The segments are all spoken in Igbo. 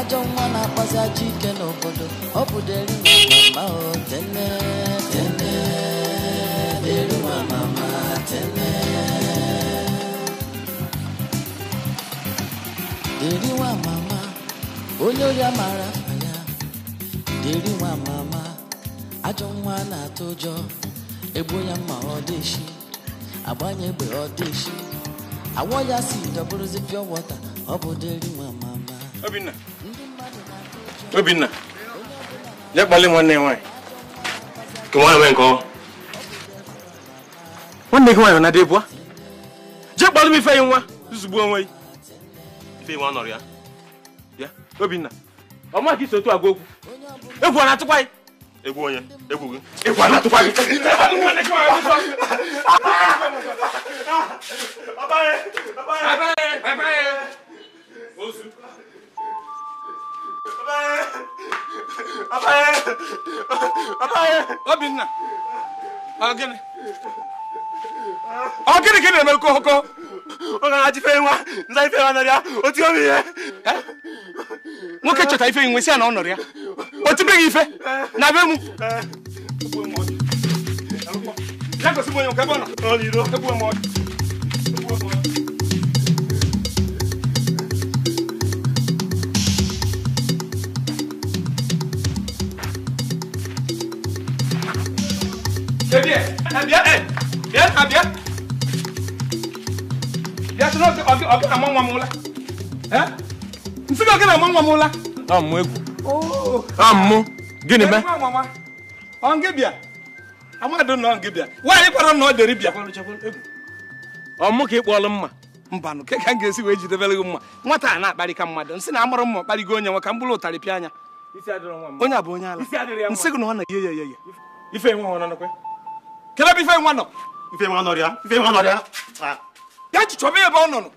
ajọ nwa na-akpazi ajọ ike n'obodo ọ bụ deri mama o tene tene deri mama tene deri nwa mama onye ori amara afa ya deri nwa mama ajọ nwa na-atụ ụjọ egbu ya mma ọ dịshi agbanye egbe ọ isi awọ ya si dọbụrụzi pịọ wọta ọ bụ deri nwa mama obinna Obinna, je kpali nwanne ya nwaanyị. Ka nwa eme nke ọ. Nwanne gị nwaanyị na-adị ebua. Je kpali m ife ya nwa, zuzugbu onwe ya. Ife ya nwa nọrọ ya. Ya, Obinna, ọ ma ka iso otu agwa okwu. Egwu ọ na-atụkwa gị? Egwu onye, egwu gị. Egwu ọ na-atụkwa gị. Abaghị, abaghị, abaghị. Ozu obinna ọ gịnị gịnị na-eme kokoko ọ gara ife nwa nza ife nwa nọrịa oti obi ihe nwoke eh? chọta ife nwe si ya na ọ nọrịa o tibeghị ife na be m ya gosi m onye nke ebe ọ nọ Ebi ebie ɛ ka a mụ egwu. ooo a ka ị kpọọlụ mma. ka m ga-esi wee jidebere gị mma nwata a na-akparị ka na amụrụ mma kparịgo onye nwe ka m bụrụ ụtarị pịa anya onye a bụ onye ala nsị gị na ọ na-eyi ya ya ya ife enwe ọ kele bụ ife nwa nọ ife nwa ya ife nwa ya ya ji chọba ebe ọ nọ nọ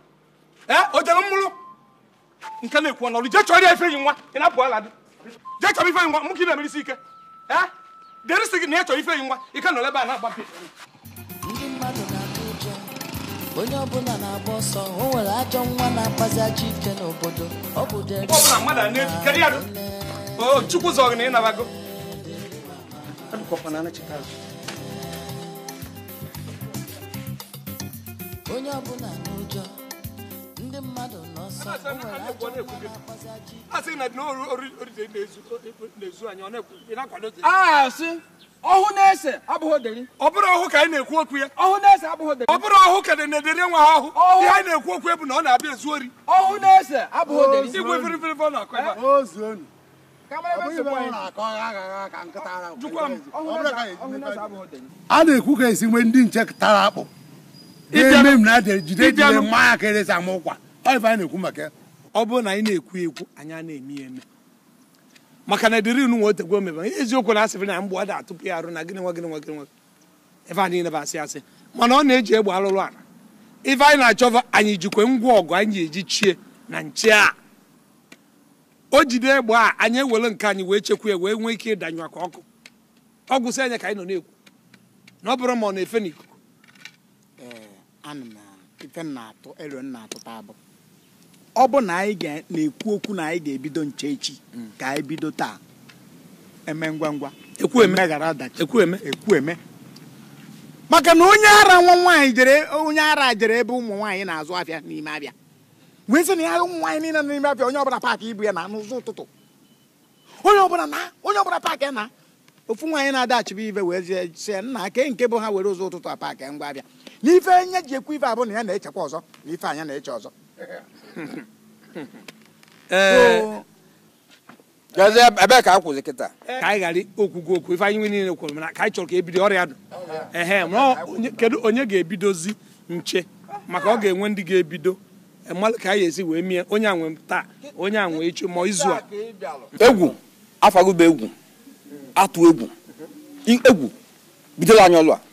o jere mmụrụ nke na-ekwu ọnọrụ jee chọrọ ya i yi nwa ị na ala dị nwa na ike eh? dịrị sị gị na ya chọrọ ife i a na-agba ndị mmadụ na onye ọbụla na-agba ọsọ o nwere ajọ na-akpazi ajọ ike n'obodo ọ bụ mmadụ oh, na ya chukwu zọgị na onye ọbụla n'ụjọ ndị mmadụ n'ọsọ asị ọhụ na-ese abụghị oderi ọ bụrụ ọhụ ka anyị na-ekwu okwu ya ọhụ na-ese abụghị ọ bụrụ ọhụ na-edere nwa ha ọhụ ihe anyị na-ekwu okwu bụ na ọ na-abịa ezu ori ọhụ na-ese abụghị oderi igwe firifiri na ekwu ka esi nwee ndị nche tara akpụ eme m na jide jide mma ya ka eresi ama ụkwa ọ ife anyị na-ekwu maka ọ bụrụ na anyị na-ekwu ekwu anyị a na-eme eme maka na dịrị nụ nwa otegwe omebe eziokwu na asịrị na mgbe ọ da atụpụ ya arụ na gịnị nwa gịnị nwa gịnị nwa ife anyị na asị asị mana ọ na-eji egbe alụrụ ala ife anyị na-achọ anyị jikwe ngwa ọgụ anyị eji chie na nche a o jide egbe a anyị ewere nke anyị wee chekwa ya wee nwee ike ịdanyụ aka ọkụ ọgwụ sị anya ka anyị nọ na-ekwu na ọ bụrụ ma ọ na-efe n'iko anụ na ife nna atụ elu nna atụta abụ ọ bụ na anyị na-ekwu okwu na anyị ga-ebido nche echi mm. ka anyị bido taa eme ngwa ngwa emeghara ọdachi ekwu eme maka na onye ara nwa nwaanyị jere onye ara jere ebe ụmụ nwaanyị na-azụ afịa n'ime abịa wee sị na ya ụmụ nwaanyị niile n'ime abịa onye ọbụla paakị ibu ya na n'ụzọ ụtụtụ onye ọbụla na onye ọbụla paakị na ofu nwaanyị na-adaghachibu ibe wee sie nna ke nke bụ ha were ụzọ ụtụtụ a paakị ngwa abịa na ife anya ji ekwu ife abụ na ya na-echekwa ọzọ na ife anya na-eche ọzọ ebe eh, ka a kwụzi kịta eh. ka anyị ghara okwugo okwu ife anyị nwe niile kwuru mana ka anyị chọrọ ka ebido ọrịa dụ oh, ehe kedu onye ga-ebidozi nche maka ọ ga-enwe ndị ga-ebido e ka anyị esi wee mie onye a nwe taa onye a nwe echi ma izu a egwu afagụba egwu atụ egwu egwu bidola anyị ọlụ a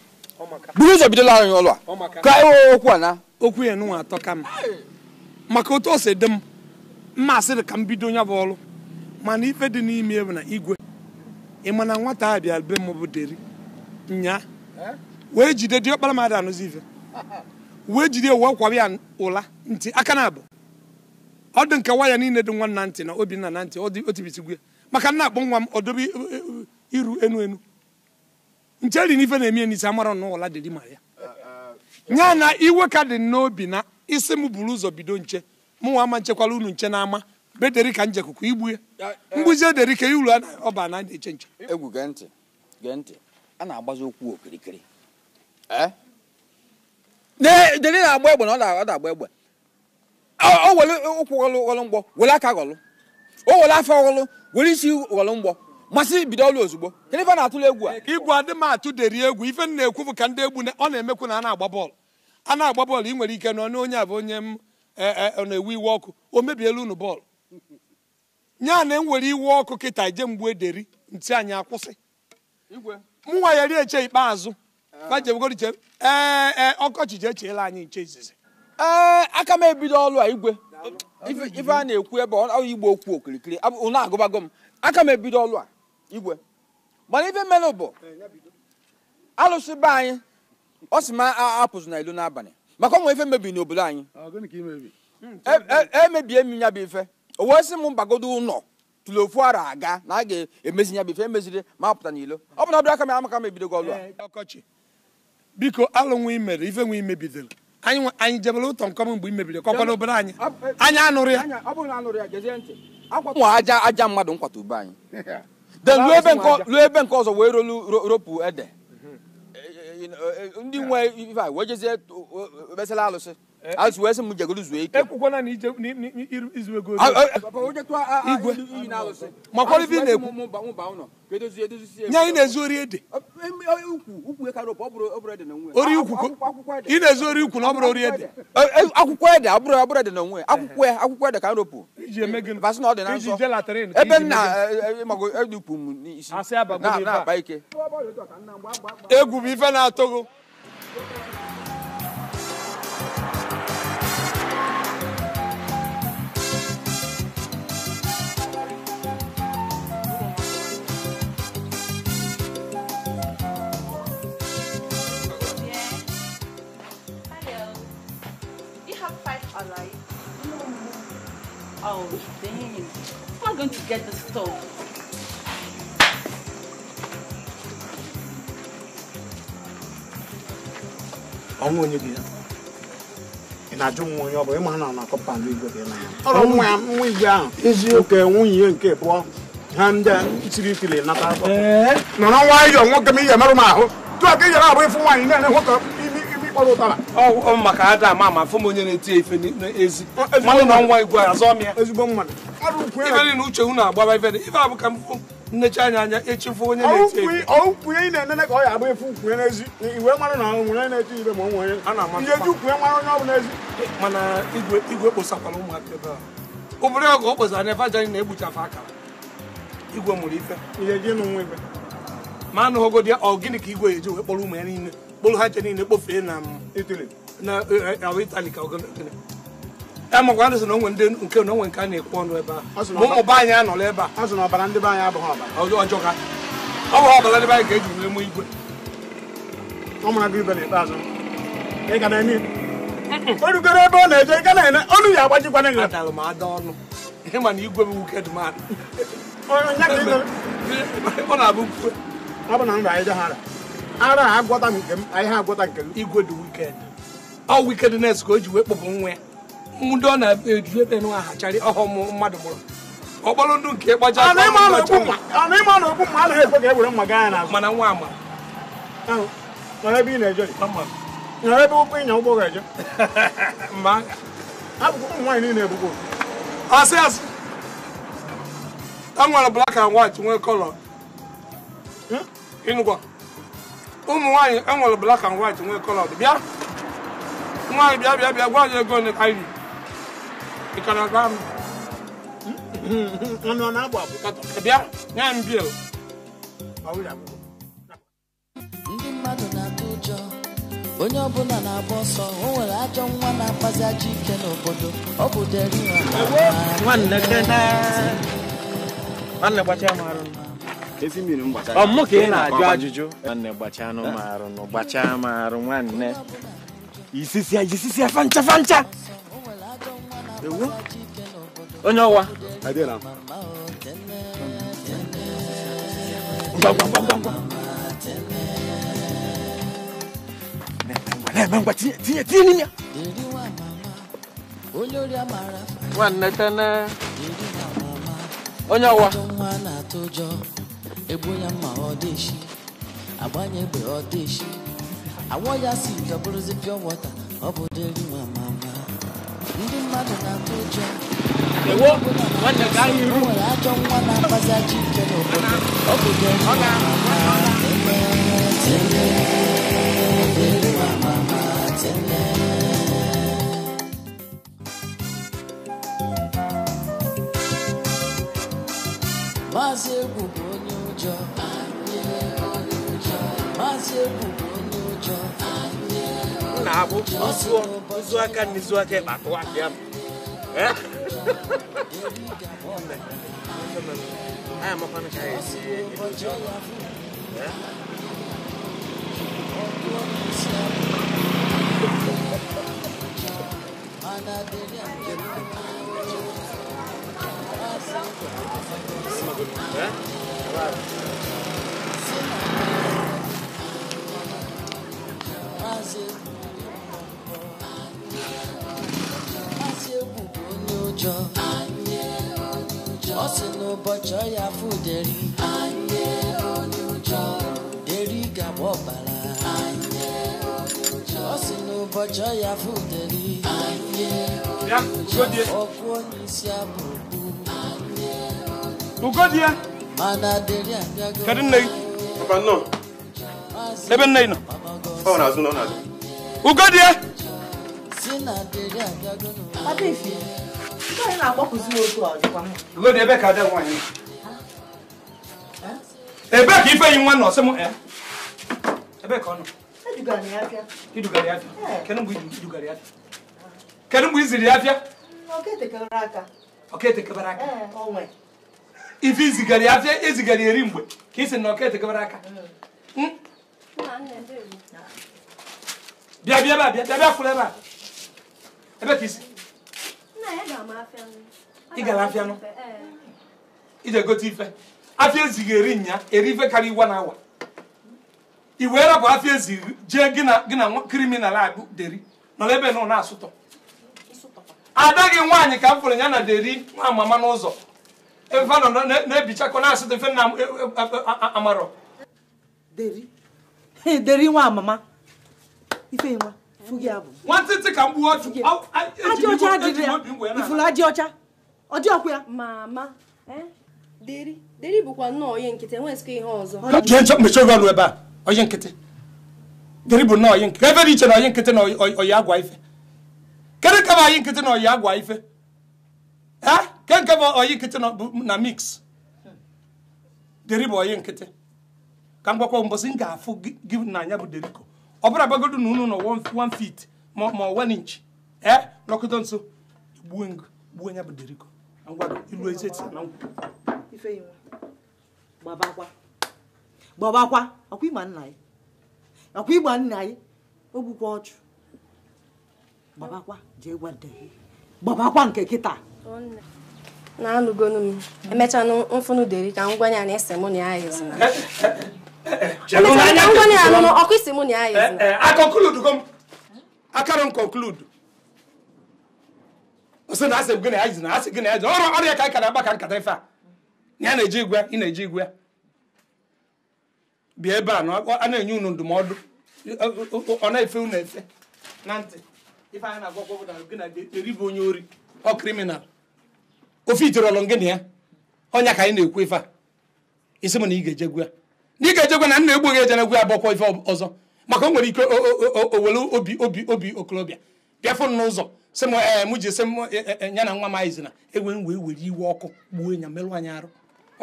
buru ụzọ bidola anyị ọlụ a ka anyị okwu a na okwu ya nụnwa atọ ka m maka otu o si dị m mma asịrị ka m bido nya bụ ọlụ mana ife dị n'ime bụ na igwe ị mana nwata a bịa be m bụ deri nya eh? wee jide diọkpara mmadụ anụzi ife wee jide wee kwawa ya ụla ntị aka na abụ ọ dị nke waya niile dị nwa nantị ntị na obinna na ntị o maka nna akpọ nwa m ọdobe iru enu enu nche dị n'ife na-eme n'isi amara n'ụla dị ma ya nya na iwe ka dị n'obi na isi m buru ụzọ bido nche mụnwa ama nchekwala unu nche n'ama bederi ka njekuku ya eh, mgbuzi ederi ka uru ọba na eche nche egwu gee ntị a na-agbazi okwu okirikiri eh? deri na-agba egbe na ọ na-agba egbe o were ụkwụ ghọlụ ghọlụ mgbọ were aka ghọlụ o were afọ ghọlụ were isi ghọlụ mgbọ masị bido ọlụ ozugbo gịnị ife na-atụla egwu a igwu adị m deri egwu ife m na-ekwu bụ ka ndị egwu ọ na-emekwu na a na-agba bọọlụ a na-agba bọọlụ ị nwere ike nọ n'onye a bụ onye m e, e, na-ewu iwe ọkụ o mebiela unu bọọlụ a na m e were iwe ọkụ kịta je mgbu ederi ntị anyị akwụsị m nwa ya rie eche ikpeazụ ee ọkọchị ji echeela anyị nche izizi ee aka m ebido ọlụ a igwe ife a na-ekwu ebe ọ igbo okwu okirikiri unu agụbago m aka m ebido ọlụ a igwe mana ife mmenụ bụ alụsị be anyị ọ sị ma apụzụ na ilu n'abalị maka ọ nwere ife mebiri n'obodo anyị emebie e, e, e m ya bụ ife o wee sị m mgbagodo ụlọ tụrụ ofu ara aga na a ga-emezi ya bụ ife emeziri ma apụta n'ilo ọ bụ na ọbịa aka m amaka mebido gị ọlụ ọkọchị biko alụ imere ife nwe imebidoro anyị jebere ụtọ nkọm mgbe imebiri kọkwana obere anyị anyị anụrụ ya ụmụ aja aja mmadụ nkwata ube anyị then ruo ebe nke ebe ọzọ wee rolu ropu ede mm-hmm. eh, eh, eh, ndị nwe ife a wee jezie mesịla alụsị Eh, azụ wee sị m jegoro zuo ike na izuwe igwe makwara na-ekwu nye anyị na-ezu ori ede ori ukwu eh, eh, ị na-ezu ori ukwu na ọ bụrụ ori ede akwụkwọ ede ọbụrụ abụrụ ede na onwe akwụkwọ ya akwụkwọ ede ka m ropụ na ọ dị na nsọ ebe m na m n'isi na ike egwu ife na-atọgo Oh, How am I going to get the stove? onye ya na nwa onye ọ bụla ịma na na kọmpand igwe dị n'anya ọrụ nwa ya ahụ eziokwu nwunye nke pụọ ha ndị a siri ikili nata nwayọọ nwoke m ihe merụ ị yọrọ abụ ịfụ nwaanyị na-ere kpọrọ ụtara ọ maka ada ama ama afụ m onye na-eti ya ife n'ezi mmadụ na nwa igwe azọ m ya ezigbo mmadụ ife niile uche unu agbaba ife dị ife abụ ka anya anya echefu onye na-eti ị na-enene ka ọ ya agba efu n'ezi iwe na nwere na-eti ife ma ọ nwere onye ọ ezi mana igwe igwe ụmụaka ebe a obodo ọgụ o na na-egbuchafe akara igwe mụrụ ife ma ka igwe eji wee kpọrọ ụmụ ya niile kpụrụ ha nche niile kpofee na mm, itali e, e, ka e, ndị na onwe ndị nke na onwe nke a na-ekwu ọnụ ebe a ụmụba anyị anọla ebe a ọbara ndị be anyị abụghị ọbara ọjọọ ha ọ bụghị ọbara ndị anyị ga-eji wee mụ igwe ọ mara gị ibe na-eme o rugoro ebe ọ na-eje igwe dị mmadụ ọ na-abụ ọ bụ na anyị ara a agwọta nke m ihe agwọta nke m igwe dị wikend ọ wikednes ka o ji wee kpọpụ nwa ndị ọ na-eju ebe nwa hacharị ọhụm mmadụ mụrụ. ọkpọrọ ndụ nke ịkpacha ọ na-eme ọnụ okwu mma anaghị ekwe ka e were mma gaa n'azụ mana nwa ama nọrọ ebe ị na-eje nwere ebe ụkwụ ịnya ụgbọ ga-eje mba abụkwa ụmụ nwaanyị niile ebugbo asị asị e nwere black and white nwee kọlọ ịnụkwa ụmụ nwaanyị enwere black and white nwee colored bịa nwaanyị bịa bịa bịa gwa anyị ego ole ka anyị ị ka na-agba m abụ bịa nye m bil ndị mmadụ na-atụ ụjọ onye ọbụla na-agba ọsọ o nwere ajọ nwa na-akpazi ajọ ike n'obodo ọ bụ deri nwanne gbachaa m arụ ọmụ ka ị na ajọ ajụjụ nwanne gbachaa anụ m arụ nụ gbachaa m arụ nwanne isisia jisisia fancha fancha onye ọwa na-eme ngwa tinye tinye n'ime ya nwanne tene onye ọwụwa. egbuo ya mma ọ dị echi agbanye egbe ọ dị echi awọ ya si nke bụrụzi pịọ wọta ọ bụ dịrị nwa mama ndị mmadụ na-atụ ụjọ nwere ajọ nwa na-akpazi ajọ ike n'obodo ọ bụ dịrị nwa mama tele dịrị nwa mama tele Maazị egwu jọ. má ṣe bùkúnú jọ. nnaabo nsuo nsuo aka n'izu aka ịba atụ ahịa m. aya mọkwa nka ya esi ebido. Yeah. ọ sị n'ụbọchị ọya fuderi deri gaba ọbara ọ sị n'ụbọchị ọya fuderi ọkụ onye isi abụ ukwu ugodie kadi nnayi papa nnọọ ebe nnayi nọ ọ na-azụ nọ n'azụ ugodie ugodie ebe ka ada nwaanyị ebe ka ife yi nwa nọ sị ebe ka ọ nọ idugara ya afịa kedu mgbe idugara ya afịa kedu mgbe iziri ya afịa ọ ka etekebere aka ọ ka etekebere aka ife izigara ya afịa ezigara eri mgbe ka isi na ọkete gabara aka bịa bịa ebe a bịa bịa kwụrụ ebe a ebe ka isi ị gara afịa nụ ije gote ife afịa ezighị eri nya eri ife karịa iwa na awa i wee rapụ afịa ezighị jee gị na kriminal abụ deri nọrọ ebe na asụtọ ada gị nwaanyị ka m fụrụ ya na deri nwa mama n'ụzọ ebe a nọ na-ebichakọ na-asụ dị mfe na amarọ eh? deri deri nwa amama ife nwa abụ nwantịntị ka m gbuo otu ajị ọcha adịrị ifuru ajị ọcha ọdị ọkụ ya mama deri deri bụkwa nnọọ onye nkịtị enwe enweghịzikwa ihe ọzọ jee nchọ mmechi oge ọnụ ebe a onye nkịtị deri bụ nnọọ onye nkịtị ebe dị iche na onye nkịtị na oyi agwa ife kedu ka bụ anyị nkịtị na oyi agwa ife ee eh? kenke bụ oyi nkịtị na mix deri bụ oyi nkịtị ka m gwakwa mbọsị m ga-afụ gị na anya bụ deriko ọ bụrụ gbagodo na unu nọ wan fit ma ọ 1 inch e eh? nọkọta nso gbuo ngụ gbuo nya bụ deriko ngwado ilu ezi eti na nkwụ gbabakwa gbabakwa ọkwa ịgba nna anyị ọkwa ịgba nna anyị o gbukwa ọchụ gbabakwa jee gwa gbabakwa nke kịta na-anụgonu m emechaa mfụnụ deri ka m gwanye na ese mụ na ya isi mụ na ya ezina eh, eh, akara na gị na ọrụ ya ka aka na ka nkata ife a na ya na-eji igwe ị na-eji igwe bịa ebe a a na-enye unu ndụmọdụ ọ na-efe unu efe na ntị ife anyị na na gị onye ori ọ kriminal ofe itoro ọlụ ngịnị ya ọnya ka anyị na-ekwu ife a isi m na ị ga-ejegwu ya na ị ga-ejegwu na nna egbu gị ejenegwu ya bụkwa ife ọzọ maka o nwere ike owere obi obi obi okorobịa bịa n'ụzọ sị m ee m ji sị m e, e, e, ya na nwa m anyị zina ewe m wee were iwe ọkụ gbuo ya merụ anyị arụ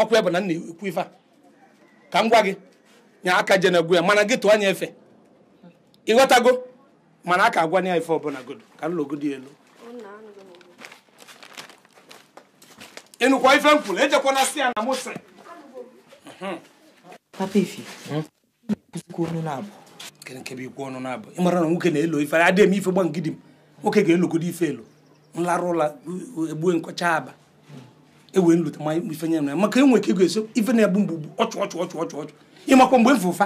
ọkụ bụ na nna ekwu ife a ka m gwa gị nya aka jenegwu ya mana gị tụọ anya efe ịghọtago mana a ka agwa na ya ife ọbụla godo ka nlogodi elu Enukwa ife m kwuru ejekwana si ya na mose papa ife ikwu ọnụ na-abụ kenkebe ikwu ọnụ na-abụ ịmara na nwoke na-elo ife adị eme ife gba ngidi m nwoke ga-elogodo ife elo nlarụ ụla egbue nkọcha aba ewee nlute ma ife nye ya maka enwe ka ego eso ife na-egbu mgbugbu ọchụ ọchụ ọchụ ọchụ ọchụ ịmakwa mgbe m fe ụfa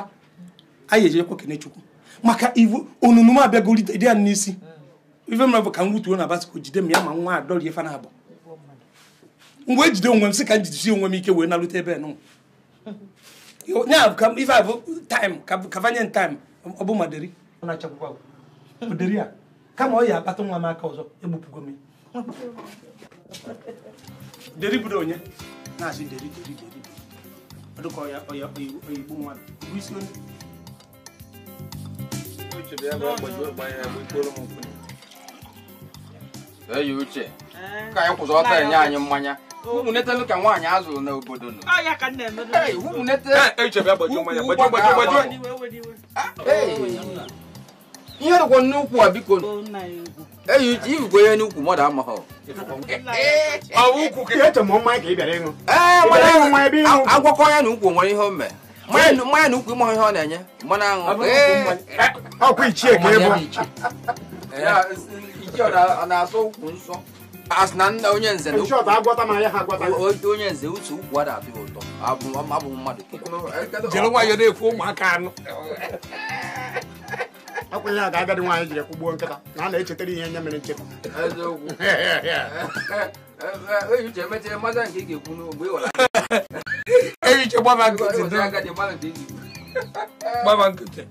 anyị ejekwa kene chukwu maka ivu onunu m abịagolite dị ya n'isi ife mra bụ ka m wutuo na basikọ jide m ya ma nwa adọrie ife na-abụ mgbe e jide onwe m sị ka m jidesi onwe m ike wee narute ebe nụ ife a bụ i kavanye taim ọ bụ a kama ọ ya akpata nwa m aka ọzọ egbupụgo m deri bụrụ onye na-asị deri deri deri ọ ọya ọya oyigbo bụ isi onye uche bịa bịa gbanye ya bụ m ka anyị kwụzọ ọta anyị mmanya ụmụnetelu ka nwaanyị azụrụ n'obodo nọ ihe rụgwọ n'ukwu a biko eyi iwugbo ihe n'ukwu mmadụ amaghị agwakọ ya na ukwu nwere ihe o mee mmanya na ukwu ịmaghị ihe ọ na-enye mmanụ aṅụ ọkwa ichie ka ọ na-asọ ukwu nsọ as na nna onye nze onye nze uche ukwu ada adịghị ụtọ abụ mmadụ e, e, e, jere nwayọ na-ekwu ụmụaka anụ akwenye a ga-agadi nwaanyị jiri kwụgbuo nkịta na a na-echetara ihe nye mere nchekwa ehiche gbaba nkịtị gbaba nkịtị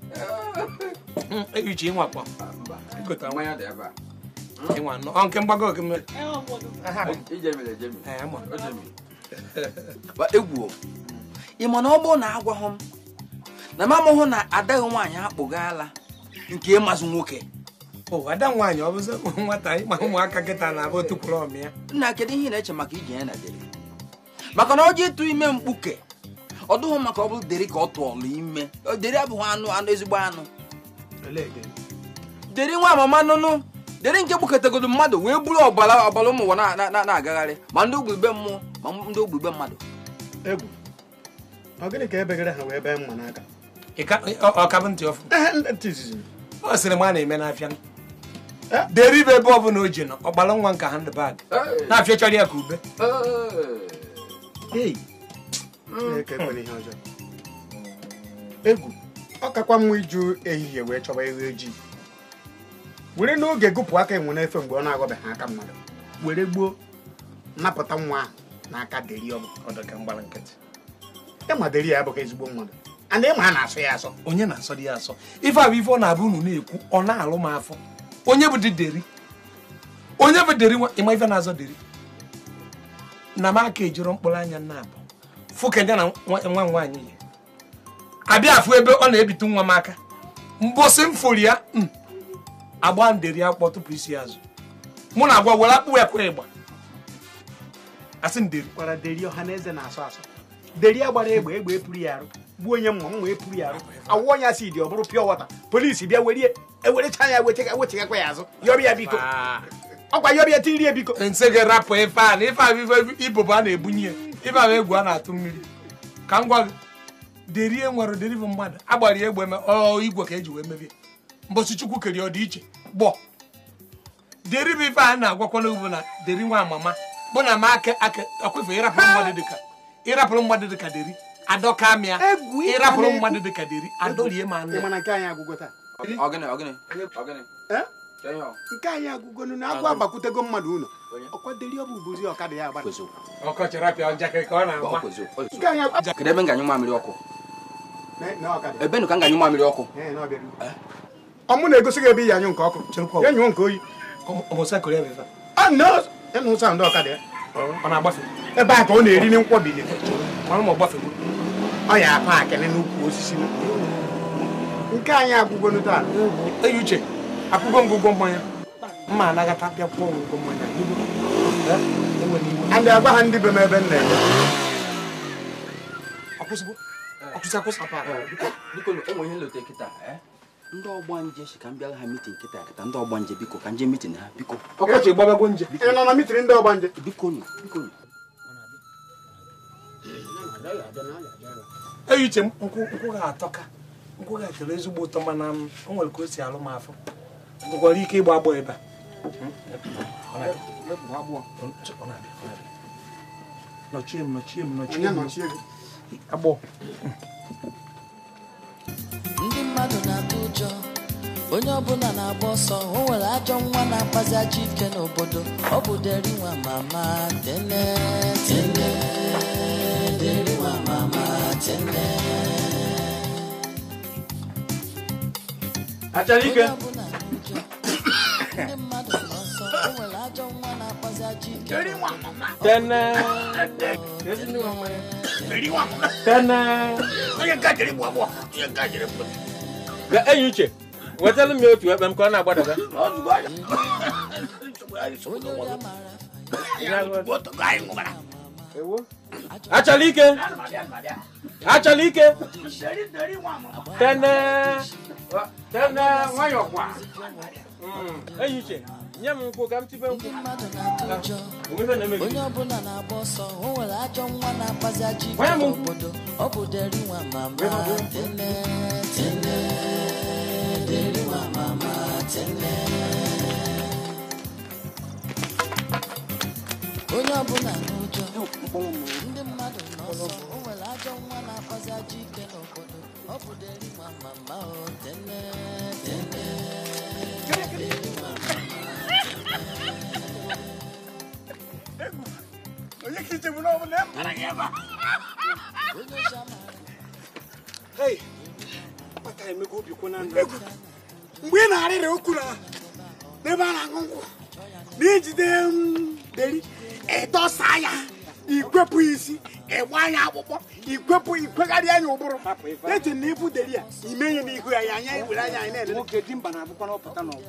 ehiche ịnwakpọ ịnwa anọ ọ nke mgbago gị mere ị ma na ọ bụrụ na agwaghị m na m amụghụ na adaghị nwaanyị akpụghala nke ịmazụ nwoke ada nwaanyị ọ bụzi nwata ịma ụmụaka kịta na-abụ otu kwuru ọmịa nna kedu ihe na-eche maka iji ya na dere maka na ọjị ịtụ ime mkpuke ọ dụghị maka ọ bụrụ deri ka ọ tụọlụ ime deri abụghị anụ anụ ezigbo anụ deri nwa mama nụnụ dere nke gbukọtagodo mmadụ wee buru ọbara ọbara ụmụ ụwa na-agagharị ma ndị ogbe mmụọ ma ndị ogbe mmadụ egwu ọ gịnị ka ebegara ha wee bee mma n'aka ọkabụ ntị ọfụ ọ sịrị m a na-eme n'afịa eh? dere ibe ebe ọ bụla o ji nọ ọgbara nwa nka handbag eh. na-afịa chọrọ ya ka ube eh. egwu ọ kakwa mma iju ehihie wee chọba ewu ojii e were n'oge gụpụ aka enwe n'efe mgbe ọ na ha aka mmadụ were gbuo napụta nwa ahụ n'aka deri ọdọkamgbara nkịtị ịma deri ya abụghị ezigbo mmadụ a ịma a na-asọ ya asọ onye na-asọ dị ya asọ ife abụ ife ọ na-abụ unu na-ekwu ọ na-alụ m afọ onye bụ dị deri onye bụ deri nwa ịma ife na-azọ deri na m aka ejiro mkpụrụ anya nna abụ fụkenya na nwa nwaanyị ya abịa afụ ebe ọ na-ebite nwa m aka mbọsị m fori ya hmm. agba nderi akpọ tupu isi azụ mụ na agwa were akpụ ekwe ịgba asị nderi gwara deri ọha na asọ asọ deri ya gbara egbe egbe epuru ya arụ gbuo onye mma mma epuru ya arụ awụọ onye asị dị ọ bụrụ pịọ wọta polisi bịa were ewerecha ya wechegakwa ya azụ yọrọ ya biko ah. ọkwa yọrọ ya tiri ya biko nsị gị rapụ ife a na ife a ibobo a na-ebunye ya ife ahụ egwu a na-atụ mmiri ka m gwa gị derie nwere bụ mmadụ agbara ya egbe igwe ka e ji wee mebie mbọchị chukwu kere ọdịiche gbọ deri bụ ife a na-agwakwa n'ugbo na deri nwa amama bụ na ma aka aka ọkwefe ịrapụrụ mmadụ dịka ịrapụrụ mmadụ dịka deri adọka mịa ịrapụrụ mmadụ dịka deri adọrie ma anụ nke anyị agụgo na agwọ agbakwutego mmadụ ụlọ ọkwaderi ọ bụ ubozi ọkada ya agbara ebe ọ mamịrị ọkụ ebe nụ ka nganyi mamịrị ọkụ ọmụ na-egosi gị ebe iyi anyụ nke ọkụ ya nyụọ nke oyi ndị ọkada ebe a ka ọ na-eri na nkwọbili ọ ya na n'ukwu osisi nke anyị agwụgo taa eyi uche akwụgo ngụgwọ mmanya mma anagata bịakwuo ngụgwọ mmanya ndị agwa ndị be ebe nna ndị ọgba nje si ka m bịara ha mitin nkịta kịta ndị ọgba nje biko ka nje mitin ha biko ọkọchị gbabago nje ị nọ na mitin ndị ọgba nje biko nụ biko nụ eyi uche nkwụ ga-atọka nkwụ ga-atọrọ ezigbo ụtọ mana o nwere ka o si alụ m afọ nwekwara ike ịgba agbọ ebe a hmm? nọchie m nọchie m nọchie m agbọ ndị mmadụ na-atụ ụjọ onye ọbụla na-agba ọsọ o nwere ajọ nwa na-akpazi ajọ ike n'obodo ọ bụ deriwa mama tene tene deriwa mama tene achara ike ndị mmadụ na ọsọ o nwere ajọ nwa Thirty-one, mama. Then, thirty-one. Then, you got it, Wabo. You got it. The Ayuche. What's the meal to have them corner about it? Oh, God. What the guy? Achalike. Achalike. Then, then, why hmm, you're one? Ayuche. nye m nkwụ ka m tibe nkwụ ah, onye ọbụla na-agba ọsọ o nwere ajọ nwa na-akpazi ajọ ọ bụ deri nwa mama tene tene onye nwa na-akpazi ike n'obodo ọ nwa mama tene onye ka ichegbu na ọbụla mara gị ebe mgbe ị na-arịrị okwuru ahụ n'ebe a na-aṅụ nkwụ na ijide deri ịdọsa ya ikwepụ isi ịgba ya akpụkpọ ikwepụ ikwegharị anya ụbụrụ eche na deri ya ime ihe n'ihu ya ya anya were anya anyị na-ele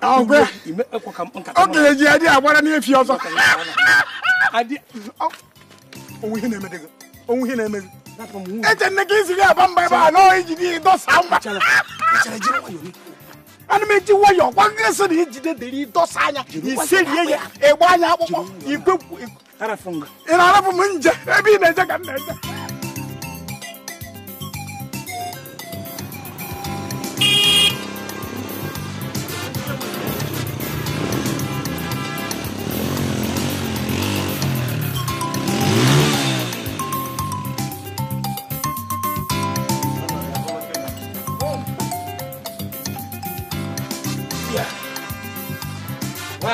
ọgbẹ oge ji adi agbara n'efi ọzọ onwe ihe na-eme gị onwe ihe na-eme gị eche nne gị isi gị aba mba ebe a n'ọhịa iji gị dọsa mba ana m eji nwayọ gwa gị sị na ijide dịrị dọsa anya iserie ya ịgba anya akpụkpọ igwe ị na-arapụ m nje ebe ị na-eje ka na-eje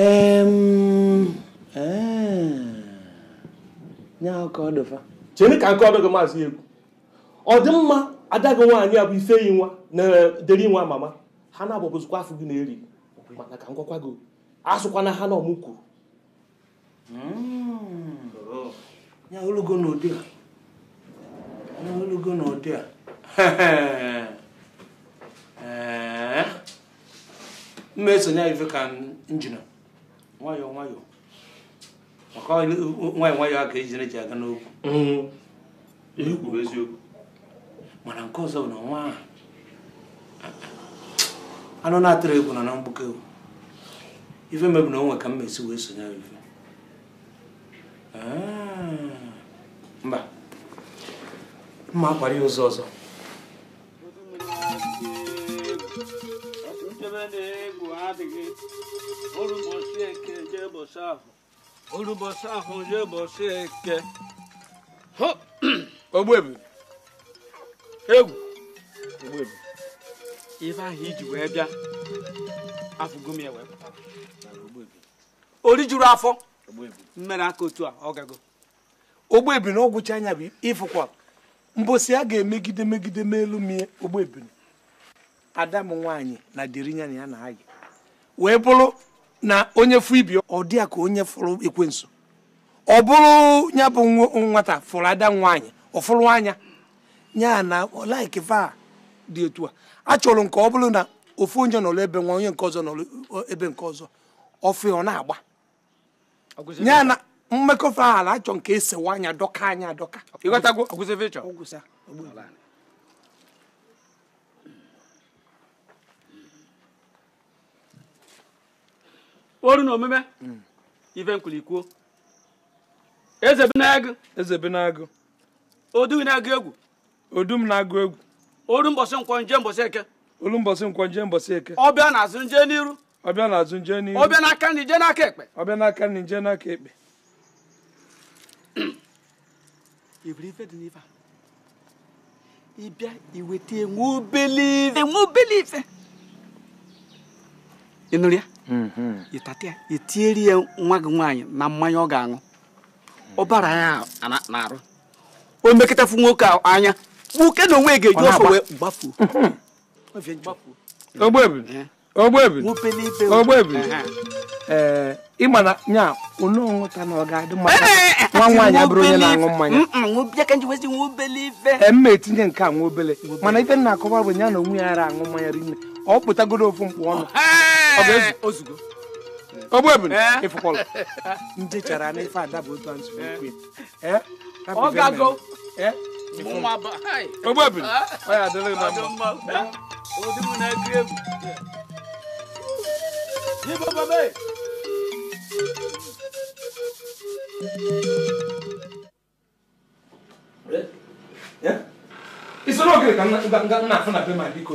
E, ọkọ chee ka nke ọdụ gị maazị egwu ọdịmma ada gị nwaanyị a bụ ife yi nwa na deri nwa mama ha na-agbabozikwa afọ gị na-eri mana ka ngwakwa gị asụkwana ha na ọmụ kwuru hmm. ya olugo n'ụdị a ya olugo n'ụdị a m esonye ife ka njina nwayọọ nwayọọ maka nwayọọ nwayọọ a ka eji na-eji aga n'okwu mm-hmm. ihe kwuru eziokwu mana nke ọzọ bụ na nwa anụ na-atụrụ egwu na na mgbuke ife mebu na onwe ka m esi wee sonye ife ah. mba mma akwara ya ụzọ ọzọ ebe na-egwu adịghị orubọsị ife ahụ iji wee bịa afụgo m ya wee pụta juru afọ mmere aka otu a ọ gago ogbebu na ọgwụcha anya bụ ịfụkwa mbọsị a ga-emegide megide ma elu mie ogbebu ada m nwaanyị na derinya na ya na wee bụrụ na onye fụ ibi ọ dị ya ka onye fụrụ ekwenso ọ bụrụ ya bụ nwata fụrụ ada nwaanyị ọ fụrụ anya ya na laiki va dị etu a achọrọ nke ọ bụrụ na ofu onye nọrọ ebe nwa onye nke ọzọ nọrọ ebe nke ọzọ ọfụ ọ na-agba ya na mmekọfa ala achọ nke esewa anya dọka anya adọka Oru na omume ife nkwulikwuo eze bi na-agụ eze bi na-agụ odu na-agụ egwu odu m na-agụ egwu olu mbọsị nkwọ nje mbọsị eke olu mbọsị nkwọ nje mbọsị eke ọbịa na-azụ nje n'iru ọbịa na-azụ nje n'iru ọbịa n'aka nri nje n'aka ekpe ọbịa n'aka nri nje n'aka ekpe ịbịa iweta enwe obele ife enwe obele ife ịnụrụ ya Mm-hmm. ị tinyere ya nwa gị nwaanyị na mmanya ọ ga-aṅụ ọbara ya na-arụ o mekọtafu nwoke anya nwoke na onwe ga-eji ọsọ wee gbafuo ogbebi mm-hmm. ee eh. eh, eh. ịma na nya unu ọṅụta na ọ ga-adị mma nwa nwaanyị abụrụ onye na-aṅụ mmanya mma etinye nke a nwa obele mana ife na-akọwa bụ ya na onwe ya ara aṅụ mmanya rinne ọ pụtagoro ofu mkpụ ọnụ Eh. Eh. ndị chara na ife ada bụ otu nzukwu eh. ogbebiri ah. ọ ya adịrị na mma ka afụ na be ma biko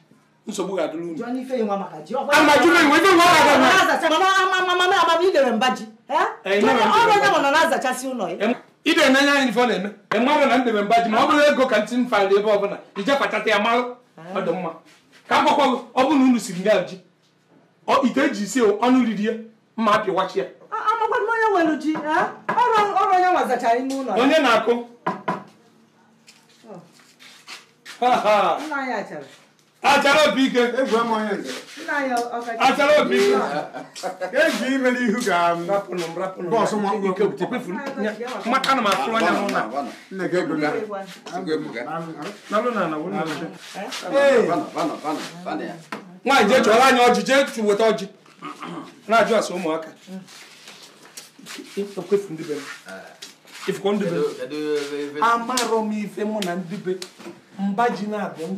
nsogbu ga-adụrụ unu amajụrụ enwe nwa na ide n'anya anyị ife na-eme na ndebe mba ji ma ọ bụrụ ego ka ntị m fara ebe ọbụla ije kpachata ya malụ ọdụ mma ka m ọ bụrụ na unu siri nga ji ite e ji isi ọnụ riri ya mma apịwachi ya onye na-akụ oh. achara obi ike achara obi ike eji ga-bọsụ maka na m afụrụ anya na nwaanyị jee chọrọ anya ọjị ọjị na-ajụ asa ụmụaka amarọ m ife mụ na ndị mba ji na-abịa m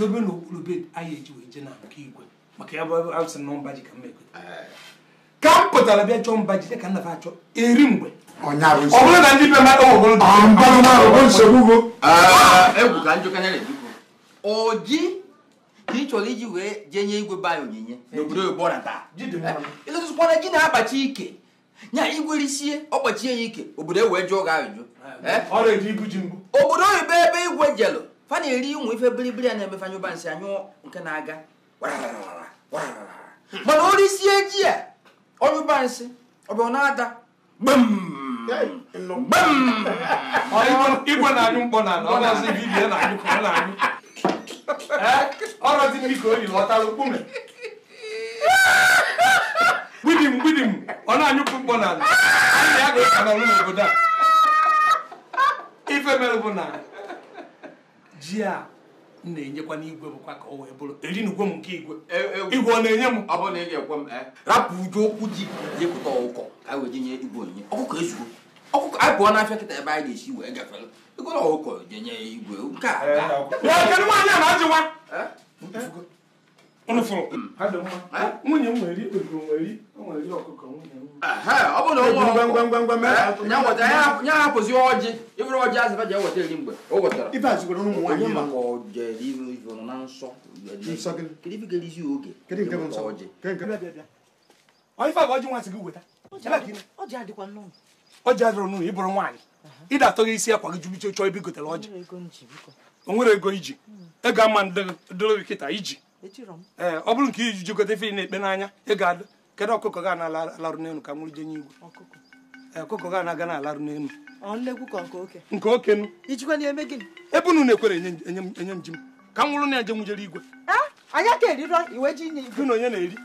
dobe n'okpuru bed anyị eji wee je na nke igwe maka ya bụ asị eh. na oh, mba eh, ah! eh, ji ka m ekweta ka m pụtara bịa chọọ mba ji dị ka nna m achọ eri mgbe ọ bụrụ na ndị be mmadụ ọji ka ị chọrọ iji wee jee nye igwe be anyị onyinye n'obodo oyibo na taa ịlụtụkwana ji na-akpachi ike nya igwe risie ọ kpachie ya ike obodo e wee ah, jụọ gị ajụjụ obodo oyibo ebe igwe jelụ fa na-eri ụmụ ife biribiri a na-emefanye ụba nsị anyụ nke na-aga hmm. mana o risie ji a ọnyụba nsị ọ bụ na-ada igwe na-anyụ mkpọ na ọnazi bibie na-anyụ ka ọ na-anyụ ọrọzi ndị ka o yi lọtara okpume gbidim gbidim ọ na-anyụpụ mkpọ na ala anyị na ya ga-eka n'obodo a ife mere bụ na ji a m na-enyekwa n'igwe bụkwa ka o wee bụrụ eri na ugwe m nke igwe e, e, e, igwe ọ na-enye m ọ bụrụ na ị m rapụ uju okwu ji jepụta ọkụkọ ka wee nye igwe onyinye ọkụkọ ezugo ọkụkọ anyị pụọ n'afịa kịta ebe anyị ga-esi wee gafere egoro ọkụkọ jenye igwe nke a nwaanyị ajụwa Hmm. Eh? nwunye m nwere ikpegoro nwere nwere ọkụkọ ọ bụrụ na ọjị ịbụrụ ọjị azịba ji eweta eri mgbe wetara nwaanyị maka ọjị na nsọ ọjị ọjị adịrọ n'ụlọ ịbụrụ nwaanyị ịda atọ gị isi akwa gị jubiche chọọ ebe igotere ọjị o nwere ego iji hmm. ego ama dịrị kịta iji Eh, ọ bụrụ nke iji jikọta efere na-ekpe n'anya ị adụ kedụ ọkụkọ ga na-alarụ n'elu ka nwụrụ jenye igwe eh, ọkụkọ ga na-aga na-alarụ n'elu nke oke nụ ebe unu na-ekwere enye m ji m ka m nwụrụ na njem jere igwe gị na onye na-eri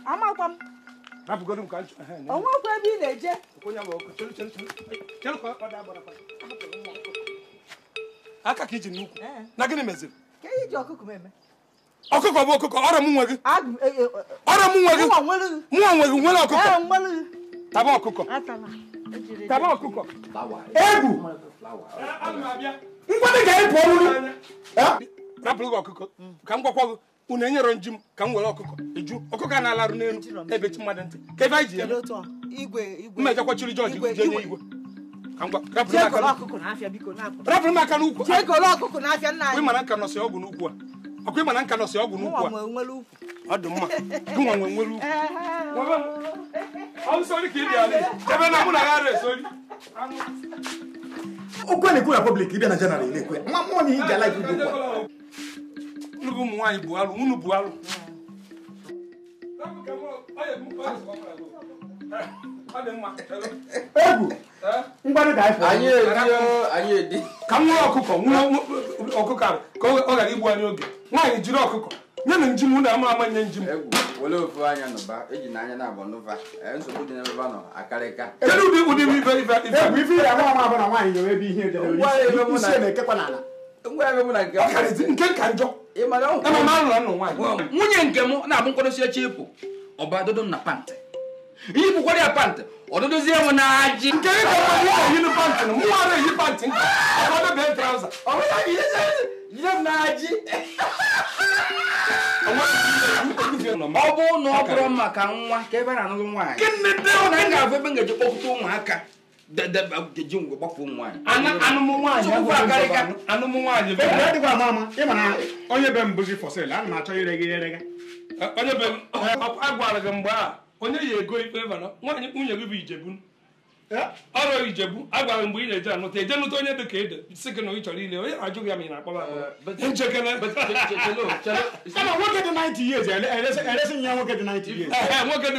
aka ka iji n'ukwu eh. na gịnị meziri ọkụkọ bụ ọkụkọ ọrọ m nwe gị e, e, e, ọrọ m nwe gị mụọ nwe gị nwere ọkụkọ taba ọkụkọ taba egwu ngwadị ga-ebu ọrụrụ rapụrụ gị ọkụkọ ka m gwakwa gị unu enyere nji ka m ọkụkọ eju ọkụkọ na-alarụ n'elu ebe chi mmadụ ka ebe ọgwụ n'ukwu ọkwa ịma na nka nọsị ọgwụ a ọ dị mma gụnwa nwe nwere ukwu okwu na-ekwu na pọblik ịbịa na jenara na-ekwe nwa na ihe ji ala ibu a. nnukwu ụmụ nwaanyị bụ alụ unu bụ alụ egwu mgbarị anyị ka nwa ọkụkọ nwa ọkụkọ ka ọ ghara igbu anyị oge nwaanyị jiri ọkụkọ nye na njim na ama ama nye njim e e, kedu ụdị ụdị ife nke ka njọ nwunye nke m na-abụ nkwadosi eche ịpụ ọba na pantị ihe bụkwara a pantị ọdụdụzie m na-ajị nke gị ka mmadụ ka yiri pantị na mụ ara pantị nka ọfọdụ bee traụza yi ọ bụ na ọ bụrụ maka nwa ka ebe na nwaanyị na m ga ebe ụmụaka ji ngwe gbapụ anụmụ nwaanyị onye be m bụzi fọsil ana achọ ire gị ere gị agwara gị mgbe a onye yi ego ife na nwaanyị nwunye gị bụ ijebu ọrụ ijebu agwara mgbe ị na-eje anụta eje nụta onye dị ka ede si gị na ị chọrọ ile onye na-ajụ ya ma ị na-akpọba nwoke dị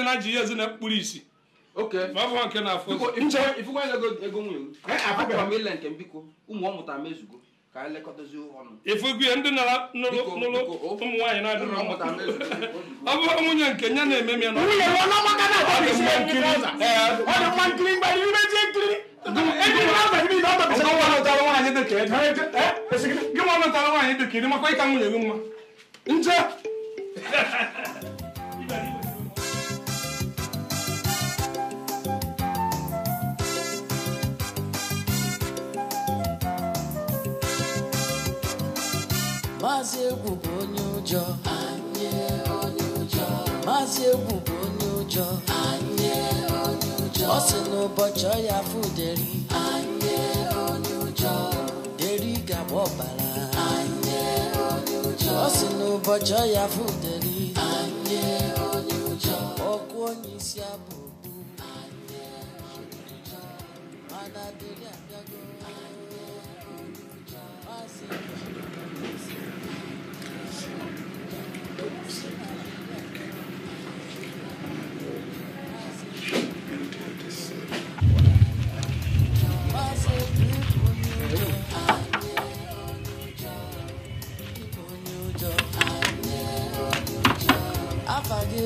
90 years na mkpụrụ isi nke na-afụ ụmụ ọ mezugo ka anyị lekọta ọnụ efu ya ndị nara nụrụ ụmụ nwaanyị na-adịrọ mma ọ bụrụ nwunye nke ya na-eme m ya na nwunye ya ọnụ maka na ọ dị mma nkiri ọ dị mma nkiri mgbe anyị ime ji nkiri gị nwa nọtara nwaanyị dịka ịdị makwa ịka nwunye gị mma nje Thank you. bụ onye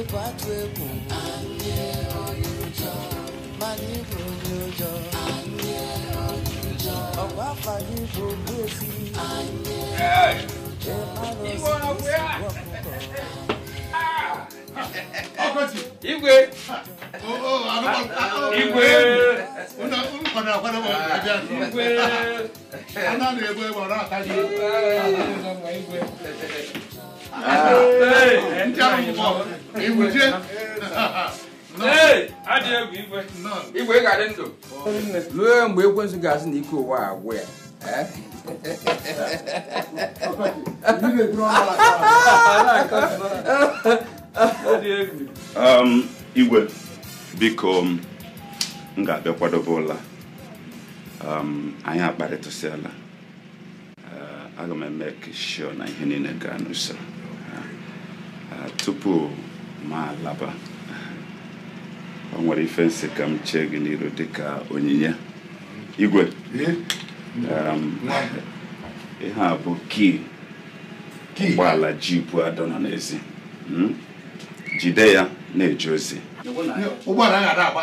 n'ịkwatu egwu anyị onye ụjọ mana ịbụ onye ụjọ anyị onye ụjọ ọkwa afa gị bụ ogbuefi anyị ịmara ozi ọkụkọ igwe ah. igwe igwe a na-egbu egbe ọrụ aka gị igwe igwe ga-adị ndụ ruo mgbe ekwensụ ga na ike ụwa agwụ ya igwe biko m ga-abịa kwadobe ụla um, anyị akparịtasịala uh, aga m eme kishọ na ihe niile gaa n'usoro tupu ma laba ọ nwere ife nsị ka m chee gị n'iru dịka onyinye igwe um, ihe a bụ kii ji jibu adọ nọ n'ezi hmm? jide ya na-eje ozi ụgbọala ya agba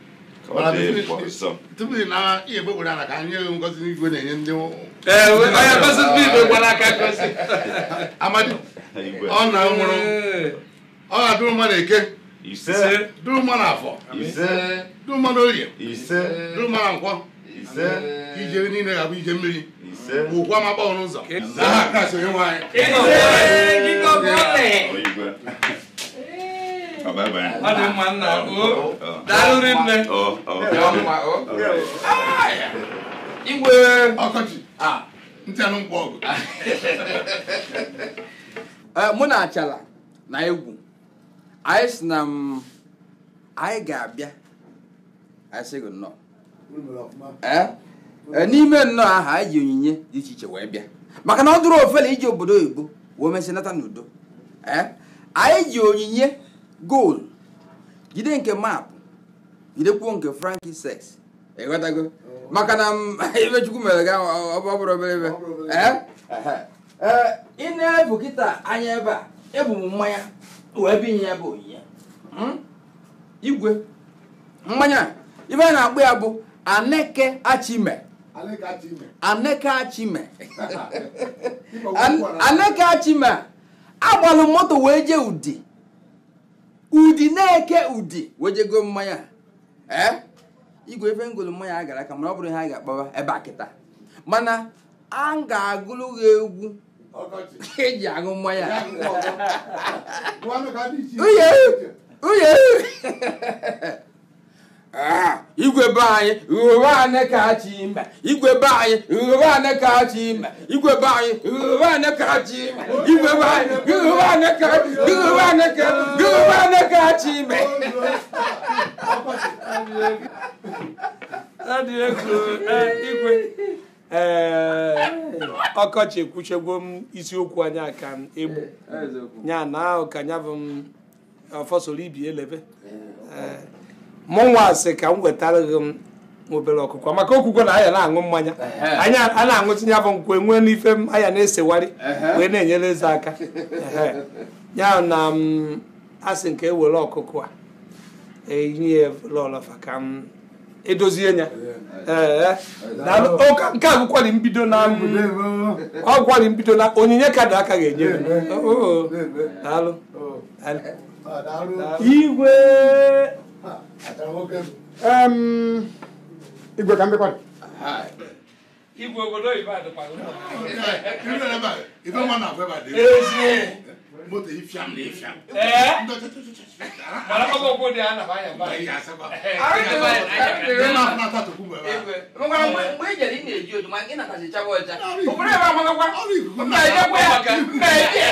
tupu ị na ihe egbe gwara ka anyị enyeghị ngozi n'igwe na-enye ndị amadi ọ na nwụrụ ọ ga-adụrụ mmadụ eke dụrụ mmadụ afọ dụrụ mmadụ orie dụrụ mmadụ nkwọ ije niile ga-abụ ije mmiri ụkwa ma gbaọ n'ụzọ aha kasị onye nwe ọ dị mma nna daalụ nne igwe mụ na achala na egwu anyị si na anyị ga-abịa n'ime nnọọ ahụ anyị ji onyinye dị iche iche wee bịa maka na ọ dụrụ ofele iji obodo oyibo wee n'udo anyị ji onyinye goolu jide nke maapụ jidekwuo nke franki sex oh. maka na mere ga obere ebe eh? Eh, ị na-ebu kịta anya ebe a ebu m mmanya wee onyinye hmm? igwe mmanya ibe a na ya bụ aneke achime aneke achime agbalụ moto wee jee ụdị ụdị na-eke ụdị wejego mmanya igwe efe ngolu mmanya a gara aka mana ọ bụrụ ihe a ga-akpọwa ebe a kịta mana a ga-agụrụ gị egwu eji aṅụ mmanya uye Ah, igwe be anyị ghụghọ anị ka chi mba igwe be anyị ghụghọ anị ka chi igwe be anyị ghụghọ anị ka chi igwe be anyị ghụghọ anị ka ghụghọ anị ka ghụghọ anị ka chi eh, ọkọchị ekwuchegwo m isiokwu anyị aka m egbu ya na ahụ ka bụ m ọfọsoro ibi elebe eh, eh, mụnwa asị ka m wetara gị m obere ọkụkọ maka okwukwe na anya na-aṅụ mmanya anya a na-aṅụtinye bụ nkwe nwee n'ife m anya na-esewari wee na-enyere eze aka ya na m asị nke ewere ọkụkọ a eyinye lọlọfa ka m edozie ya nke a mbido na ọ gwari mbido na onyinye kadụ aka ga-enye m igwe Igwe ka m bịakwa Igwe obodo Ibadan pa ụlọ. Ibe na ba, ibe mma na afọ ebe a dị. Ezie. Moto ifiam na ifiam. Ee. Mara kọba okwu dị a na banya ba. Ayi asaba. Ayi asaba. Ayi na afọ na tukwu mgbe ba. Ngwa mgbe ị jere ị na-eji oju ma ị natazị chaba ọcha. Obodo ebe amagakwa. Mba ị jekwa ya. Mba ị jekwa ya.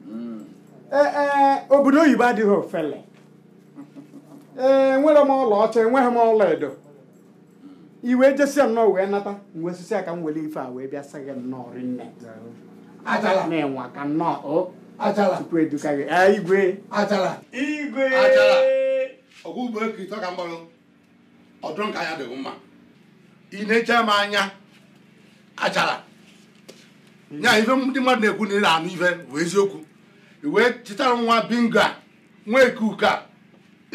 Eh, eh, obodo oyibo adịghị ofele ee eh, enwere m ọla ọcha enweghị m ọla edo iwe jesia nnọọ wee nata wee sisi aka m ife a wee bịa sagị nnọọ rinne na-enwe aka nnọọ tupu eduka gị igwe igwe ọgwụgboekitọ ka mgbarụ ọdụ nka ya dịghị mma ị na-eche m anya nya ife ndị mmadụ na-ekwu na ị na-anụ ife bụ eziokwu wee chịtara nwa binga nwa eke uka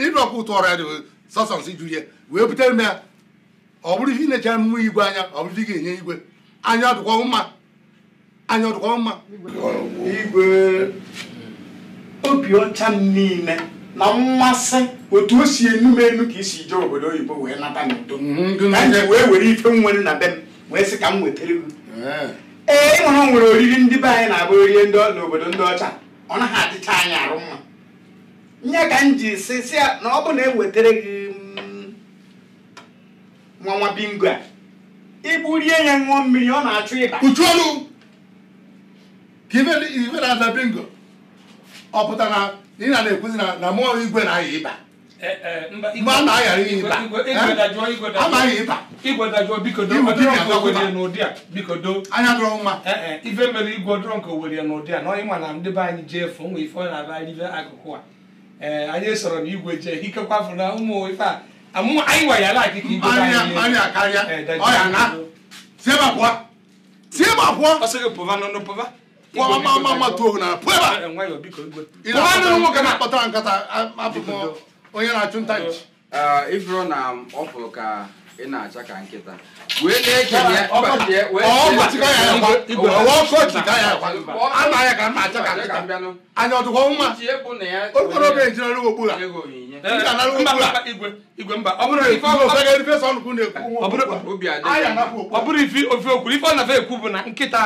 ịdụ ọkụ ụtụ ọrịa dị sọsọ nsị ju ihe wee butere m ya ọ bụrụ ihe ị na-echere mmụọ igwe anya ọ bụrụ ihe ga-enye igwe anya ọdụkwa mma anya ọdụkwa mma igwe obi ọcha m niile na mmasị otu o si enu m enu ka isi jee obodo oyibo wee nata n'udo mhm, ka m ji wee were ife m nwere na be m wee sị ka m wetara gị eh. ee ịhụrụ nwere oriri ndị be anyị na-abụ orie n'obodo ndị ọcha ọ naghị adịcha anya arụ mma nye ka m ji si na ọ bụ na ewetara gị mm, nwa bingo a ihe ya ṅụọ mmiri ọ na-achụ ịba uchuolu ka ife na-aza bingo ọ pụtara na ị na-ekwuzi na mmụọ igwe na-aya ịba Eh, eh, na ịba igwe a biko do anya eh, ife mere igwe dọrọ nke Owerri n'ụdị a na onye ma na ndị be anyị jee fụ nwa ife na-aba anyị akụkụ a anyị soro na igwe jee ikekwa fụ na ụmụ ife a ah, anyị ala igwe anyị pụọ nwoke na-akpọtara nkata apụpụ onye na-achụ nta nchi ifuru na ọ ka ị na-acha ka nkịta wee na ọ bụrụ ife ofe okwu ife ọ na-afe ekwu bụ na nkịta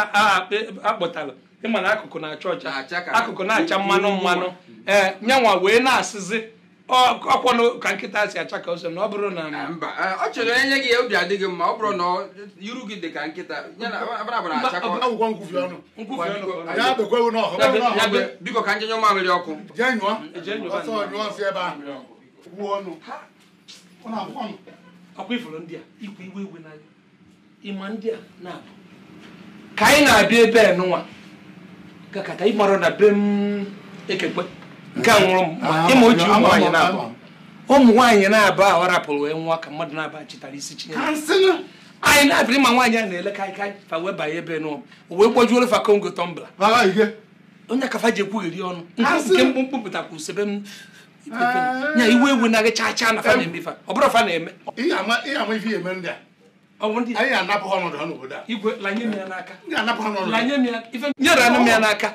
akpọtara ịma na akụkụ na-acha ọcha akụkụ na-acha mmanụ mmanụ ee nyanwa wee na-asịzi ọkwọnụ ka nkịta si acha ka na ọ bụrụ na mba ọ chere onye gị ya obi adịghị mma ọ bụrụ na iru gị dị ka nkịta biko ka njenye mamịrị ọkụ a a na ka anyị na-abịa ebe a nụnwa kata ịmarụ na be m ekekpe nke a nwụrụ ah, ịma o ji ah, ah, ụmụ nwaanyị na-abụ ụmụ nwaanyị na-abụ ahụ rapụrụ wee nwa ka mmadụ na-aba chịtara isi Chineke anyị na ma nwaanyị a na-ele kaikai fa wee banye ebe nụ wee gbojuoro fa kongo tọmbla onye kafa ji ekwugheri ọnụ nke mkpụmkpụ pụtakwa usebe m nya eh. iwe ewu na gị chaa na fa na-eme ọ bụrụ fa na-eme nyere anụ m ya n'aka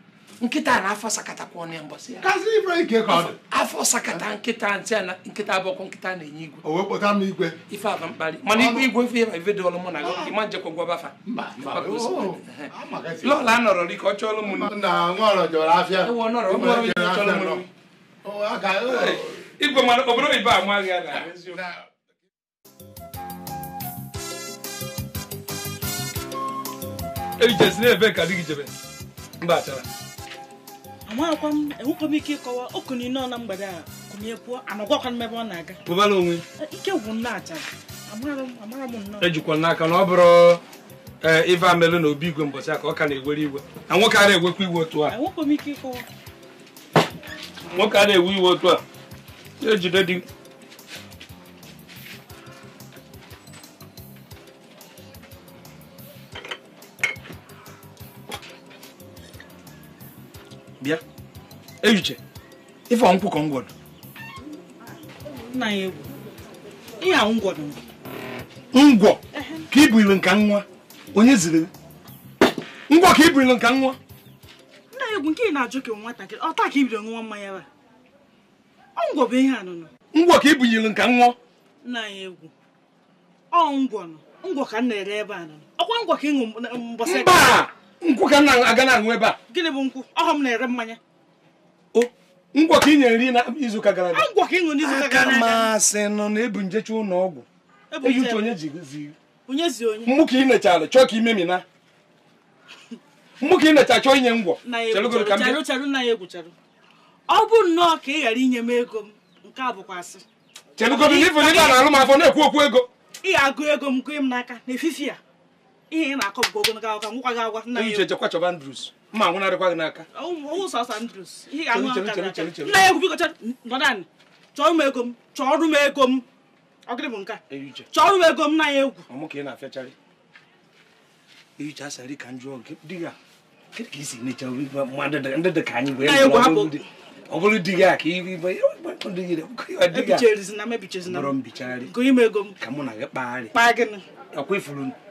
nkịta na afọ sakatakwa ọnụ ya mbọsị ya afọ sakata nkịta ntị na nkịta abụọkwa nkịta na-enye igwe ife aba mkpali mana igwe igwe ma ife dịọlụ mụ na ịma ah. njekwa gwabafa lọla anọrọ rike ọ chọọlụ m oh, oh. igwe mana obodo ibe amaghị ya na ejesi ah, ka dị gị jebe mba achara amakwa m enwekwa m ike ịkọwa nọ na mgbede a kụnye kwuo anọgwakwa m ebe ọ na-aga pụbala onwe e, ike gwụ ejikwa n'aka na ọ bụrụ e, ife amelụ na obi igwe mbọchị a ka ọ ka na-ewere iwe na a na-ewekwa iwe a nwoke ewe iwe otu di echiche ife ọnkwụ ka ngwọdụ nna ya egwu ihe a ngwọ ka ibu nka nwa onye ziri ngwọ ka ibu nka nwa nna ya egwu nke ị na-ajụ ka nwatakịrị ọta ka ibido nwa mmanya ba ọ ngwọ bụ ihe anụnụ ngwọ ka ibu nka nwa nna ya egwu ọ ngwọ nọ ngwọ ka m na-ere ebe a nụnụ ọkwa ngwọ ka ịṅụ mbọsị mba ngwọ ka m na-aga na-aṅụ ebe a gịnị bụ nkwụ ọghọ m na-ere mmanya ngwọ ka ị nyere nri ka gara aga masị nọ na ebu njecha ụlọ ọgwụ eyi uche onye ji mụ ka ị nechara chọọ ka ime mina ka ị necha chọọ inye ngwọ ọ bụ nnọọ ka ị ghara inye m ego m nke a na na-alụ m afọ na-ekwu okwu ego ị ego m m n'aka ihe ị na-akọ ogologo mma anwụ na gị n'aka nna ya ekwubikọcha nọdan chọọ m ego m chọọrụ m ego m ọgịrị chọọrụ m ego m na ya egwu ọmụ ka ị na ehicha ka m dị ya kedu ka isi necha ndị dị ka anyị wee ọ bụrụ di gị a ihe ka mụ na gị kpagharị ọkwa ifuru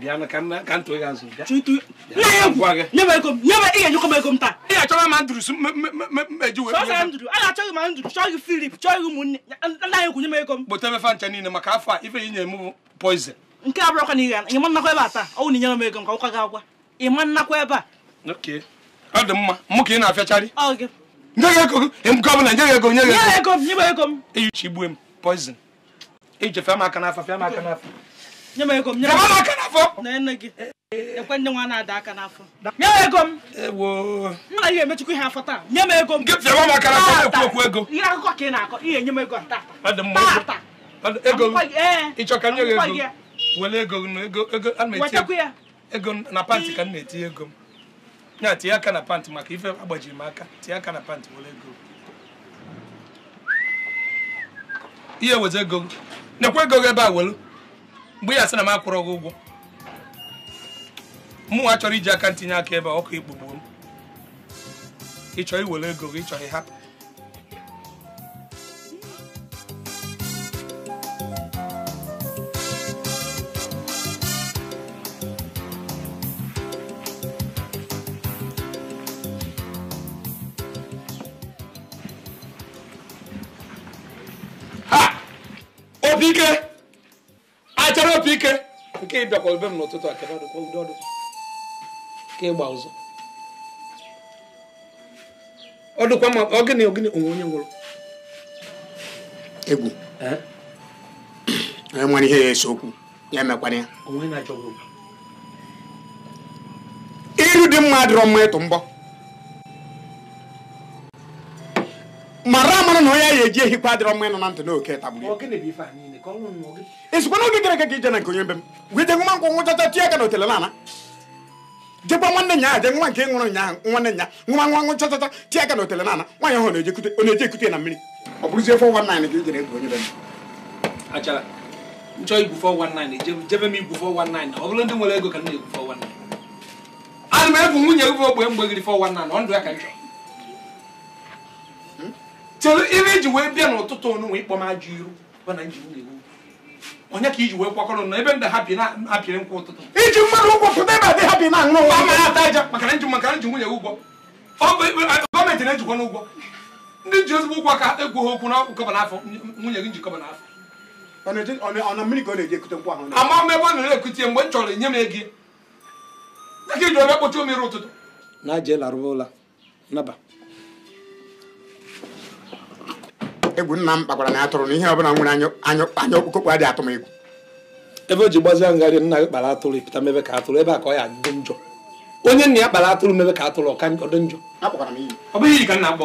ị ga-achọba achọghị ma nduru chọghị filip chọghị ụmụnne ndị anyị ego m kpota mefa ncha niile maka afọ a ife inye m ya ya nke abụrụ ya na ihe ya nnakwa ebe a taa ọnwụ ya inyere m ya nke ọkwa ya agwa ịma ya ebe a ya dị mma ya ka ị ya afịacharị nye ya ego nke ya nye gị ya nye ya ya nye m ego m nye m aka n'afọ na nne gị nwa na-ada aka n'afọ nye m ego m nna ihe emechukwu ihe afọ taa nye m ego m na-ekwu okwu ego ihe akụkọ ka ị na-akọ ihe nye m ego ego ka nye gị ego ego ego a na ego pantị ka m na ego m tinye aka na pantị maka ife agbajiri m aka tinye aka na pantị ego ihe ego nekwa ego gị ebe a welu mgbe ya sị na m akwụrọ gị ụgwọ mụnwa chọrọ iji aka ntinye aka ebe ọkụ ikpugbu m ịchọ iwere ego gị ịchọghị hapụ bịakwara ebe m n'ụtụtụ a kebe ọdụkwa udo ọdụ ka ịgba ụzọ ọ ma ọ gịnị ogịnị onwe onye nwụrụ egwu nwere ya ese okwu ya emekwana ya iru dị mma dịrọ mma ịtụ mbọ ọnwụ na onye a ga-eji ehi kwa mma ịnọ na ntị na oke tagburu ezikwa n'oge gara aga ka ije na nke onye mbe m wee nwa nkwụ aka na otele nana jekwa nwanne nya aje nwa nke nwụrụ nyaahụ nwanne nya nwa nwa nwụ chachacha aka na otele nana ahụ na-eje ekute na mmiri ọ bụrụzie 419 ka ijere e ka na-egwu 419 ana m egwu nwunye egwu ogbe ọ ndụ ya ka chere ire iji wee bịa n'ụtụtụ ọnụ ịkpọ m ajọ iru onye ka iji wee kwakọrọ na ebe ndị ha bi na-apịrị nkwa ụtụtụ iji mmanụ ụgwọ pụta adị ha bi na-aṅụ nwa a ata aja maka nji maka nji nwunye ụgwọ gọọmenti na-ejikwa n'ụgwọ ndị ji ezigbo ụgwọ ka egwu ha okwu n'ọkụ kọba n'afọ nwunye gị njikọba n'afọ ama m ebe ọ na-ekute mgbe m chọrọ enye m ego dịka iji ọbịa omere ụtụtụ na egwu nna m kpakwara na atụrụ na ọbụla nwere anya okpukokpu adịghị atụ egwu ebe o ji gbazie ngharị nna gị kpara atụrụ ịpụta mebe ka atụrụ ebe a ka ọ ya dị njọ onye nna ya kpara atụrụ mebe ka atụrụ ọka ọ dị njọ ọ iyi ka nna na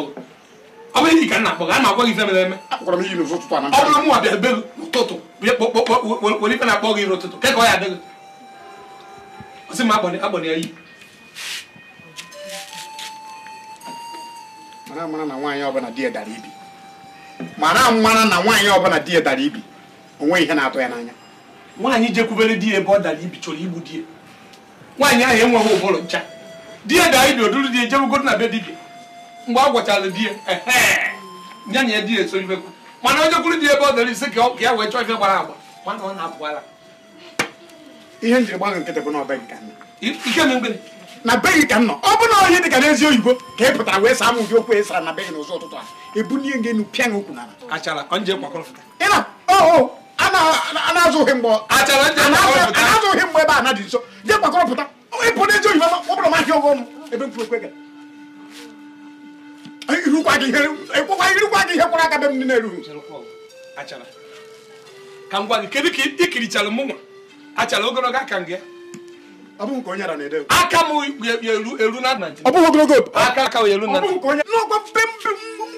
ebe na ka akpọrọ mara mara mara mmara na nwaanyị ọbụla di dara ibi onwe ihe na-atọ ya n'anya nwaanyị jekwubere di ya ebe ọ dara ibi chọrọ igbu di nwaanyị ahụ enweghị ụbụrụ ncha di ya dara ibi oduru di ya na be dibia mgbe a gwachara di ya ya na ya di ya eso ifekwu mana o jekwuru di ebe ọ dara ise ka ya wee chọọ ife gbara agba mana ọ na-apụara ihe njiri gbago nkịtị bụ na ọbe nke nna na be gị ka m nọ ọ bụ na ohi dị ka n'ezi oyibo ka ị pụtara wee saa m ụdị okwu e sara na be gị n'ụzọ ụtụtụ a ebulie gị enu pịa gị okwu n'ala a na-azụ ohi mgbe ebe a na dị nso jee gbakọrọpụta ịpụ n'ezi oyibo ọ bụrụ mahịa ụgwọ ọnụ ebe mkpụrụ okwe irukwa gị ihe aka be m na ka m gwa gị kedu ka aka m eru na ọ aka a eru na n'ọgwa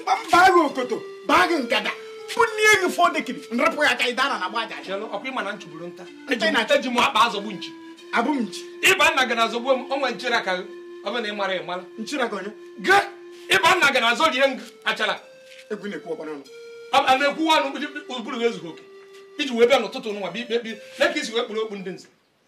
mba mba agha okoto bụ nrapụ ya aka ị dara na agba ọkwa ịma na nchụburu nta m akpa azọgbu nchi abụ m nchi ịba nna na azọgbu m onwe ọ bụ na ị mara ị mara nchiri aka onye gaa ịba nna gị na azọ rie ngụ achara egwu na a na-ekwuwa ọnụ ụbụrụ ezughị oke iji wee bịa n'ụtụtụ na isi wee kpụrụ okpu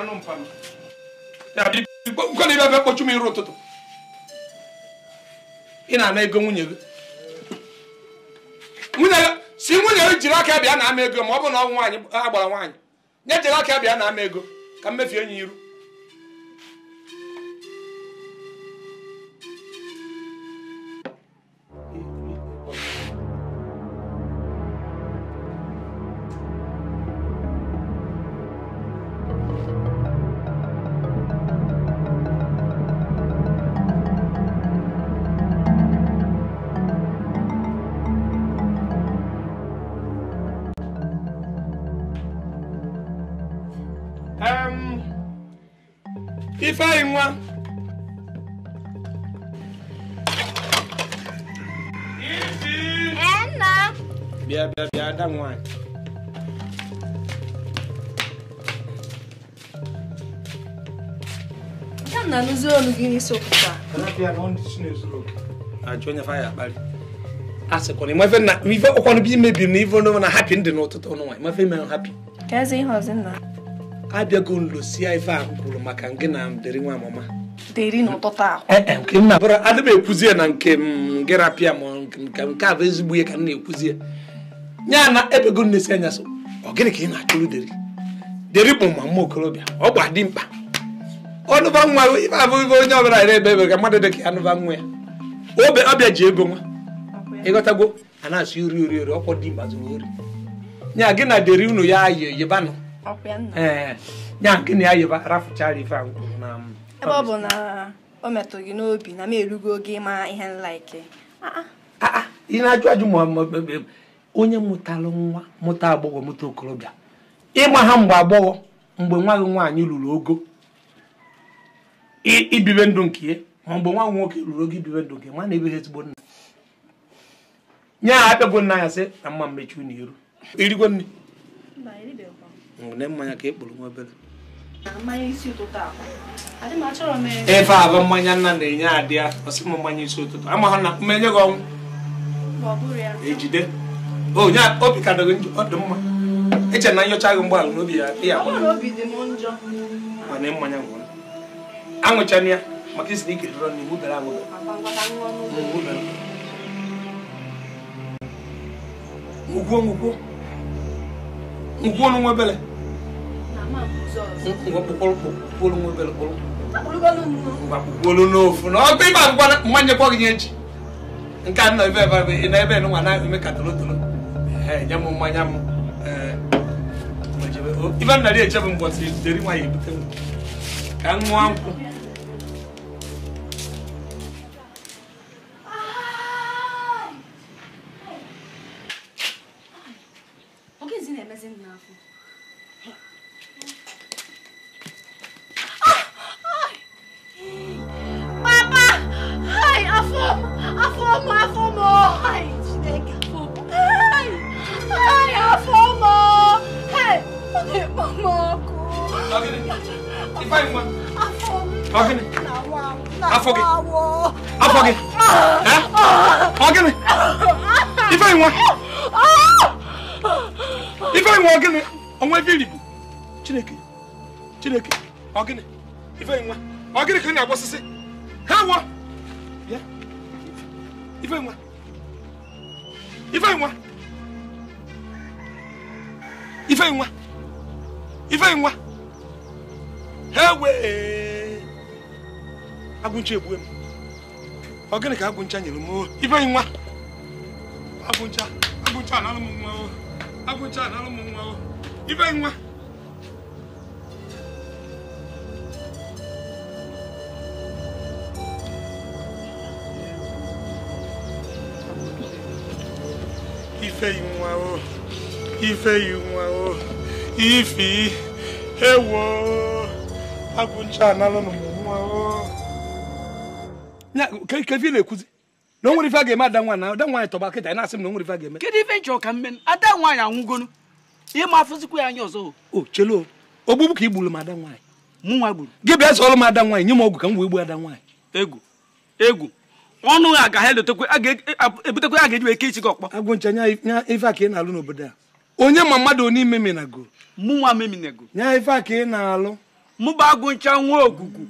anụ mpa na ibe m iru ụtụtụ ị na-ana ego nwunye gị si nwunye gị jiri aka bịa na ama ego ma ọ bụ na ọ nwaanyị agbara nwaanyị nye jiri aka bịa na ama ego ka mmefu enyi iru wọn. ɛnna. bia bia bia da nwan. na nuzuru onu gị n'isi ụtụtụ a. Kana bịa na ọ ndị na-ezuru oge. Ajụ onye fa ya akpali. asịkwa na ịmafe na ife ọkwanụ bi mebiri na ife ọnụ na hapi ndị n'ụtụtụ ọnụ nwa ịmafe ime hapi. Ka eze ihe ọzọ nna. abịago nlosia ife ahụ kwuru maka gị na deri nwa amụma eh, eh, adị m ekwuzie na nke gị rapịa ma nke a bụ ezigbo ihe ka m na-ekwuzie ya na ebego nnesi anya so ọ gịnị ka ị na-achụrụ deri deri bụ ma mma okorobịa ọ gba dị mkpa ọnụba nwa ife abụ ife onye ọbụla yere ebe ebe ka mmadụ dị ka anụba nwa ya obe ọbịa ji ego nwa ịghọtago a na-asụ ori ori ori ọkwọ dị mkpa zụrụ ori Nya gị na deri unu ya yi yibanụ Eh, eh. ya nke na ya yoba rafuchara ife na. Um, ebe ọ bụ na o metụ gị n'obi na m erugo oge ịma ihe nlaiki ah, ah. ah, ị na-ajụ ajụ onye mụtalụ nwa mụta agbọghọ mụta okorobịa ịgba ha mgbe agbọghọ mgbe nwa gị nwaanyị ruru ogo ibibe ndụ nke ya ma mgbe nwa gị nwoke ruru ogo ibibe ndụ nke nwa na-ebeghị ezigbo nna nye ha apịagbo nna ya sị na mma mmechi unu iru irigwo nne ne mmanya ka ekpuru nwa obere efe abụ mmanya nna na-enye adị ya ọsị m mmanya isi ụtụtụ ama ha na ya. gị ọnwụ ejide onye obi ka dịghị njọ ọ dị mma eche na nyocha gị mgbaala n'obi ya dị ya mana mmanya ngwụrụ aṅụchana ya maka isi ike dịrọ na iwu bịara aṅụbịa ngwugwo ngwugwo ngwugwo n'onwe ebele kpukpolu n'ofu na ọgbe ịba agwụgwa mmanya kwọ gị echi nke a nọ ebe ebe na ebe nwa na-eme ka tolotolo nye m mmanya m ibe m na-eri eche m mbọsị deri nwaanyị ebute m ka m ṅụọ nkwụ ọ gịnị ka agwụ ncha nyere m ibe nwa agwụncha agwụncha na alụm nwa agwụncha na alụm nwa ibe nwa ifeyi nwa o ifeyi nwa o ifi ewo agwụncha na alụm nwa ka ife na-ekwuzi na o nwere ife a ga-eme ada nwaanyị ada nwaanyị tọba kịta na-asị m na o nwere ife a ga-eme kedu ife nchọ ka mme ada nwaanyị ịma afụzikwa ya anya ọzọ o chelo ogbugbu ka i m ada nwaanyị mụnwa gburu gị bịa m ada nwaanyị nye m ọgwụ ka m wee ada nwaanyị egwu egwu ọnụ ga ga-eji gị ọkpọ a ka ị ka ị na-alụ mụba nwa ogugu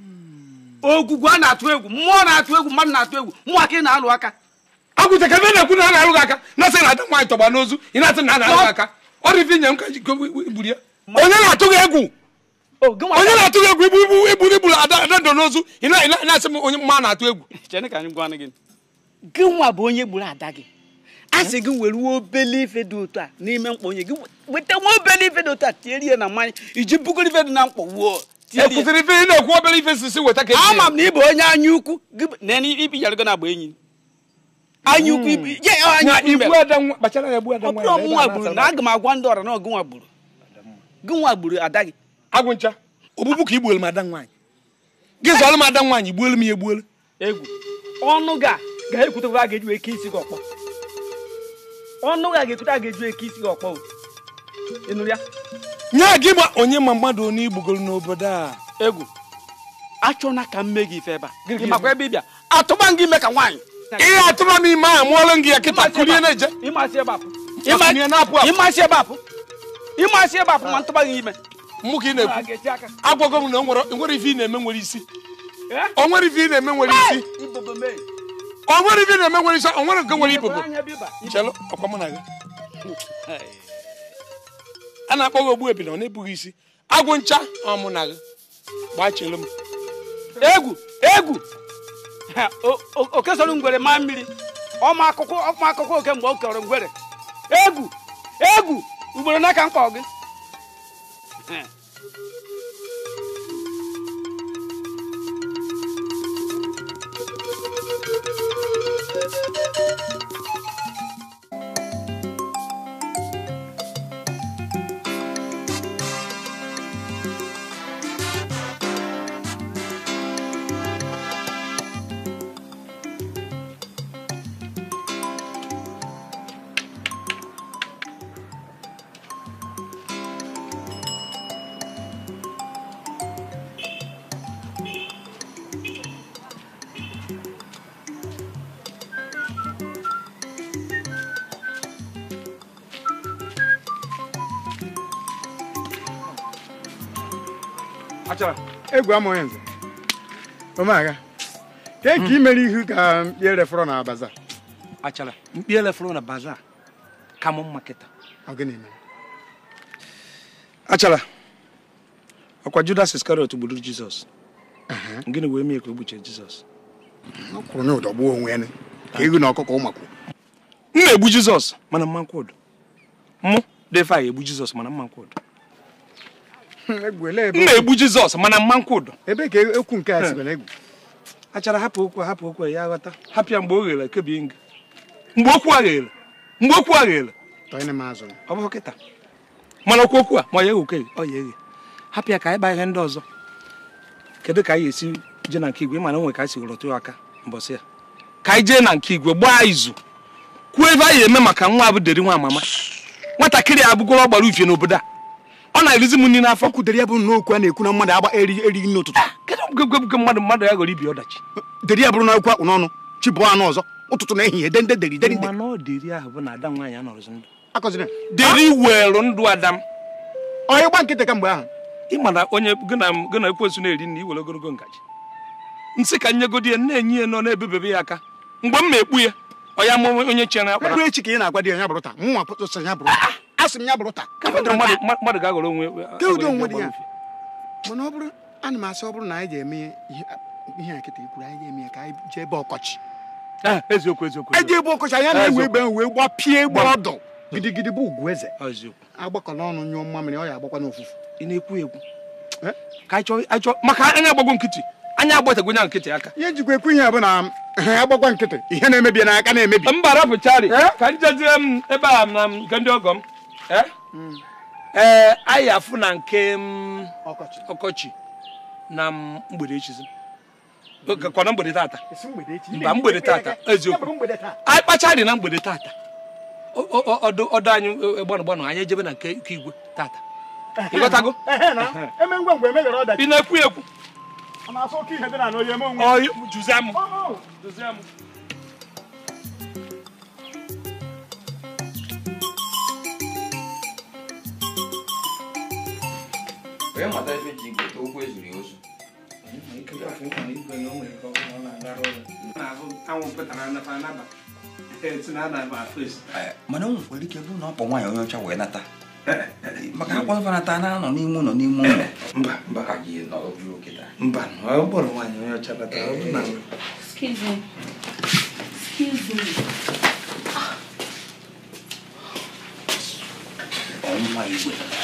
ogwugwu a na-atụ egwu mmụọ na-atụ egwu mmadụ na-atụ egwu mmụọ ka ị na-alụ aka agwụcha ebe na-ekwu na a na-alụ aka na-asị na ada nwaanyị tọgba n'ozu ị na-asị na a na-alụ aka ọ ife nye m ka gburu ya onye na-atụ gị egwu oh, onye na-atụ gị egwu igbu igbu igburu igburu ada ndọ n'ozu ị na-asị m onye mma na-atụ egwu gị nwa bụ onye gburu ada gị a sị gị were obele ife dị otu a n'ime mkpọ onye gị weta nwa obele ife dị otu a tiere na mmanya iji bugoro ife dị na mkpọ wuo ekwụsịrị ife ị na-ekwu obere ife sisi weta ka e ama m na ị bụ onye anya ukwu na ibi yara gana agba enyi anya ukwu hmm. ọbụrụ nwa gburu na aga m agwa ndị ọra na ọgụnwa gburu gụnwa gburu ada gị agwụncha ogbugbu ka igbuelu m ada nwaanyị gị zọlụ m ada nwaanyị gbuelu m ya egbuelu egwu ọnụ ga ga-ekwutekwa a ga-eji eke isi gị ọkpọ ọnụ ga ga-ekwute a ga-eji eke isi gị ọkpọ ị nụrụ ya nye gị ma onye ma mmadụ onye igbugoro n'obodo a egwu achọna ka m mee gị ife ebe a ị makwa ebe ịbịa atụba gị ime ka nwaanyị ihe atụba m ime a mụọlụ gị ya kịta kulie na-eje ịmasị ebe apụ ịmasị ebe apụ ịmasị ebe apụ ma ntụba gị ime mụ ka ị na-ekwu agwago m na onwere ife ị na-eme nwere isi eh? onwere ife ị na-eme nwere isi onwere ife ị na-eme nwere isi onwere nke nwere ibobo chelụ ọkwa mụ na gị a na-akpọ gị ogbu ebi ọ na-ebughị isi agwụ ncha ọmụ na gị gbachere m egwu egwu okesoro ngwere maa mmiri ọma akụkọ ọma oke mgbe o kọrọ ngwere egwu egwu ugboro n'aka mkpa gị Thank you. egwu amụghị nze omega ke nke imere ihu ka mkpi elefọrọ na baza achara mkpi elefọrọ na baza ka mụ mma kịta achara ọkwa judas iskarịọt gburu jizọs gịnị wee mee ka o gbuchie jizọs kwụrụ na ụdọgbuo onwe ya ka ego na ọkụkọ ụmakwu m na-egbu jizọs mana mmankwụ ụdọ mụ defa egbu jizọs mana mmankwụ ụdọ m na-egbu jizọs mana mmankwụdo ebe ka e- ekwu nke a sibere egwu achara hapụ okwu hapụ okwu ya aghọta. hapụ ya mgbe o ghere kebi nga mgbe okwu a ghere mgbe okwu a ghere ọ bụ kịta mana okwu okwu a ma ọ ya eghe ọ ya eghe hapụ ya ka anyị baa ihe ndị ọzọ kedu ka anyị esi jee na nke igwe mana onwe ka anyị sigoro tụ aka mbọsị ya ka anyị jee na nke igwe gbaa izu kwuo ebe anyị eme maka nwa abụ deri nwa amama nwatakịrị a abụgoro ọgbara ufie n'obodo a ọ na-erizi m nri n'afọ kwudere ya bụrụ na okwu a na-ekwu na mmadụ agba erighị nri ụtụtụ ah, kedu mmadụ mmadụ ya ghọrọ ibi ọdachi deri ya bụrụ na akwụkwọ n'ọnụ chi bụọ anụ ọzọ ụtụtụ na ehihie dende deri deri deri werụ ndụ ada m onye gba nkịtị kamgbe ahụ ị mara onye gị na ekwensu na-eri nri iwere ogologo ngaji nsị ka nyegodi ya na-enye ya nọ na-ebebebe ya aka mgbe m ma ekpu ya onye amụ onye chere ya kpara echi ka ị na-agwa di ya bụrụ taa nwa ya bụrụ ah, ah. asị m ya bụrụ taa mmadụ ga-aghọrọ onwe dị ya mana ọ bụrụ ana m asị ọ bụrụ na anyị ga-eme ihe a ikwuru anyị ga-eme ya ka anyị jee ebe ọkọchị ah, eziokwu eji ebe ọkọchị anya na-ewe egbe ahụ gbapie gba ọdọ gidigidi bụ ugwu eze ah, nyụọ ọ ya agbakwa n'ofufu ị na-ekwu ekwu eh? maka anya ihe njikwa ekwu na agbakwa nkịtị ihe na-emebi n'aka na-emebi mba eh? ka m ebe na nke ndị ee eh? mm. eh, anyị afụ na nke ọkọchị na mgbede echizi mm-hmm. kwana mgbede tata mba mgbede tata eziokwu anyị kpacha dị na mgbede tata ọdụ anyị e, e, gbanụ gbanụ anyị ejebe na nke igwe tata ịghọtago ị na-ekwu ekwu juzie m juzie m Onye mata ji ezuru ya ozu mana na ọkpọ nwaanyị ọcha na n'ime ụlọ n'ime ụlọ mba me. Excuse me. Oh my God.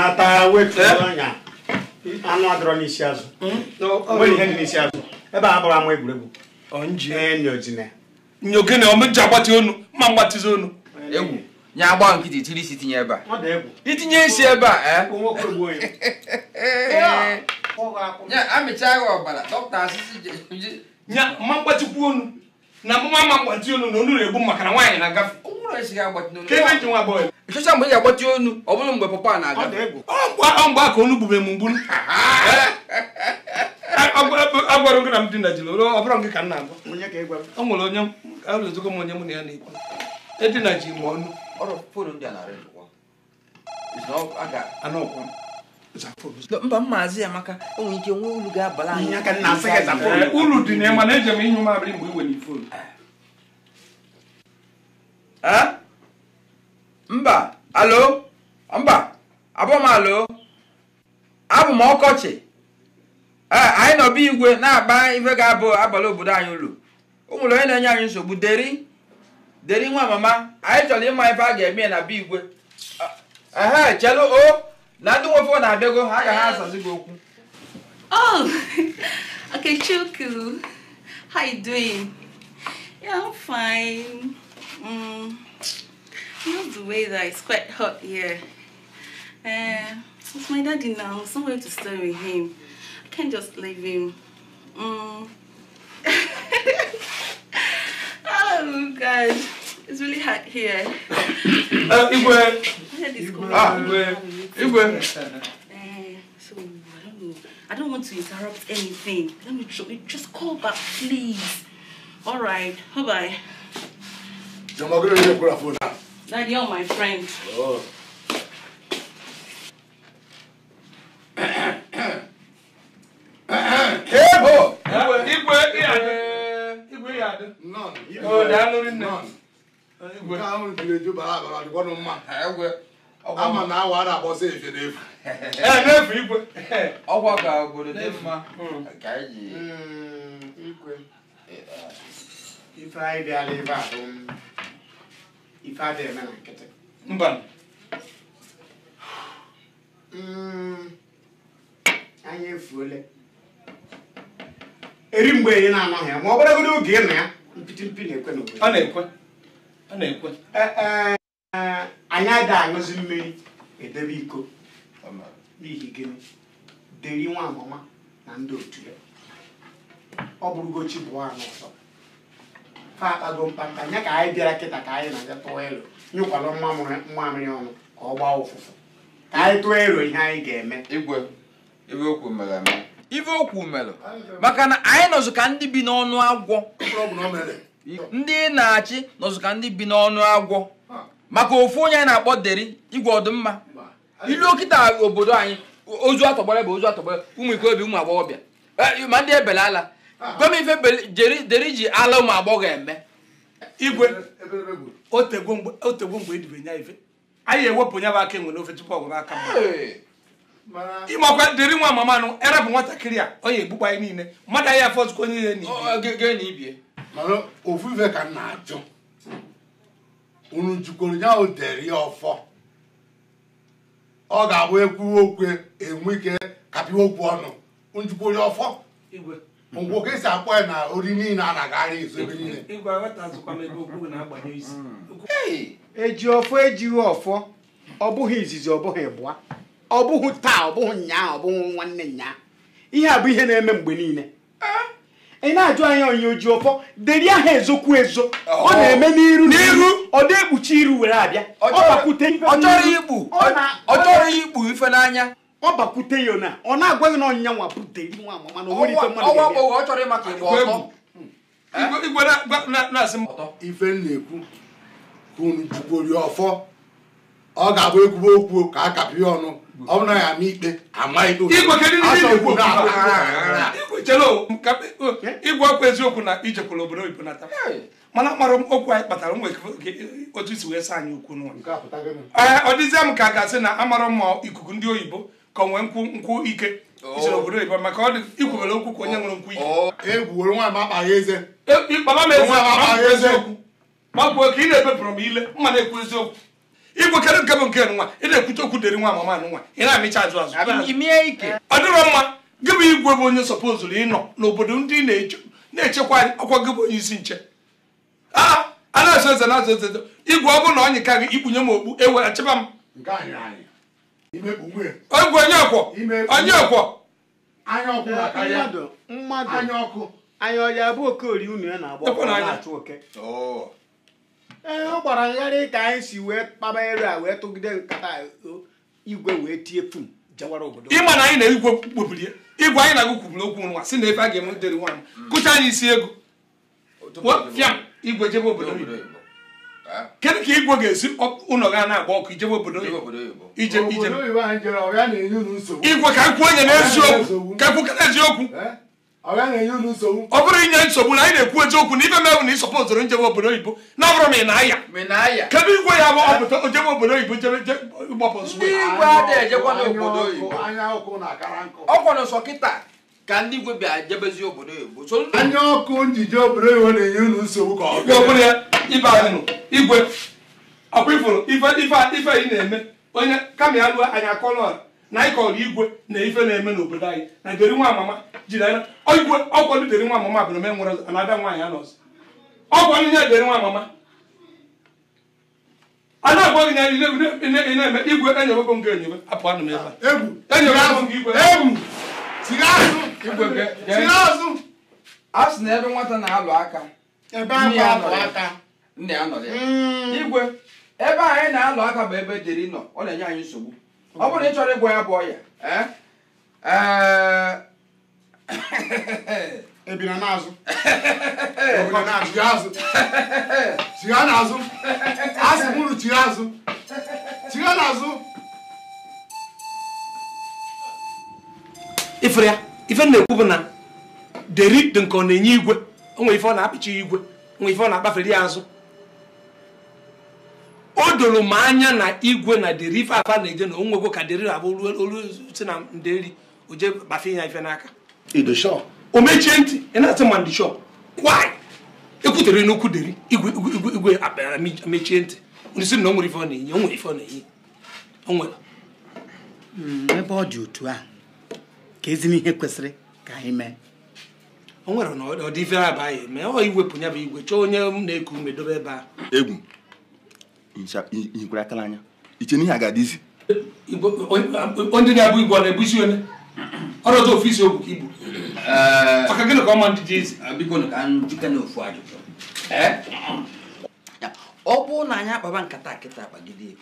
na-ata wetu eh? anya anụ adọrọ n'isi azụ hmm? nwere ihe dị n'isi azụ ebe a bụrụ ama egwuregwu nyogene omeji agbati onu mma mgbatizi onu egwu nya agba nkịtị tiri isi tinye ebe a itinye isi ebe a eh? ee mma mgbatikwu onu na mma onu na onu na-egbu maka na nwaanyị na-agafe ebe nji nwa ịchọcha mgbe ị ga-agbati onu ọ bụrụ mgbe papa na-aga mgbe aka onu gbubere m mgburu agwara gị na m dị na jilo ọ bụrụ gị ka nna agwa o nwere onye alụzụgo m onye mụ na ya na-ekwu edina ji m ọnụ mba maazi amaka ike nwee ulu ga-abala anyị dị na ịma na eji m inyụ mgbe i ifonu mba alo mba abụ m alo abụ m ọkọchị ee anyị nọ be igwe na-agba ife ga-abụ abalị obodo anyị ụlọ ụmụrụ onye na-enye anyị nsogbu deri deri nwa mama anyị chọrọ ịma ife a ga-eme na be igwe ehe chelu o na ndị na-abịago ha ga ha asazi gị okwu oh, How you doing? Yeah, I'm fine. Mm. Not the way that it's quite hot here. Uh, eh, it's my daddy now. There's nowhere to stay with him. I can't just leave him. Mm. oh, God. It's really hot here. Uh, Igwe. Igwe. Ah, Igwe. Igwe. Eh, so, I don't know. I don't want to interrupt anything. Let me try. just call back, please. All right. Bye-bye. That you're my friend. Oh. Ebo! Igwe Iyade. Igwe Iyade. None. Oh, Dalori None. Igwe. Nke ahụ jiri eju bara abara dịkwa nụ mma. Egwe. Ama na awa a na-akpọsa efe n'efu. Ee, n'efu igwe. Ọkwa ka obodo dị mma. Ka anyị ji. Igwe. Ife anyị dị ala ebe a. ife adịghị eme na nkịtị mba anya efuole eri mgbe enyi na-anaghị ya ma ọ bụrụgodị oge ị na ya mpịtịmpi mpi na-ekwe n'obodo ọ na-ekwe ọ na-ekwe anyị ada aṅụzi mmiri edebe iko n'ihi gịnị deri nwa amụma na ndị otu ya ọ bụrụgo chi bụọ anụ ọzọ ha atago mkpamkpa ya ka anyị bịara kịta ka anyị na-abịa tụọ elu nyụkwalụ mmamịrị ọnụ ka ọ gbaa ụfụfụ ka anyị tụọ elu ihe anyị ga-eme igwe ibe okwu mere eme ife okwu mere maka na anyị nọzụ ka ndị bi n'ọnụ agwọ ndị na-achị nọzụ ka ndị bi n'ọnụ agwọ maka ofu onye anyị na-akpọ deri igwe ọdụmma ilu okịta obodo anyị ozu atọgbara bụ ozu atọgbara ụmụ ikorobịa ụmụ agbọghọbịa eh, ma ndị ebele ala gọmife deri ji ala ụmụ agbọghọ eme igwe otegwo mgbe edibe e nya ife anyị ewepụ nya bụ aka enwe n'ofe tupu ọgwụrụ aka ịmakwa deri nwa mamanụ erepụ nwatakịrị a onye ya egbukpa anyị niile mmadụ anyị afọ zukọ onye ihe n'ibie ka na-ajụ unu ya ọfọ ọ ga-abụ ekwu okwe enwe ike okwu ọnụ ọfọ ngwụ ka esi akpọ ya na ori niile a na-agagharị izu ebe niile eji ọfọ ejighị ọfọ ọ bụghị izizi ọ bụghị bụa ọ bụghị taa ọ bụghị nyaa ọ bụghị nwanne nyaa ihe a bụ ihe na-eme mgbe niile eh? ị na-ajụ anya onye oji ọfọ deri aha ezokwu ezo oh. ọ na-eme n'iru n'iru ọ dị ekpuchi iru were abịa ọ chọrọ ikpu ife n'anya ọ bakwute ya na ọ na-agwa gị na ọnyịnya nwa butere nwa amama hm? na onwere ife mmadụ ife m na-ekwu unu jukwori ọfọ ọ ga-abụ ekwube okwu ka a kapịa ọnụ ọ bụ na ya ama ikpe ama ikpe ịgwa ọkwa eziokwu na ijekwala obodo oyibo nata mana mkpara okwu anyị kpatara nwere otu isi wee saa anyị okwu n'ụlọ ọ dịzie m ka a ga-asị na amarọ mma ikuku ndị oyibo ka onwee nkwụ nkwụ ike oh. ichere obodo ịba maka ọ dị ikwubere okwu ka onye nwere nkwụ ike oh. e eze. ịkpaba e, m eziokwu magbuo ka ị na-ebepụrụ m ile mma na-ekwu eziokwu igwekarị nke bụ nke nwa ị na-ekwute okwu deri nwa mama nwa ị na-amịcha ajụ azụ ọ dịrọ mma gị bụ igwe bụ onye sọpozuru ịnọ n'obodo ndị na-echekwa anyị ọkwa gị bụ onye isi nche a na-azụ eze na-azụ eze igwe ọ bụrụ na ọ gị ikpunye m okpu ewe achịba m egwu onye ọkwọ onye ọkwọ mmadụ ọkụ anya ọya bụ okori unu ya na-agba oke ee oh. ọ gbara ngharị ka anyị si wee kpaba ere a wee tụgide nkata igwe wee tie pum jawara obodo ịma na anyị na igwe kpobiri igwe anyị na-agụ kwubiri okwu nwa si na ebe a ga-eme dịrị nwaanyị kụcha anyị isi ego fịa igwe jebe obodo kedu ka igwe ga-esi ụlọ ga na-agba ọkụ ijebe obodo igwe ka nkwu onye n'eziokwu ka nkwu ka n'eziokwu ọ bụrụ inye nsogbu na anyị na-ekwu eziokwu na ibe mebụ na ịsọpụ ịsọpọtụrụ njebe obodo oyibo na ọ bụrụ ma ị na-aya kedu igwe ya bụ ọpụta ojebe obodo oyibo jebe ịgbapụ nsogbu ọkwa n'ụsọ kịta ka ndị igwe bịa jebezi obodo oyibo anya ọkụ njije obodo oyibo na-enye unu nsogbu ka ọ ya ibe anyị igwe ọkwa ifuru ife ife anyị na-eme onye kama ya lụọ anyị akọlọ na anyị kọrọ igwe na ife na-eme n'obodo anyị na deri nwa amama jiri anya igwe ọkwado deri nwa amama e bụ na ome nwere anada nwaanyị anọzi ọgwụ ndị ya deri nwa amama a na-agwa gị na ị na-eme igwe enyewego m gị enyebe apụ anụ m ebe a egwu enyewego m gị igwe egwu siga a sị na ebe nwata na-alụ aka nne ya nọ ya mm. igwe ebe anyị na-alụ aka bụ ebe dịrị nọ ọ na-enye anyị nsogbu ọ bụrụ na ị chọrọ ịgwọ ya bụ ọya ebina e, e n'azụ e na azụ asị na unu chigha azụ chigha n'azụ ifere ife na-ekwu bụ na deri nke ọ na-enye igwe onwe ife ọ na-apịcha igwe onwe ife ọ na-akpafere ya azụ o doro m anya na igwe na deri ife afa na-eje na onwegwo ka deri abụ olu si na o oje kpafe ya ife n'aka o mechie ntị ị na-asị ma ndị shọp kwanyị ekwutere n'okwu deri igwe mechie ntị isi na o nwere ife ọ na-enye onwere ife ọ na-enye hmm, ebe ọ dị otu a ka ezi ihe kwesịrị ka anyị mee o nwere na ọ a ife abaghị mee ọ iwepụ ya bụ igwe chọọ onye na-eku ume dobe ebe a egwu ihikwara akala anya iche n'ihe a ga-adị izi ndị na-abụ igwe ọ na-ebusi onye ọrụta ofisi ogwu ka ibu maka gịnị ka ọma ka na ofu ajụjụ ọ bụrụ na akpaba nkata kịta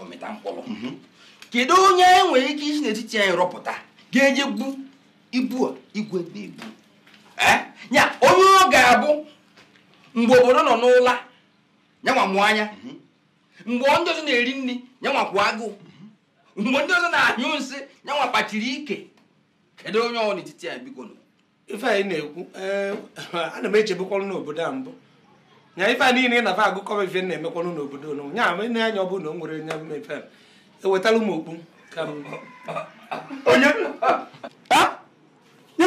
ọmịta mhm. kedu onye nwere ike isi n'etiti anyị rọpụta ga-eje ibu a igwe na-ebu Nya onye ọ ga-abụ mgbe obodo nọ n'ụla yanwa mụọ anya mhm. mgbe ndị ọzọ na-eri nri yanwa kwụ agụụ mhm. mgbe ndị ọzọ na-anyụ nsị yanwa kpachiri ike kedu onye ọ n'etiti ya biko ife anyị na-ekwu eh, ana m echebekwalụ n'obodo a mbụ nya ife niile na agụ agụkọ ife na-emekwalụ n'obodo n nya m ne anya ọ bụrụ na o nwere nya efe ewetala m okpu ka onye ah!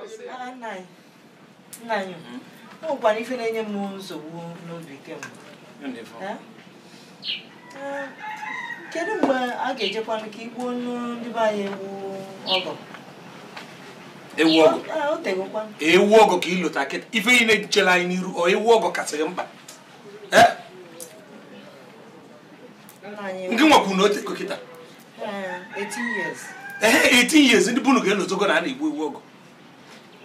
nna anyị ah, ọ bụkwara ife na-enye m nsogbu n'obi kemgbe eh? Eh, kedu mgbe a ga-ejekwanụ ka igbuo ndị be anyị ewu ọgọ ewu ah, ọgọ ka ịlụta kịta ife ihe na chere anyị n'iru ọ ewu ọgọ kasịrị mkpa eh? ndị nwekwu na otego kịta 18 years ndị bụ na ga-elotogo na a na-egbu ewu ọgọ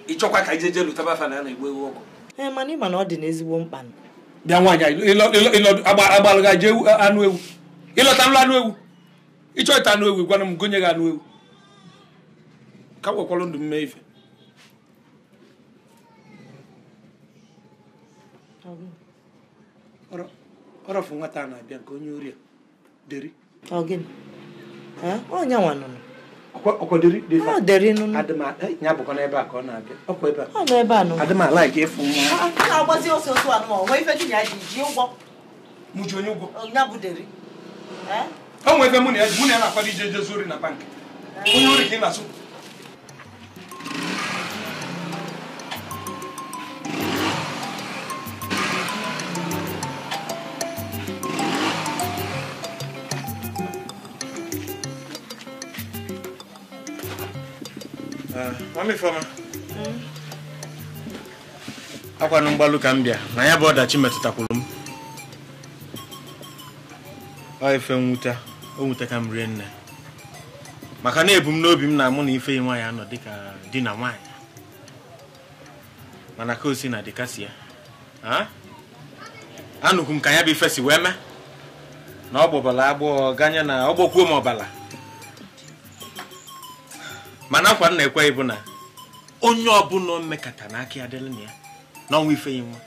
ịchọkwa ka ijeje lụtaba afa na a na-egbu ewu ọgwụ. ee mana ịma na ọ dị n'ezigbo mkpa bịa nwaanyị agbalụga jee anụ ewu ịlọta nlụ anụ ewu ịchọ ịta anụ ewu gwana m gonye gị anụ ewu ka nwekwara ndụ mme ife ọrọfụ nwata a na-abịa nke onye ori deri ọnyanwa nụnụ ọkọderi de fa ọderi nunu adama ẹ nya bọkọ n'ebe a ka ọ na-abịa ọkọ ebe a ọ nọ ebe a nọ adama alaike efu nwa. a na na ji ji onye ụgwọ. Eh? na ya mụ na ya akwado ije ije na bank onye ori ka ị na-asụ. Eh, mami Fama akwanụ hmm. akwa ka m bịa na ya bụ ọdachi metụtakwuru m ọ fe nwute o nwute ka m rie nne maka na ebu m n'obi m na mụ na ife nwa ya anọ dịka di na nwaanyị mana ka osi na dika ya ha m ka ya bụ ife si wee mee na ọ gbọbala agbọghọ ganye na m ọbala mana akwa nna ekweghị bụ na onye ọbụla o mekata na aka ya na ya n'ọnwa ifeyi nwa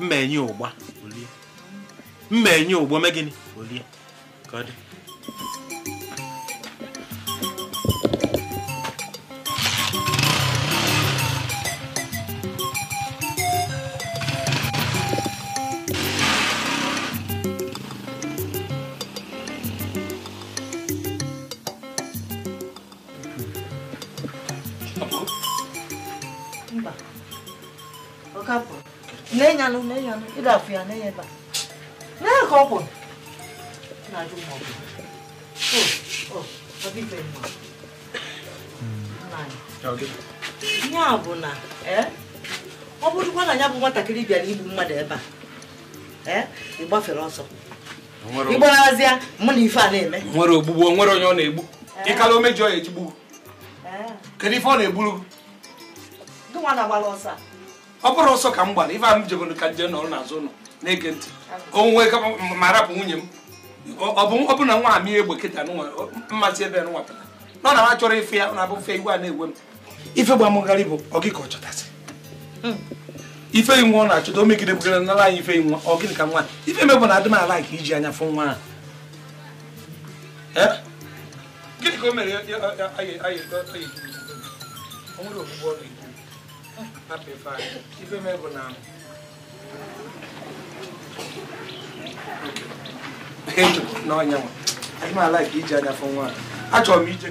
mma enye ụgba olie ụgbọ mee olie ka ọkapụ na-enyanụ na-enyanụ ịda afụ ya na ya ebe a ka ọ kwụ na-ajụ ma ọ bụ ya bụ na e, ọ bụrụkwa na ya bụ nwatakịrị bịara igbu mmadụ ebe a e, ị gbafere ọsọ ịgbarazịa mụ na ife a na-eme nwere ogbugbu nwere onye ọ na-egbu e. ịkala omejọ ya ejigbu kedu ife ọ na-egburu gị nwa na-agbara ọsọ a ọ bụrụ ọsọ ka m gbara ife a m jebere ka nje nọrọ n'azụ ụlọ na-ege ntị onwe ma rapụ nwunye m ọ bụ na nwa amị egbe kịta mmasị ebe nwa pụta nọ na ha chọrọ ife ya na-abụ fe igwe a na-egwe m ife gbamụgharị bụ ka ọ chọtasị ife nwa ọ na-achọta o megide bugara nara anyị ife nwa ọ gịnị ka nwa ife mebụ na adị m ala ka iji anya fụ nwa ahụ gịnị ka o mere anyị m bụ na n'ọnya ala ka iji anya fụ nwa achọrọ m ije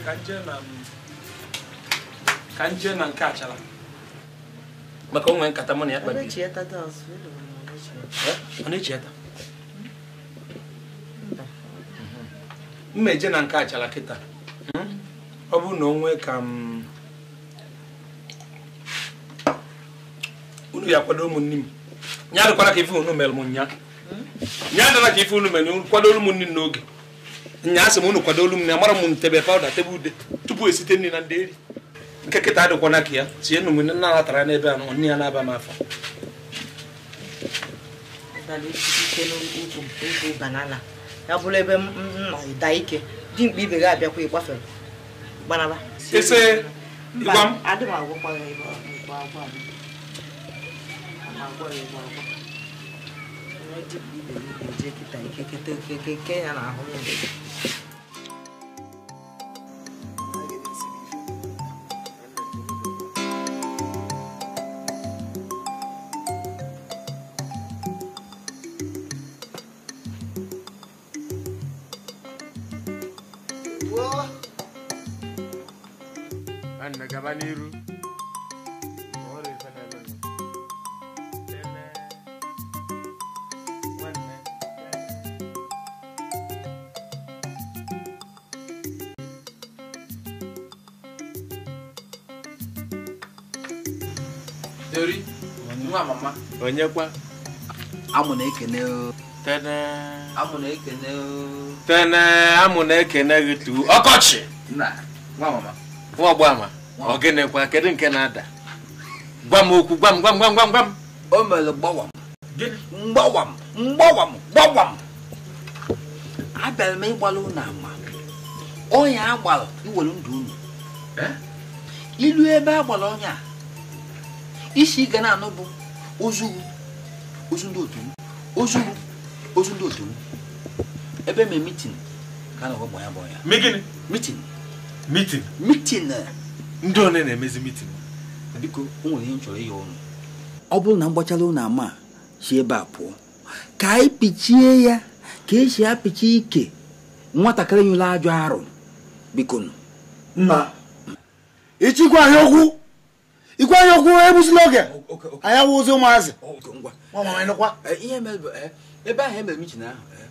ka nje na nke achara maka onwe nkata mụ na ya kpabiri ọ eje na nke achara kịta ọ bụrụ na onwe ka m unu ga-akwado ụmụnne m nya dịkwara ka ife unu mere m nya nya dịra ka ife unu mere unu kwadoro m nri n'oge nya asị m unu kwadoro m na amara m ntebe pawụda tebụl ude tupu esite nri na ndị eri nke kịta adịkwana ka ya tie nụ na nna natara n'ebe a nne ya na-aba m ya bụrụ ebe m nọ da ike ibe ga abịakwa ese ịgwa m 我哩嘛，因为自己没有，自己去带，去去都去去去那哪好呢？onyekwa amụ na ekene tene amụ na ekene tene amụ na ekene gị tu ọkọchị nwa ọgbama ọ gịnịkwa kedu nke na-ada gwa m okwu gwa m gwa m gwa m gwa m gwa m o mere gbawam mgbawam mgbawam gbawam abịara m ịgbara unu ama ọnya agbara iwere ndụ unu eh? ilu ebe agbara ọnya isi ga na-anụ bụ ozu ndị otu m ozu ozu ndị otu m ebe mee mitin ka a na ọgbọ ya bụ ya megịnị mitin mitin ndị one na-emezi mitin biko o nwere ihe nchọrọ ihe ọnụ. ọ bụrụ na m gbachala ụnụ ama si ebe a pụọ ka anyị pichie ya ka esi apịchi ike nwatakịrị nyụla ajọ arụ biko nna ịchịkwa ahịa okwu ikwe anya okwu egbuzila oge anyị awụ ụzọ ụmụazị eh, eh, ebe ahụ emere michin ahụ eh,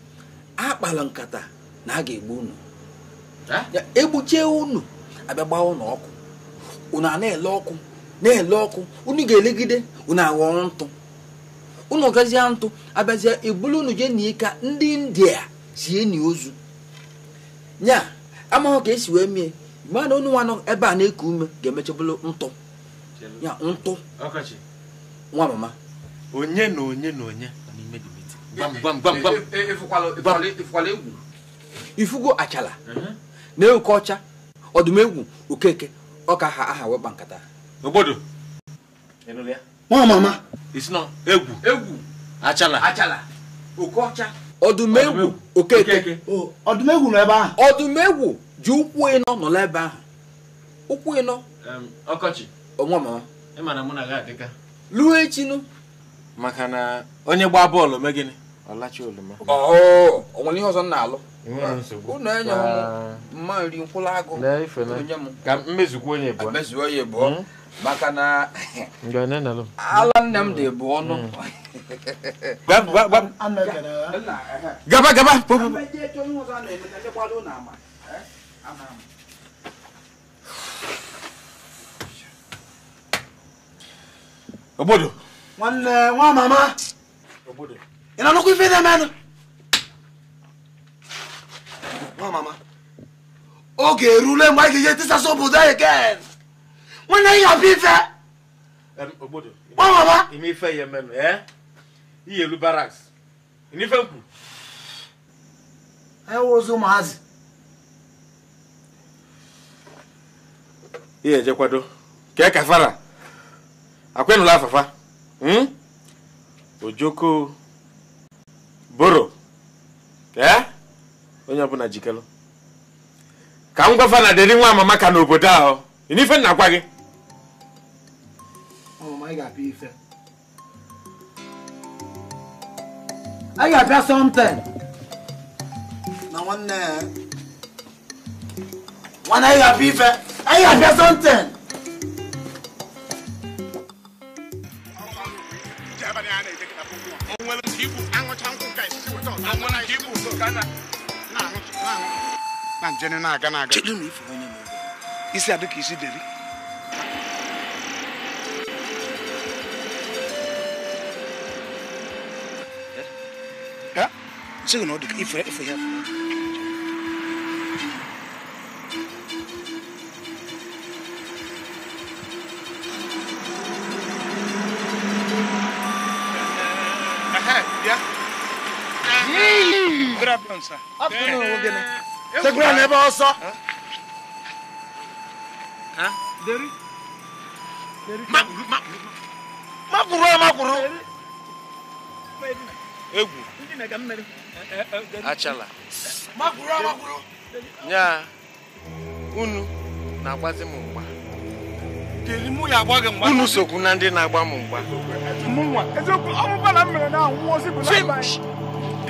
akpala nkata na a ga-egbu unu egbuchie unu abịa gbaa ụnụ ọkụ unu a na-ele ọkụ na-ele ọkụ unu ga-elegide unu aghọọ ntụ unu gazie ntụ abịazie ebulu unu jee na ka ndị india sie ni ozu nya amaghị ka esi wee mie mgbe na nwa nọ ebe a na-eku ume ga-emechabụrụ ntụ ya ntụ nwa mama onye na onye na onye n'ime eh, eh, eh, ifugo achala uh-huh. na-ewuke ọcha ọdụm okeke ọka ha aha wekpa nkata nwa mama egwu egwu achala achala oke ọcha ọdụm okeke ọdụm nọ ebe ahụ ọdụm ji ụkwụ ịnọ nọ n'ebe ahụ ụkwụ ịnọ ọkọchị um, onwe m luo maka na onye gbaa bọọlụ mee gịnị ọ onwere ihe ọzọ m na-alụ unu enye mma nri nkwụrụ agụ ka mmezukwa onye bụ mezuo onye bụ hmm? maka na ala nne m dị bụ ọnụ hmm. gaba gaba Obodo. Nwanne uh, nwa mama. Obodo. Ị na-anụkwa ife na-emenụ? Nwa mama. Oge erule mgbe anyị ga-eje tisasa obodo anyị ken. Nwanne anyị abịa ife. Obodo. Nwa mama. Ime ife ya emenụ, ee? Ihe elu baraks. Ime ife nkwu. Ewuzi ụmụazị. Ihe ejekwado. Kee kafara. akwenula hmm? ojoko boro ee onye ọbụla jikelu ka m gwafa na dịrị nwa amama maka n'obodo ahụ ife nna gwa gị anyị ga abịa something na nwanne nwanne anyị ga-apịa ife anyị ga-apịa something o nwere nke ibu aṅụcha nkwụ ka isi weta ọzọ o nwere nke ibu so gana na njeni na-aga na-aga chedu na ife onye mere isi adị ka isi deri sịghị na ọ dị ka ife ya segwere n'ebe ọsọ makwuru makwuru egwu achala nya unu na-agbazi m mgba unu sokwu na ndị na-agba m mgba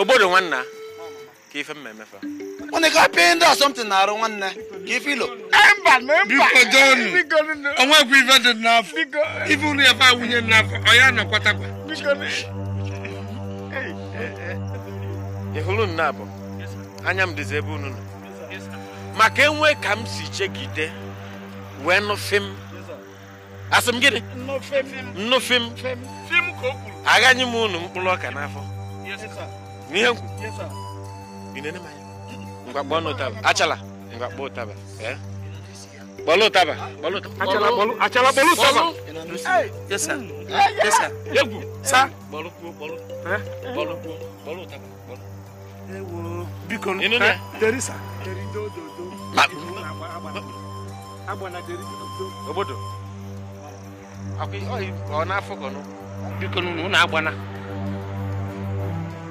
Obodo nwanna ka ife mma emefa. Unu ka pịa ndị a something na-arụ nwanne ka ife ilo. Mba na mba. Biko John, onwekwa ife dị n'afọ. Ife unu ebe a wunye n'afọ, ọ ya nọkwatakwa. Ị hụrụ nna bụ Anya m dịzi ebe unu nọ. Maka enwe ka m si chegide wee nụfe m. Asị m gịnị? Nnụfe m. Nnụfe m unu mkpụrụ ọka n'afọ. ni yangu ine ne maye nga bono taba achala nga bo taba eh bolo taba bolo achala bolo achala bolo taba yes sir yes sir yangu sa bolo ku bolo eh bolo ku bolo taba bolo ewo bikon inu ne eh, deri sa deri do do do ma abana deri do obodo akwi o na afọ na agbana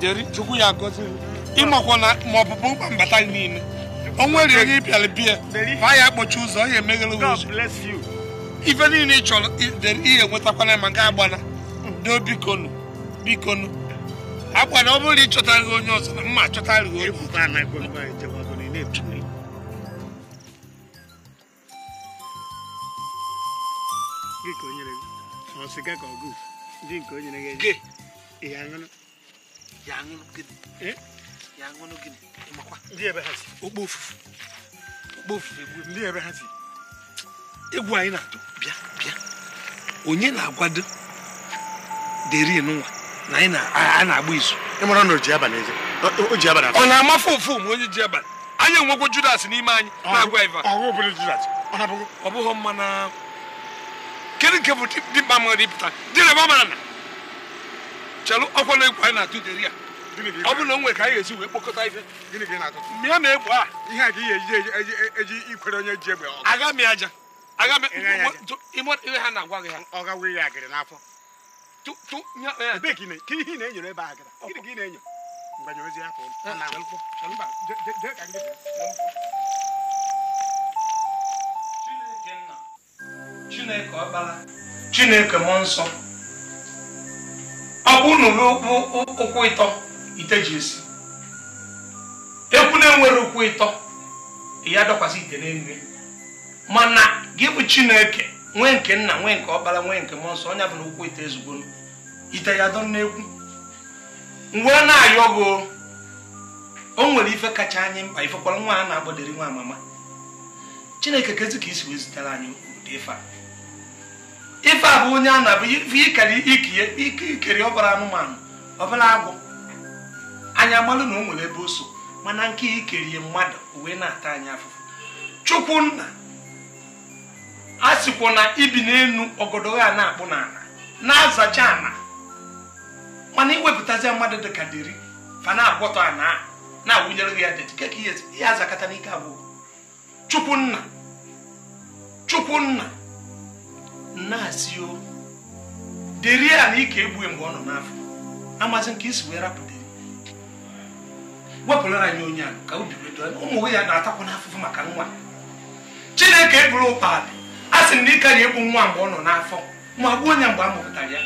jeri chukwu ya gozi ịmakwa na ma ọ mkpa mbata gị niile o nwere onye ịpịara biya ma ya kpọchi ụzọ ọ ya ife niile ị chọrọ ihe nwetakwana ma ga agbana doo bikonu bikonu agbana ọ bụrụ na onye ọzọ na mma achọtara onye ya gịnị gịnị ndị ebe si ndị si egwu anyị na-atụ bịa bịa onye na-agwado deri na anyị na na oji abalị ọ na-amafe ofu ma onye ji abalị anyị enwekwo judas n'ime anyị na-agwa iva ọ bụghị na kedu nke bụ ịpụta na chelụ ọkwọ na egwu anyị na-atụ deri a ọ bụ na nwe ka anyị esi wee kpokọta ife mịa na egwu a ihe a ka ihe eji ikwere onye ji egbe aga m aja agha ihe ha na-agwa gị ha ọ agịrị n'afọ e. ihe na-enyere ebe agịrị gịnị na-enyo mgbanye ozi Chineke ọkpara Chineke nsọ ọ bụ unu ụkwụ ịtọ ite ji esi ekwu na-enwere ụkwụ ịtọ ya dọkwasị ite n'elu mana gị bụ chineke nwee nke nna nwee nke ọkpara nwee nke mmụọ nsọ onye bụ na ụkwụ ite ezugbo ite ya dọ n'ekwu wee na-ayọ gị o nwere ife kacha anyị mkpa ifekwara nwa a na-agbadiri nwa amama chineke kezi ka isi wee zitere anyị ụdị ife a ife abụ onye a na-abụ ife ikere ikere ọbara anụmanụ ọbara agwụ anyị amalụ na o nwere ebe o so mana nke ikerie mmadụ uwe na-ata anyị afụfụ chukwunna a sịkwa na ibi n'enu ọgọdọ ya na-akpụ n'ala na-azacha ana mana iwepụtazi mmadụ dịka dịri fa na-agwọtọ ana na-awụnyere ya dedikeka ihe azakata n'ike abụọ chukwunna chukwunna na-asị o dịrị ya na ike egbue mgbe ọ nọ n'afọ amazị nke isi wee rapụdịrị wepụrụ anyị onye a ka obi wee ubi ụmụ ya na-atakwa n'afụfụ maka nwa chineke eburu ụkpadị a sị na ịka na-egbu nwa mgbe ọ nọ n'afọ ma gbuo onye mgbe a mụpụtara ya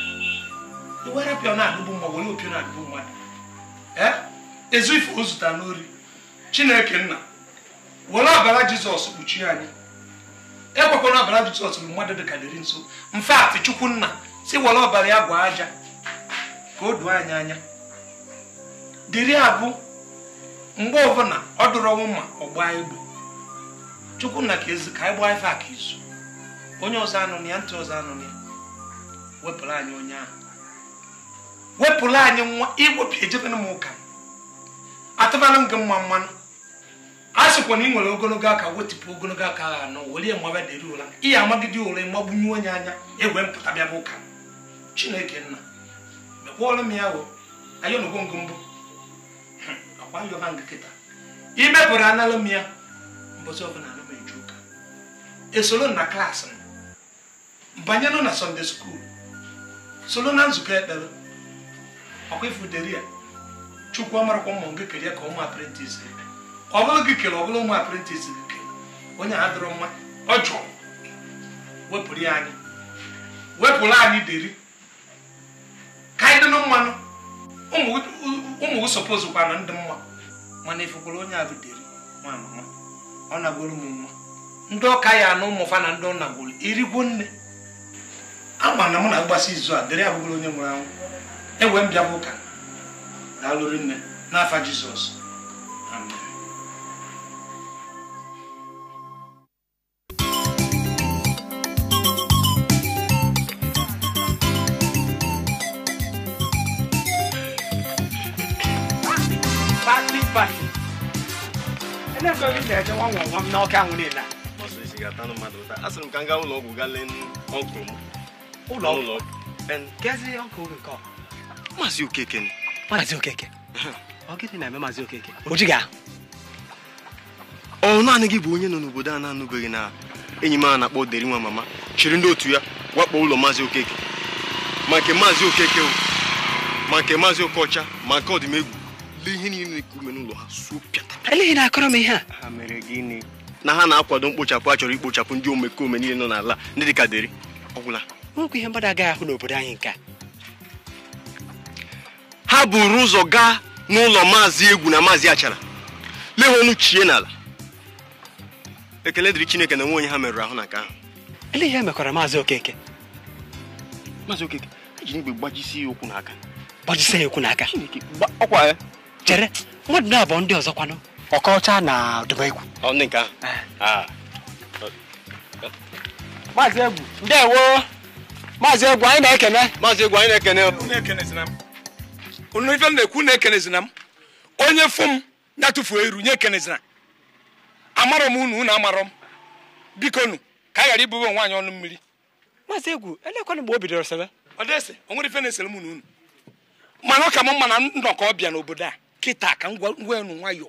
werapịa na-adụgbu mma were opi na-adụgbu mmadụ e? ezu ife o zụtara n'ori chineke nna were ọbara jizọs kpuchie anyị ekwekwara ọbara Jizọs bụ mmadụ dị ka dịrị nso mfe atị nna si were ọbara ya gwa aja ka o doo anyị anya dịrị abụ mgbe ọbụla ọ dụrụ ọnwụ ma ọ gbaa egbe Chukwunna ka ezi ka anyị gbaa ife a ka izu onye ọzọ anụnụ ya ntị ọzọ anụnụ ya wepụrụ anyị onye ahụ wepụrụ anyị nwa iwepụ ejebena m ụka m gị mma mmanụ a sịkwa na ị nwere ogologo aka wetụpụ ogologo aka ha anọ were maba deri ụra ihe amagide ụra mgbagbunye onye anya egwe mpụta bịa bụ ụka chineke nna mekwọrọ m ya ayọnogwongo mbụ akwa yọba nga kịta imepụrụ analụ m ya mbọsị ọbụla alụ m eju ụka esoro na klaasị m banyenụ na sọnde skuul soro na nzukọ ekpere ọkwa ifu deri ya chukwu amarakwa mma nke ya ka ụmụ aprentis ọ bụrụ gị kere ọ bụrụ nwa apprentice gị kere onye a dịrọ mma ọ jụrụ wepụrụ ya anyị wepụrụ anyị deri ka anyị dịnụ mmanụ ụmụ gị sọpọzụ kwana ndị mma mana ifekwara onye a bụ deri nwa mama ọ nagoro m mma ndị ọka ya na ụmụfa na ndị ọ nagoro erigwo nne ama na mụ na agbasi izu a deri abụghị onye nwụrụ anwụ ewe m bịa bụ ụka daalụrụ nne n'afa Jizọs amen na-ebe ebe ị na-eje nwa nwa nwa m n'ọka ahụ niile m ka m ụlọ ọgwụ gaa lee ọnkụl m ụlọ ọgwụ kezi ọnkụl gị nke maazị okeke maazị okeke ọ gịnị na-eme maazị okeke ojiga. jighị ọ naanị gị bụ onye nọ n'obodo a na-anụbeghị na enyi m a na-akpọ deri nwa mama chịrị ndị otu ya wakpo ụlọ maazị okeke ma nke maazị okeke ma nke maazị okocha ma nke ọdịmegwu ihe niile ume n'ụlọ ha suo pịata eleghị na akọrọ m ihe a ha mere gịnị na ha na-akwado mkpochapụ a chọrọ ikpochapụ ndị omekome niile nọ n'ala ndị dịka deri ọgwụla nwekwa ihe mmadụ agaghị ahụ n'obodo anyị nke ha buru ụzọ gaa n'ụlọ maazị egwu na maazị achara lee ha ọnụ chie n'ala ekele dịrị chineke na nwe ha merụrụ ahụ na nke ahụ ele ihe mekwara maazị okeke maazị okeke ji igbe gbajisi ya ụkwụ n'aka gbajisi ya ụkwụ n'aka ọkwa ya chere mmadụ abụọ ndị ọzọ kwanụ ọkọcha na dubegwu ndị nke ahụ eh. maazị egwu ndewo maazị egwu anyị na-ekene maazị egwu anyị na-ekene unu ife na-ekwu na-ekenezina m onye fụ m ya tụfuo iru nye ekenezina amarọ m unu unu amarọ m biko nu ka a ghara ibube nwaanyị ọnụ mmiri maazị egwu elekwana mgbe o bidoro sebe ọ dịsị o nwere ife na-esere m unu unu mana ọ ka m mma nnọkọ ọbịa n'obodo a kịta ka ngwa enu nwayọ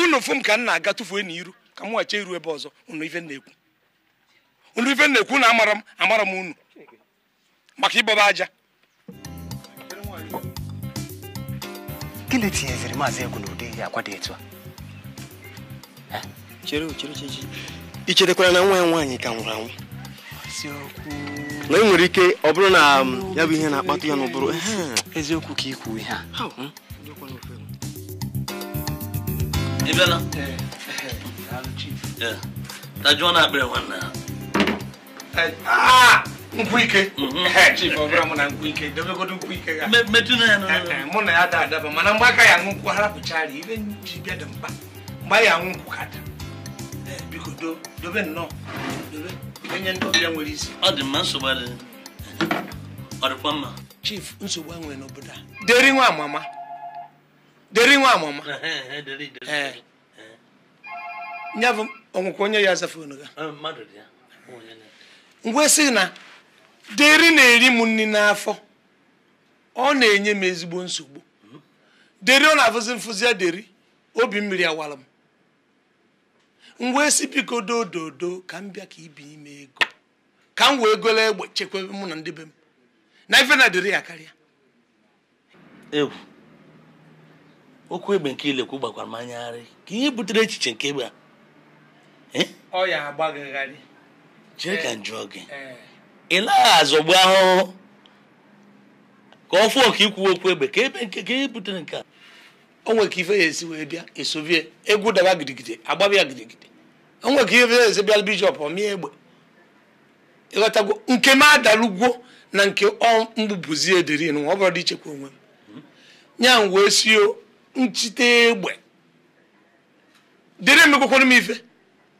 unu fụ ka m na-aga tụfuo iru ka m wacha iru ebe ọzọ unu ife na-ekwu unu ife na-ekwu na amara m amara m unu maka ịbọba aja gịnị tinyeziri maazị egwu n'ụdị ihe akwa dị etu a icherekwara na nwa ya nwaanyị ka nwụrụ anwụ na ị nwere ike ọ bụrụ na um, ya bụ ihe na-akpata ya n'ụbụrụ eziokwu ka ikwu ihe a ị bịala tajuo na akpịrị nwanne ha nkwụ ike mhm. chief ọ bụla mụ na nkwụ ike dobegodo nkwụ ike metụ na ya mụ na ya da adaba mana mgbe aka ya aṅụ nkwụ harapụchara ibe ji bịa dị mkpa mgbe ya aṅụ nkwụ ka da biko dobe nnọọ dobe enye ndị ọbịa nwere isi ọ dị mma nsogbu adịghị ọ dịkwa mma chief nsogbu a nwere n'obodo a deri nwa amama deri nwa amụma ya bụ ọnwụkwa onye ya aza fonu ngwa sị na deri na-eri m nri n'afọ ọ na-enye m ezigbo nsogbu hmm? deri ọ na-afụzi mfụzi deri obi mmiri awara m ngwa esi biko dododo ka m bịa ka ibi ime ego ka m wee golo egbe chekwa mụ na ndị be m na ife na deri ya karịa okwu egbe nke ilekwu gbakwara m anyagharị ka ihe butere echiche nke egbe a eh? ọ ya agbagagharị jee ka njụ gị eh, eh. ị naghị azọgbu ahụhụ ka ọ fụọ ka ikwuwe okwu egbe ka ebe nke ka ihe butere nke a o nwere ka ife ya esi wee bịa esovie egwu daba gidigide agbaba ya gidigidi o nwere ka ife ya esi bịa bijọp ọmịa egbe ịghọtago nke m adalugwo na nke ọ mgbubuzi ederi ọ bụrụ dị ichekwa onwe m hmm? nya m wee si nchite egbe dịrị m ife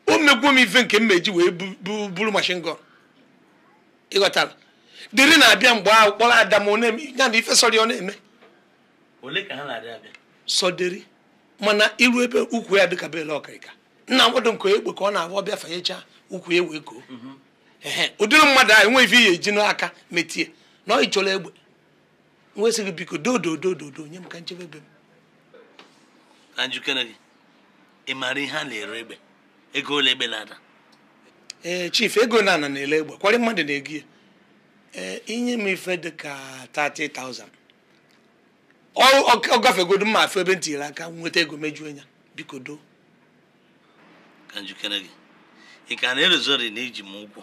o megwuo m ife nke m meji wee buru mashin gọn ịghọtara dịrị na-abịa mgbe ahụ kpọrọ ada m ya na ife sọrọ ọ na-eme ole ka ha na-abịa sọdịrị mana iru ebe ukwu ya dịka bele ọkaịka nna nkwado nke egbe ka ọ na-abụ ọbịa fanyecha ukwu ya wee koo mhm. ụdịrị mmadụ ahụ enweghị ihe eji n'aka metie na ọ ịchọrọ egbe nwesịghị biko dododododo nye m ka nchebe ebe m na njikere gị ị maara ihe a na-ere egbe ego ole egbe na-ada ee eh, chief ego na ana na-ele egbe kwarị mmadụ na-ego ya ee eh, inye m ife dị ka 30,000 ọ gafegodo mma afọ ebe ntiri aka nweta ego mejuo ya biko doo ka njikere gị ị ka na-erozori na iji m ụgwọ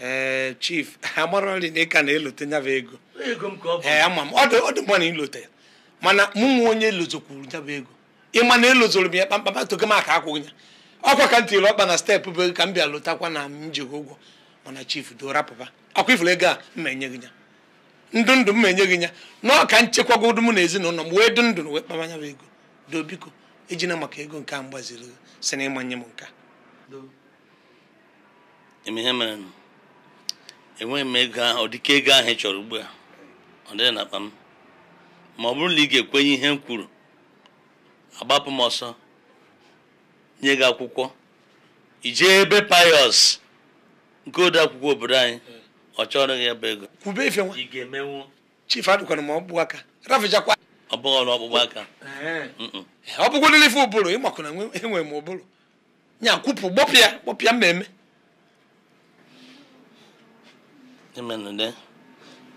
ee eh, chief amarọri na ị ka na-elote nyaba ego ee ama m ọdụ mma na ilote ya mana mụnwa onye elozokwuru nyabụ ego ịma na elozoro m ya kpamkpam togo m aka akwụghị ya ọkwa ka m ọkpa na steepụ bụ ego ka m bịa lụtakwa na m jigh ụgwọ mana chifu dora papa akwa ifuru ego a mma enye gị ya ndụ ndụ mma enye gị ya na ọka nchekwagodu mụ na ezinụlọ m wee dụ ndụ na wee kpama nyabụ ego doo biko ejina maka ego nke a mgbaziri si na ịmanye m nke enweghị m ego ahụ ọ ego ahụ ị chọrọ ugbu a ọ dịghị na akpa m ma ọ bụrụ na ị ga-ekwenye ihe m kwuru agbapụ m ọsọ nye gị akwụkwọ ijee ebe payọs nke ode akwụkwọ obodo anyị ọ chọrọ gị ebe ego kwube ife ga-emenwu chief ma ọ bụ aka rafijakwa ọrụ ọkpụkpụ aka ọ bụgwo nile ife ụbụrụ ịmakụ na enwe e m ụbụrụ nya kwupụ gbọpịa gbọpịa mmemme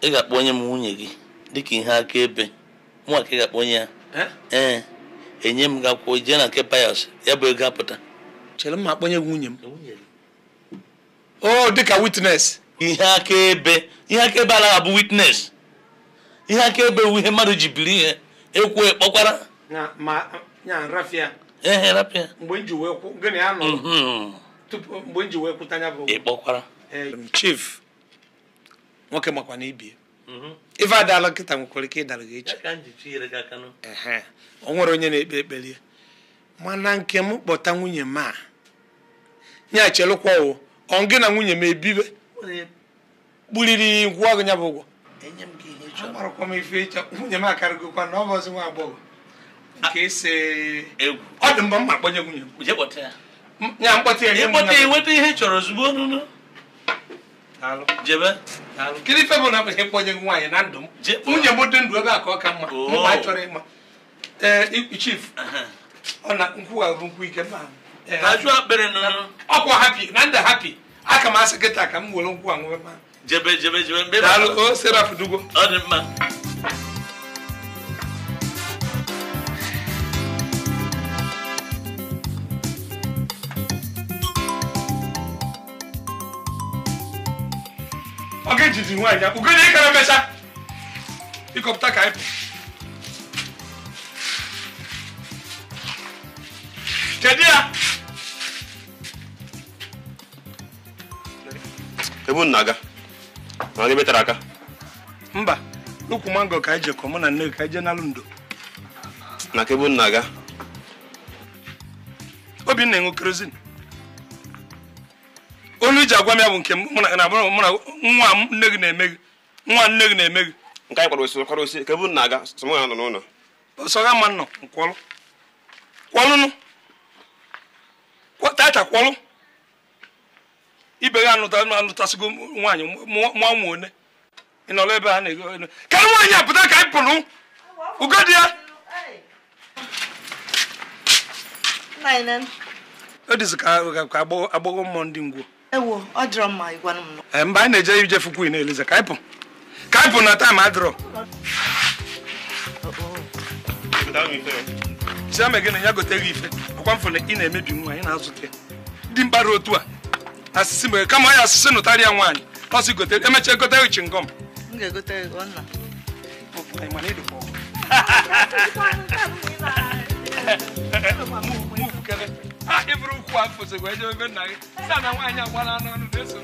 ị ga-akpọ onye m nwunye gị dịka ihe akaebe nwa ka ị ga-akpọ onye ya ee eh? eh. enye m gakwuo jee na nke payas ya bụ ego apụta chere m ma akpọnye gị nwunye m o dịka witnes ihe akaebe ihe akaebe anaghị bụ witness ihe akaebe wu ihe mmadụ ji biri ihe ekwu ekpọkwara ehe rapịa um, ịkpọkwara chief nwoke makwa na ibie mm-hmm. ife adala nkịta nwekwara ike ịdara gị echi o nwere onye na-ekpe ekpere mana nke m kpọta nwunye m a nye chelụkwa o ọ gị na nwunye m ebibe kpuriri gwụọ gị ya bụ ụgwọ agbarakwa m ife ịchọ nwunye m akarịgokwa na ọ bụ ọzi nwa agbọghọ nke ise ọ dị mgbe m ma akpọnye nwunye m ya mkpọta ya nye m ihe chọrọ ozugbo jebe kedu kini bụ na akpụghị mkpọnye nwaanyị na ndụ m nwunye m dị ndụ ebe a ka ọ ka mma mgbe a chọrọ ịma chief ọ na nkwugharụ nkwụ ike ọkwa hapi na ndị hapi aka m asị kịta ka m were nkwụ anwụ jebe jebe jebe dugo ọ dị mma jizi nwaanyị ya ugodi ịkara mecha ịkọpụta ka anyị kedu ya ebu nna aga na onye metara aka mba n'ukwu mango ka anyị jekọ mụ na nne ka anyị jee n'alụ ndo na ka ebu nna aga obinna enwe kerozin ji agwa m ya bụ nke mụ na nwa nne na-eme gị nwa nne gị na-eme gị nke anyị kwara osi kwara osi na-aga sọmụ ya nọ n'ụlọ sọga ma nọ kwọlụnụ taata kwọlụ ibe gị anụtasịgo nwaanyị one ị nọrọ ebe ha na-ego ka nwaanyị a pụta ka anyị pụrụ ugo ya ka agbọghọ mmụọ ndị ngwo ewo ọ dịrọ mma ịgwa m nọ eh, Mba, anyị na-eje ije fukwu na elize ka anyị pụ ka anyị pụ na taim adịrọ chiame na ya gote ife ọkwa mfụ ị na-emebi nwa anyị na-azụta ndị mkpara otu a asịsị mere kama asịsị nụtara ya nwaanyị ọsị gote emechaa gote egote gị hibụrụ ụkwụ afọ sokwa ejebe nna gị sa na nwaanyị agbala n'ọnụ na-eso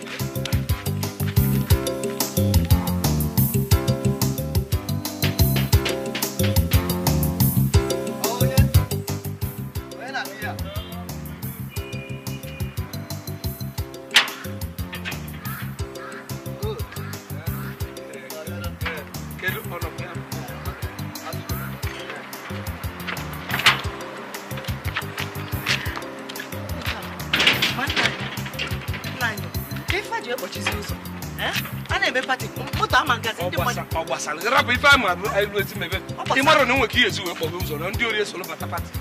rapụ ife ama bụ elu ezi ị ịmarụ na nwere ihe ezi wee kpọbe ụzọ na ndị ori esolo bata pati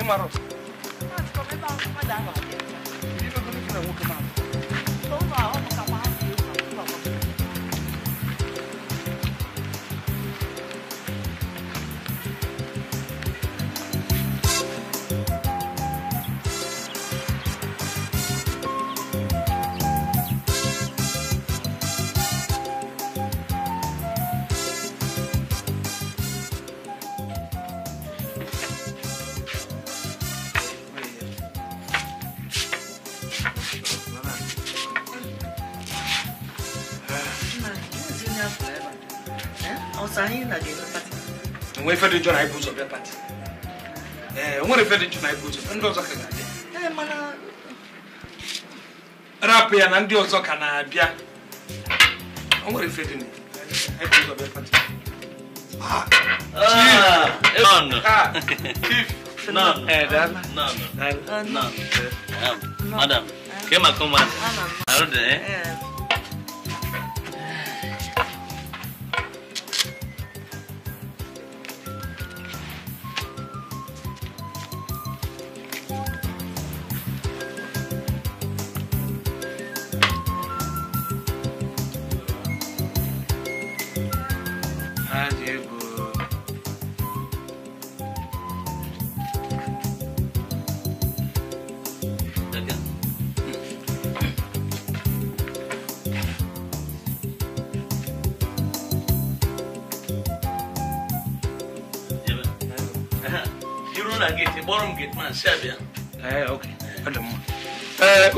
ịmarụ ife dị njọ na ibu ụzọ bịa pati ee nwere dị njọ na ibu ndị ọzọ ka na ga-abịa eh, mana rapụ ya na ndị ọzọ ka na-abịa o nwere ife dị ibu ụzọ bịa pati ah. ah, ah, eh, eh. Madam, kema kumana. Arudi eh?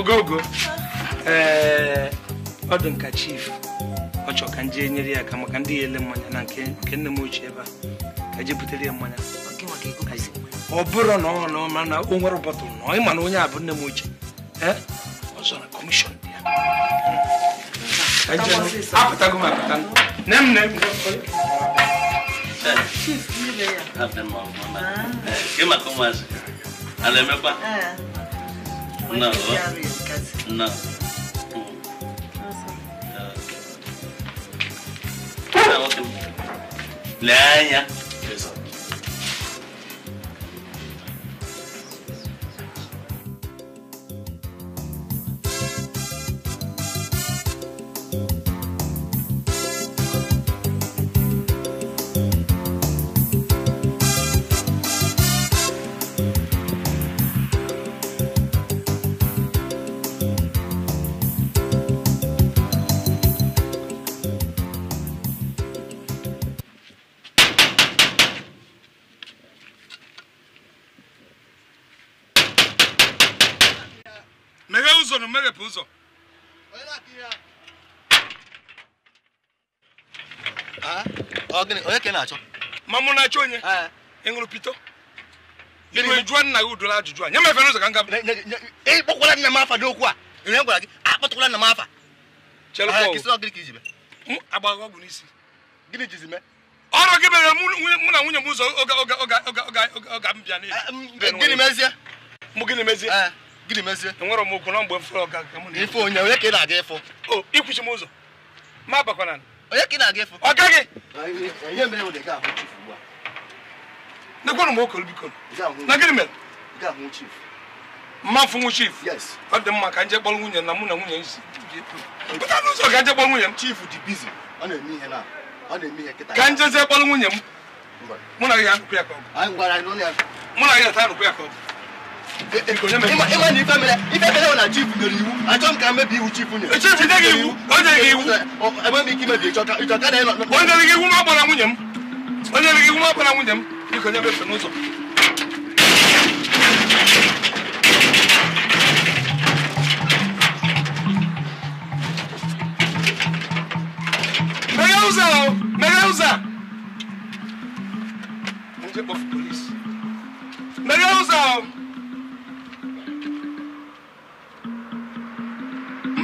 ogogo ee eh, ọ dị nka chief ọ chọ ka nje enyere ya aka maka ndị ya ele mmanya na nke nne m ochie ebe a ka je butere ya mmanya ọ bụrụ na ọ na mana o nwere ụbọtụ na ịma na onye a bụ nne m ochie eh, ọzọ na kọmishọn dị ya apụtago m apụta nne m nne eh, m Gị maka na-emekwa? tickets? No. Two. Awesome. Okay. Now, what do you? Laya. na-achọ ma mụ na-achọ onye ịṅụrụ pito ịnụ jụọ nna gị ajụjụ a nye m efe n'ụzọ ka m gaba ịkpọkwala nna m afa n'okwu a ihe gwara gị akpọtụkwala nna m afa n'isi gịnị jizi ọrụ gị mere mụ na nwunye m ụzọ oge m gịnị mezie mụ gịnị mezie gịnị mezie enwere m na mgbe m fụrụ ọga ife onye onye ka ị na-aga ụzọ ma onye ka ị na-aga efu ọ gaghị m na gịnị mere mmafu nwu chief ọ dị mma ka nje nwunye na mụ na nwunye si pụta n'ụzọ ka nje nwunye m chief dị ka njezie kpọrọ nwunye m mụ na ya ka ọ mụ na ata ya ka ịma na ife mere ife mere na chief nyere iwu achọ m ka mmebi iwu chief nyere chief nye gị iwu o nyere gị iwu enwe m ike imebi ịchọka ịchọka na ịnọ o nyere gị iwu ma gbara nwunye m o nyere gị iwu ma gbara nwunye m biko nyebe efe n'ụzọ meghe ụzọ ahụ meghe ụzọ a ndị kpọfụ polisi meghe ụzọ ahụ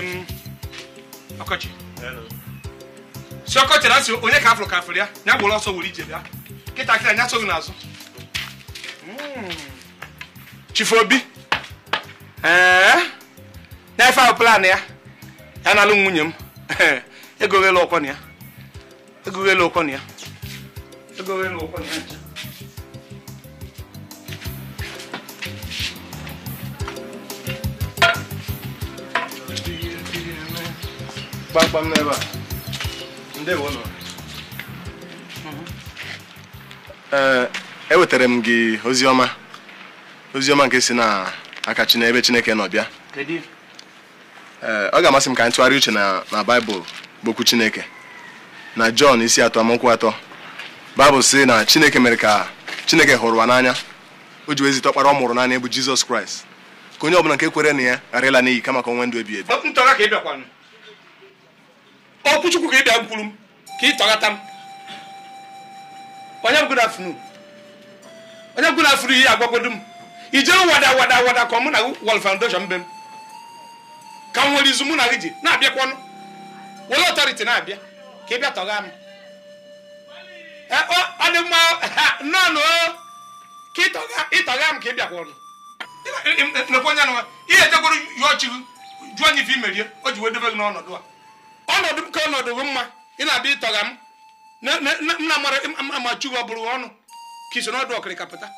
m ọkọchị ọkọchị asị onye ka afụrụ ka afụrụ ya ya gbụrụ ọsọ were ije bịa kịta kịta nya n'azụ hmm. Chief Obi na-efe ahụ plan ya ya na-alụ nwunye m egoghela ọkwọ na ya na ya ụkwọ na ya kpamkpam n'ebe a ndewo ee eh, ewetara m gị oziọma oziọma nke si na aka ebe chineke nọ bịa eh, ọ ga-amasị m ka anyị tụgharị uche na baịbụl bụ okwu chineke na jọn isi atọ amaokwu atọ baịbụl si na chineke mere ka chineke hụrụ ụwa n'anya o ji wezite ọkpara ọ mụrụ naanị bụ jizọs kraịst ka onye ọbụla nke kwere na ya ghara ịla n'iyi kama ka o ndụ ebi ebi ọ ka ị bịa mkpụrụ m ka ị tọghata m onye good afternoon onye good afternoon ihe agwagodo m ije wada wada wada ka mụ foundation mbe m ka m nwere izu mụ na gị ji na were ọtọriti na-abịa ka ị bịa tọgha m eh, ọ dị mma ka ka ị bịakwanụ nekwe onye nwa ihe o ji wee debe gị n'ọnọdụ a ọnọdụ ka ọnọdụ bụ mma ị na-abịa ịtọga m nna amachu gị ọ bụrụ ọnụ ka iso n'ọdụ ọkịrịka pụta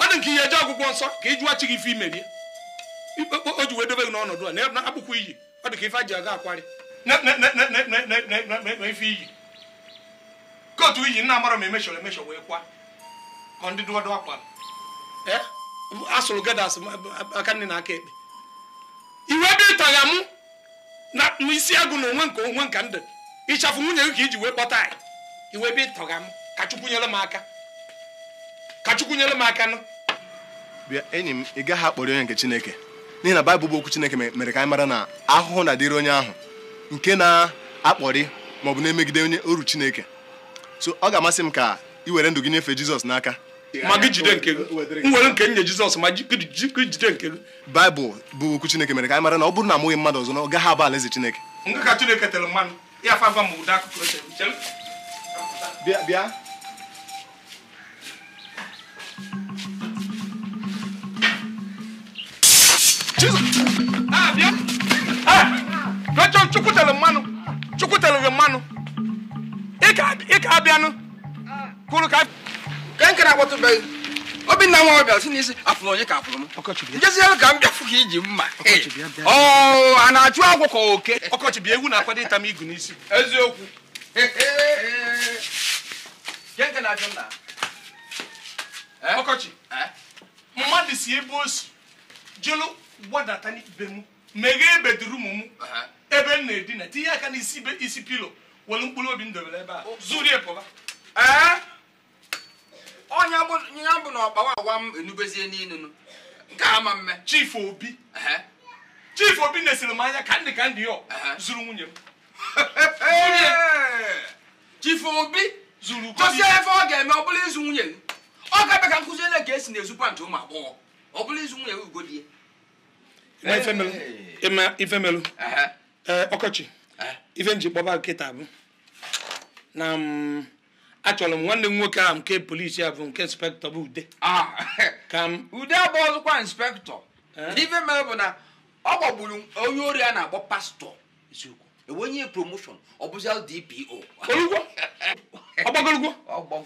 ọ dị nke ihe eje ọgwụgwọ nsọ ka ị jụwa chi gị ife imerie o ji wee dobe gị n'ọnọdụ a na akpụkpọ iyi ọ dị ka ife a ji aga akwarị na ife iyi ka otu iyi nna amara m emeshọrọ emeshọ wee kwa ka ndị dụọdụ akwa asụrụ gedas aka nne na aka ekpe iwe dị ịtọgha mụ na isi agụ na onwe nke onwe nke ndụ ịchafụ nwunye gị ka iji wee kpọta anyị iwe ebe ịtọga m ka nyere m aka ka m aka bịa enyi m ị gaghị akpọrọ onye nke Chineke n'ihi na Baịbụl bụ okwu Chineke mere ka anyị mara na ahụhụ na-adịrị onye ahụ nke na-akpọrị maọbụ na-emegide onye oru Chineke so ọ ga-amasị m ka ị were ndụ gị nyefee Jizọs n'aka ma gị jide nke gị nwere nke nye jizọs ma gị jide nke gị baịbụl bụ okwu chineke mere ka anyị mara na ọ bụrụ na amụghị mmadụ ọzọ na ọ gaghị abụ alaeze chineke nke ka mmanụ ya fafa ah, ah, mmanụ abịanụ kwuru ka ka nkere agbatụbeghị obinna nwa ọbịa si n'isi afụrụ onye ka afụrụ m njeziere ka m bịafụ ka iji mma oh, a na-achụ agwọ ka oke ọkọchị bịa ewu na-akwado ịta m igu n'isi eziokwu eh? ọkọchị eh? mmadụ si ebe o si jụrụ gbadata n'ibe m meghee bedrum m uh-huh. ebe m na-edina tinye aka n'isi isi pilo were mkpụrụ obi m dobere ebe a zuru pụba eh? ọnya bụ na ọgbawa awa m enubezie n'inu nke ama mme chief obi chief obi nesiri m anya ka ndị ka ndị ọ zuru nwunye m chief obi zuru gosi ebe ọ ga-eme ọ bụla ịzụ nwunye ọ ga-abịa ka nkụziele ka esi na-ezu pantị ụmụ agbọghọ ọ bụla ịzụ nwunye ugodie ifemelu eh, ọkọchị ife m ji kpọba nkịta bụ na mm, achọrọ m nwanne m nwoke ahụ nke polisi a bụ nke inspektọ bụ ude ah. ka m ude abụọ inspektọ n'ife mere bụ na ọ gbagburu onye ori a na-akpọ pastọ enwenye promoshọn e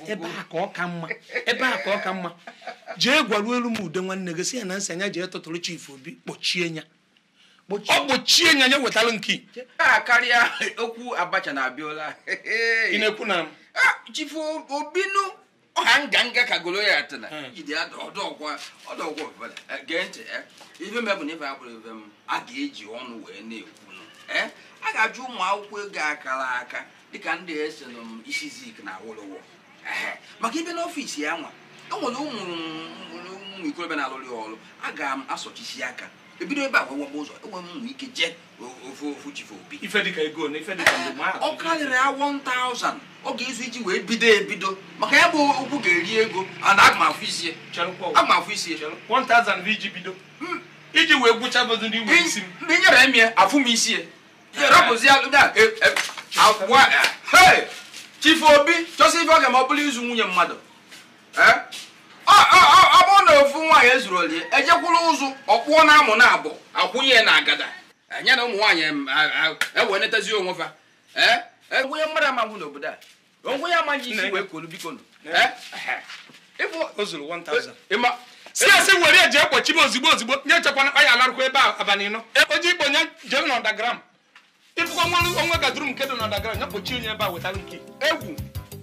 ebe ka ọ ka mma ebe ọ jee gwaruo elu m ude nwanne gị si ya na nsị anya jee tụtụrụ chif obi kpọchie ọ nya nya wetara nke karịa okwu abacha na ekwu na chifu obinu ọha nga nga ka goloyat na ijide ọdọgwa ọdọgwa ọbụla gee ntị ife mebụ na ife abụrụ ife m a ga-eji ọnụ wee na-ekwunu a ga-ajụ ụmụ akwụkwọ ego akara aka dịka ndị esi na isi zik na awolowo maka ibe n'ọfisi ya nwa enwere ụmụ ụmụ ikorobịa na-alụrụ ọrụ a ga m asọchisi aka ebido ebe a wewebe ụzọ enwere ụzọ ike jee ofe ofu chife obi ọ karịrị ya 1000 ọ ga-ezu iji wee bido ebido maka ya bụ okwu ga-eri ego ana agma afụ isie agma afụ isie iji wee gwụcha bụdụ ndị nwere isi m ndị nyere m ya afụ m isie rapụzi chife obi chọsị ife ọ ga ma ọ bụla izu nwunye mmadụ eh? ọ bụrụ na ofu nwaanyị ezuru olie ejekwuru ụzụ ọkpụọ na amụ na abụ akwụnye na agada anya e, na ụmụ nwaanyị ewe e netezi onwe fa e, onye mmadụ amahụ n'obodo a onwe ya amaghị isi wee kolu biko si asị were eji ekwochi m ozigbo ozigbo nye chekwana mkpa ya alarụkwa ebe abalị nọ oji ikpo nye jem na ọdagram ịfụkwa nwa onwe gaduru nke dị na ọdagram ya kpochi onye ebe a wetara nke egwu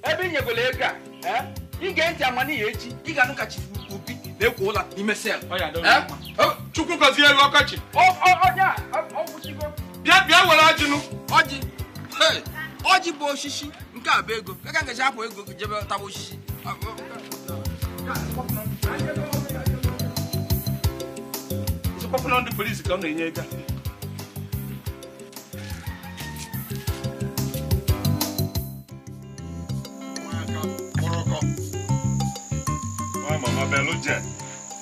ebe i nyegolo ego a ga ntị amanihe echi ị ga-anụ ka chifu obi na-ekwo ụla n'ime sel chukwu gọzie elu ọkọchị bịa bịa were ajụnụ ọjị ọjị bụ osisi nke a bụ ego ka ka ngaji apụ ego jebe taba osisi ndị polisi ka Why, Mama, Beluje?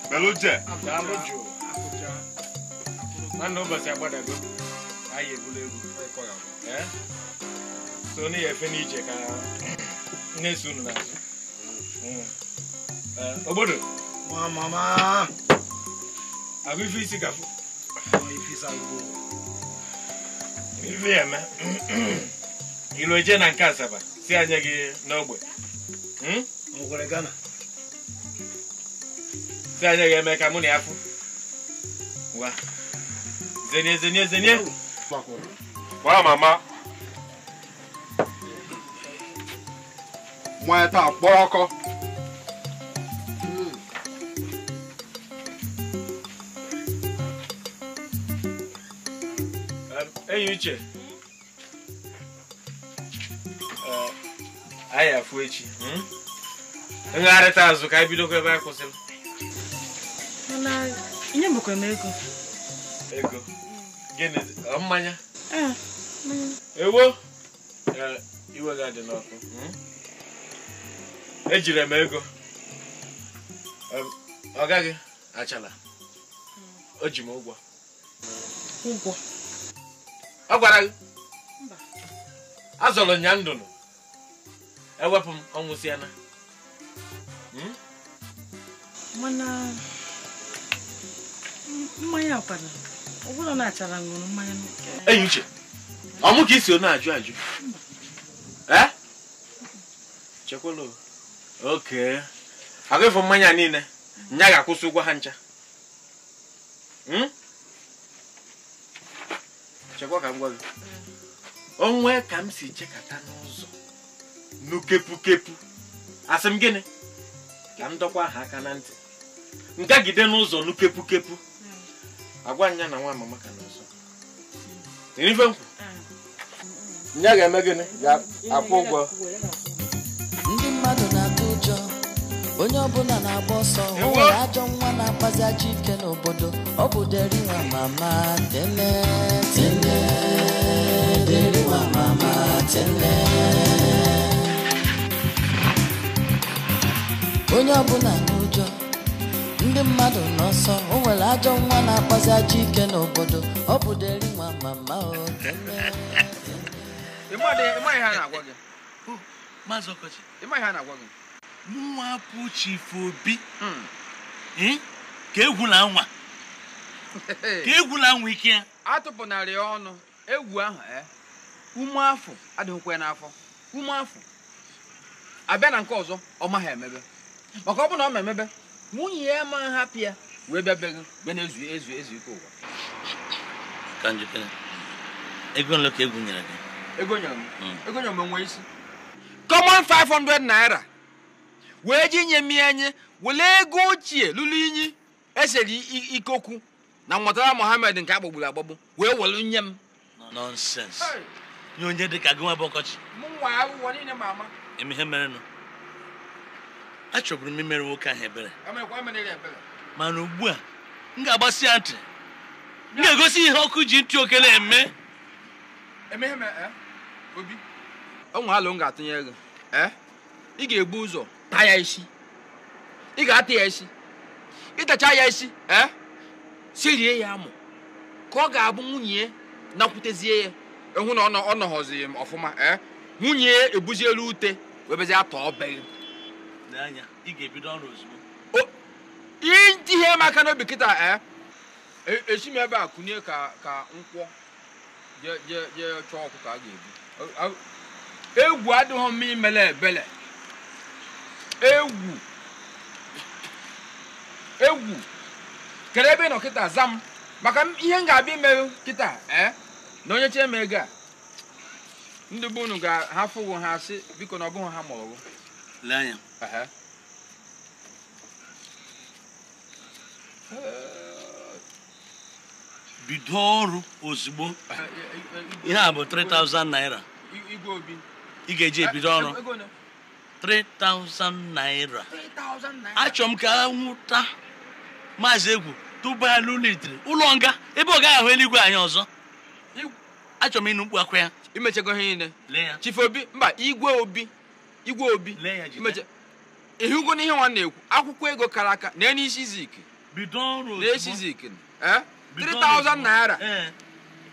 Beluje? Nwanne ụbọchị agbadago anyị egwula egwu so onye efe na unu obodo ife isi gafụ ife eme ilu eje na nke asaba si anya gị n'ogbe ife anya ya eme ka mụ na ya fụ ngwa zenye zenye zenye gbaa mama nwa ya taa uche anyị afụ echi hmm? ngagharịta azụ ka anyị bidokwa ebe anyị kwụsịrị ihe bụkwa m ego ego gịnị mmanya ewo iwe gị adị n'ọkụ hmm? ejiri m ego ọ gaghị achala o ji m ụgwọ ụgwọ ọ gwara gị azọrọ nya ndụnụ ewepụ m ọnwụsiana hmm? mana mmanya ọkpara ụbụrụ na-achara ṅụrụ mmanya enyi uche ọ mụ ka isi na-ajụ ajụ eh? chekwala oke agụfụ mmanya niile nya ga-akwụsị ụgwọ ha ncha hmm? chekwa ka m gwa gị onwe ka m si chekata n'ụzọ n'ukepukepu asị m gịnị ka m dọkwa ha aka na ntị ngagide n'ụzọ n'ukepukepụ agwa nya na nwa mama ka n'ọzọ erife nkwụ nya ga-eme gịnị ga-akwụ ụgwọ ndị mmadụ na-atụ ụjọ onye ọbụla na-agba ọsọ o nwere ajọ nwa na-akpazi ajọ ike n'obodo ọ bụ deri nwa mama tene tene mama tene onye ọbụla na ndị mmadụ n'ọsọ o nwere ajọ nwa na-akpazi ajọ ike n'obodo ọ bụ deri nwa mama mụwapụ chifu obi hmm. ka egwula nwa ka egwula nwa ike ya Atụpụ narị ọnụ egwu ahụ ume eh? afọ adịghịkwa n'afọ ume afọ abịa na nke ọzọ ọ maghị emebe maka ọ bụ na ọ ma emebe nwunye ya ma hapụ ya wee bịa bịa bịa na-ezu ezu ezu ike ụwa ka njikere ego ka ego gị ego m hmm. ego m enwe isi common 500 naira wee ji nye m enye were ego ochie lụrụ inyi esere ikokwu na mmụtara mohammed nke agbagburu agbagbu wee were nye m nọnsens nye onye dịka gị nwa bụ ọkọchị m nwa aghụghọ niile ma ama eme ihe merenụ achọburu m imere nwoke ahụ ebere mana ugbu a m ga-agbasi ya ntị m ga-egosi ihe ọkụ ji ntị oke na-eme eh? onwe alụ m ga-atụnye gị eh? ị ga-egbu ụzọ taa ya isi ị ga-ata ya isi ịtacha ya isi eh? serie ya amụ ka ọ ga-abụ nwunye nakwutezie ya ịhụ na ọ nọghọzi m ọfụma nwunye ya ebuzielu ute webezie atọ ọbe anya ị ga-ebido ọrụ ozugbo ihe maka n'obi kịta eh? e, esi m ebe a kụnye ka nkwọ jee chọọ ọkụ ka a ga-ebu egwu adịghị mma imele ebele egwu egwu kere ebe ị nọ kịta za m maka ihe m ga-abịa ime kịta eh? na onye chee m ego a ndị be unu ga-ahafụ ha asị biko na ọ bụghị ha ma ọrụ Aham. bido ọrụ ozugbo ihe a bụ 3000 naira ị ga-eji ebido ọrụ 3000 naira achọ m ka nwụta maazị egwu tụbaa n'ụlọitiri ụlọ nga ebe ọ gaghị ahụ eluigwe anyị ọzọ achọ m ịnụ mkpu akwa ya imechago ihe niile chifobi mba igwe obi igwe obi ịhụgo n'ihe nwa na-ekwu akwụkwọ ego kara aka na n'isi zik n'esi zik 3000 naira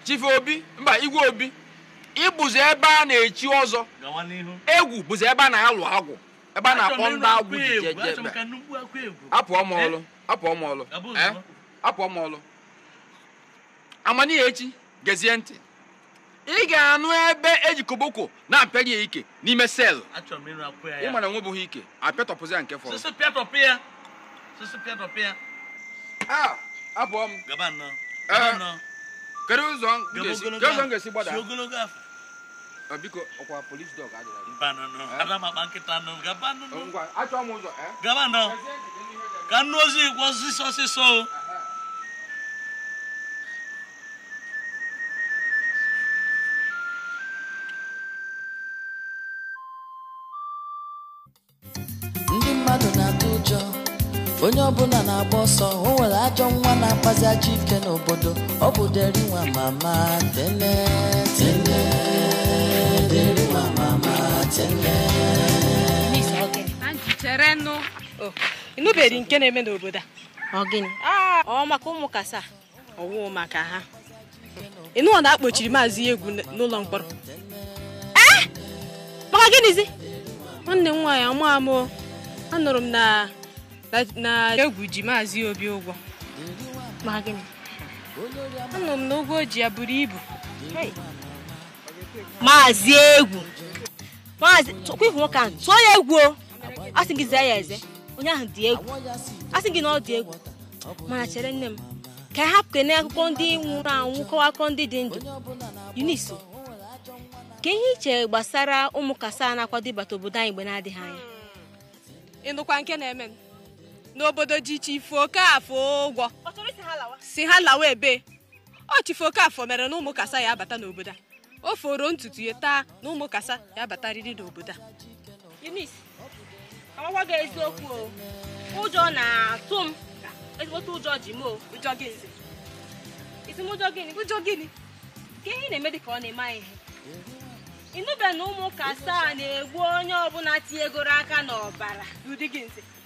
chife obi mba igwe obi ịbụzi ebe a na-echi ọzọ egwu bụzi ebe a na-alụ agwụ ebe a na-akpọ ndị agwụ ji apụọ m ọlụ apụọ m ọlụ apụọ m ọlụ amanihe echi gezie ntị ị ga-anụ ebe eji koboko na-apịarị ya ike n'ime sel ịmara nwe bụghị ike apịatọpụzi ya nke fọrọ abụọ m kedu ụzọ m ga-esi gbada biko ọkwa polis dọg achọ m ụzọ e? ka nnu ozi kwọ ọsịsọ onye ọbụla na-agba ọsọ o nwere ajọ nwa na-akpazi ajọ ike n'obodo ọ bụ deri nwa mama tene tene deri nwa mama tene cherenụ oh, ịnụbeghị nke na-eme n'obodo a ọgịnị ah, ọ maka ụmụ kasa ọwụ maka ha ịnụọ na akpochiri maazị egwu n'ụlọ mkpọrọ eh? maka gịnịzi nwanne m nwaanyị ọmụ amụ anụrụ m na na egwu ji maazị obi ụgwọ anụ m na ụgwọ ji ya buru ibu maazị egwu Maazị kwifụ nwoke ahụ tụọ ya egwu a sị gị zee ya eze onye ahụ dị egwu Asị gị na ọ dị egwu mana chere nne m ka a hapụ kene akụkọ ndị nwụrụ anwụ kọwa akụkọ ndị dị ndụ Eunice ka ihe iche gbasara ụmụ kasa na-akwado ịbata obodo anyị mgbe na-adịghị anya ịnụkwa nke na-eme n'obodo dị iche ifo ka afọ ụgwọ si ha lawa ebe ọ chifo ka afọ mere na ụmụ kasa ya abata n'obodo a o foro ntutu ya taa na ụmụ kasa ya abatarịrị n'obodo a amakwa gị eziokwu o ụjọ na-atụ m ezigbote ụjọ ji m o ụjọ gị nze isi m ụjọ gịnị ụjọ gịnị ka ihe na-eme dị ka ọ na-eme anyị ihe ịnụbe na ụmụ ụka asaa na-egbu onye ọbụla tinyegoro aka n'ọbara n'ụdị gị nze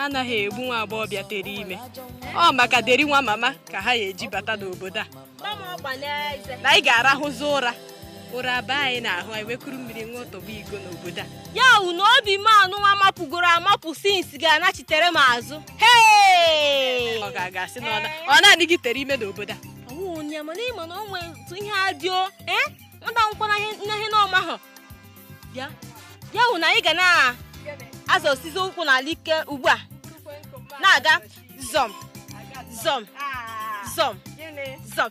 anaghị egbu nwa agbọghọbịa tere ime ọ maka deri nwa mama ka ha ya eji bata n'obodo a na anyị ga-arahụzi ụra ụra be anyị na-ahụ anyị wekuru mmiri nwa ọtọgbu igo n'obodo a ya wu na obi m nwa mapụgoro amapụ sinsi ga-anachitere m azụ ọ ga-agasị na ọ na-adịghị tere ime n'obodo a ịma na o otu ihe adịo ee eh? nwata akwụkwọ n'ihe n'ọma bịa. ya wụ na anyị ga na azụ osisi ụkwụ n'ala ike ugbu a na-aga zọm zọm zọm zọm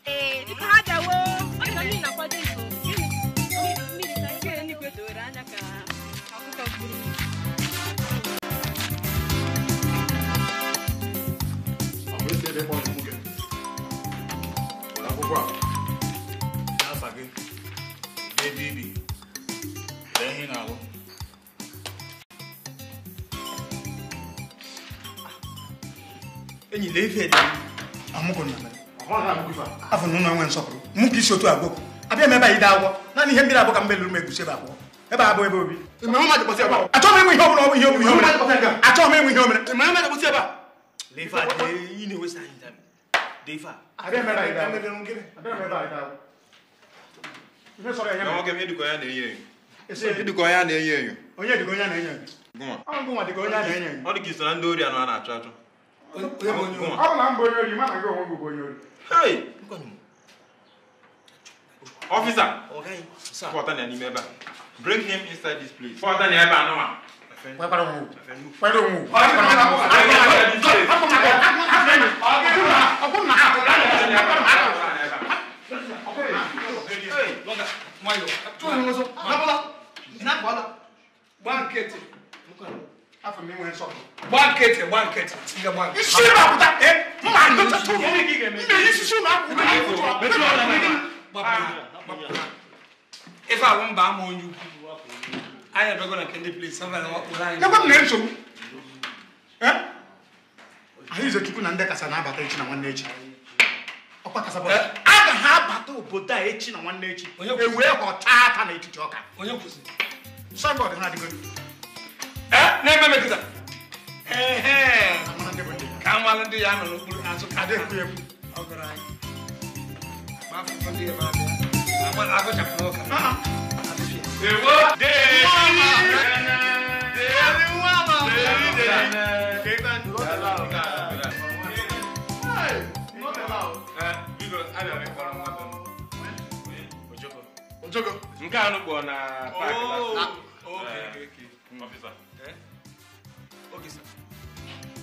enyi lee ife dị amụgụ na mere afọ na ụlọ nwe nsọpụrụ mụ ka isi otu agwọ abịa m ebe anyị daa agwọ naanị ihe mmiri abụọ ka m melụrụ m egusi ebe abụọ ebe abụọ ebe obi achọghị m ịnwe ihe ọbụla ọ bụ ihe ọbụla ihe ọbụla achọghị m ịnwe ihe omere edikọ ya na-enyo enyo onye dịka onye a na-enyo enyo ọ dị ka iso na ndị ori anọ a na-achọ achọ ọ bụ na m bụ onye ori mana gị onwe gị bụ onye ori ọfisa pọta na n'ime ebe a bring him inside this place pọta na ebe anụma Pẹ́pẹ́rẹ́ òun. Pẹ́pẹ́rẹ́ òun. Pẹ́pẹ́rẹ́ òun. Pẹ́pẹ́rẹ́ òun. Pẹ́pẹ́rẹ́ òun. Pẹ́pẹ́rẹ́ òun. nkịtị gba nkịtị ife abụ mba ama onye ukwu anyị na nke anyị Izechukwu na ndị kasa na-abata echi na nwanne echi a ga ha abata obodo a echi na nwanne echi ewee ka ọ taa ata na etiti ọka na-eme metụta ka n wale ndị ya nọ n'okpuru azụ adịkwuye m ọgara anyị afọ ndị ya ma abịa agụchapụrụ ụka ewo Ojogo. Nke a nụ kpọọ na paakị. Ofisa.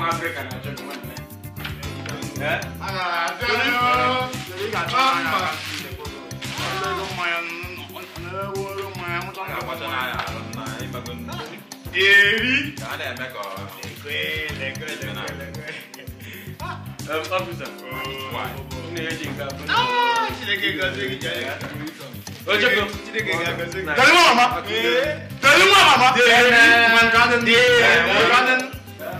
ụmụ afrịka na-achọ gị nwanne eri Dari mana, Mak? Dari mana, Mak? Dari mana, Mak? Dari mana, Mak?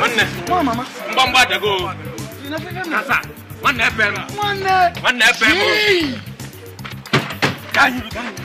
Wanne. Mwa mama. Mba Mama? dago. Inafika mna. Sasa. Wanne pema. Wanne. Wanne pema. Kanyi kanyi.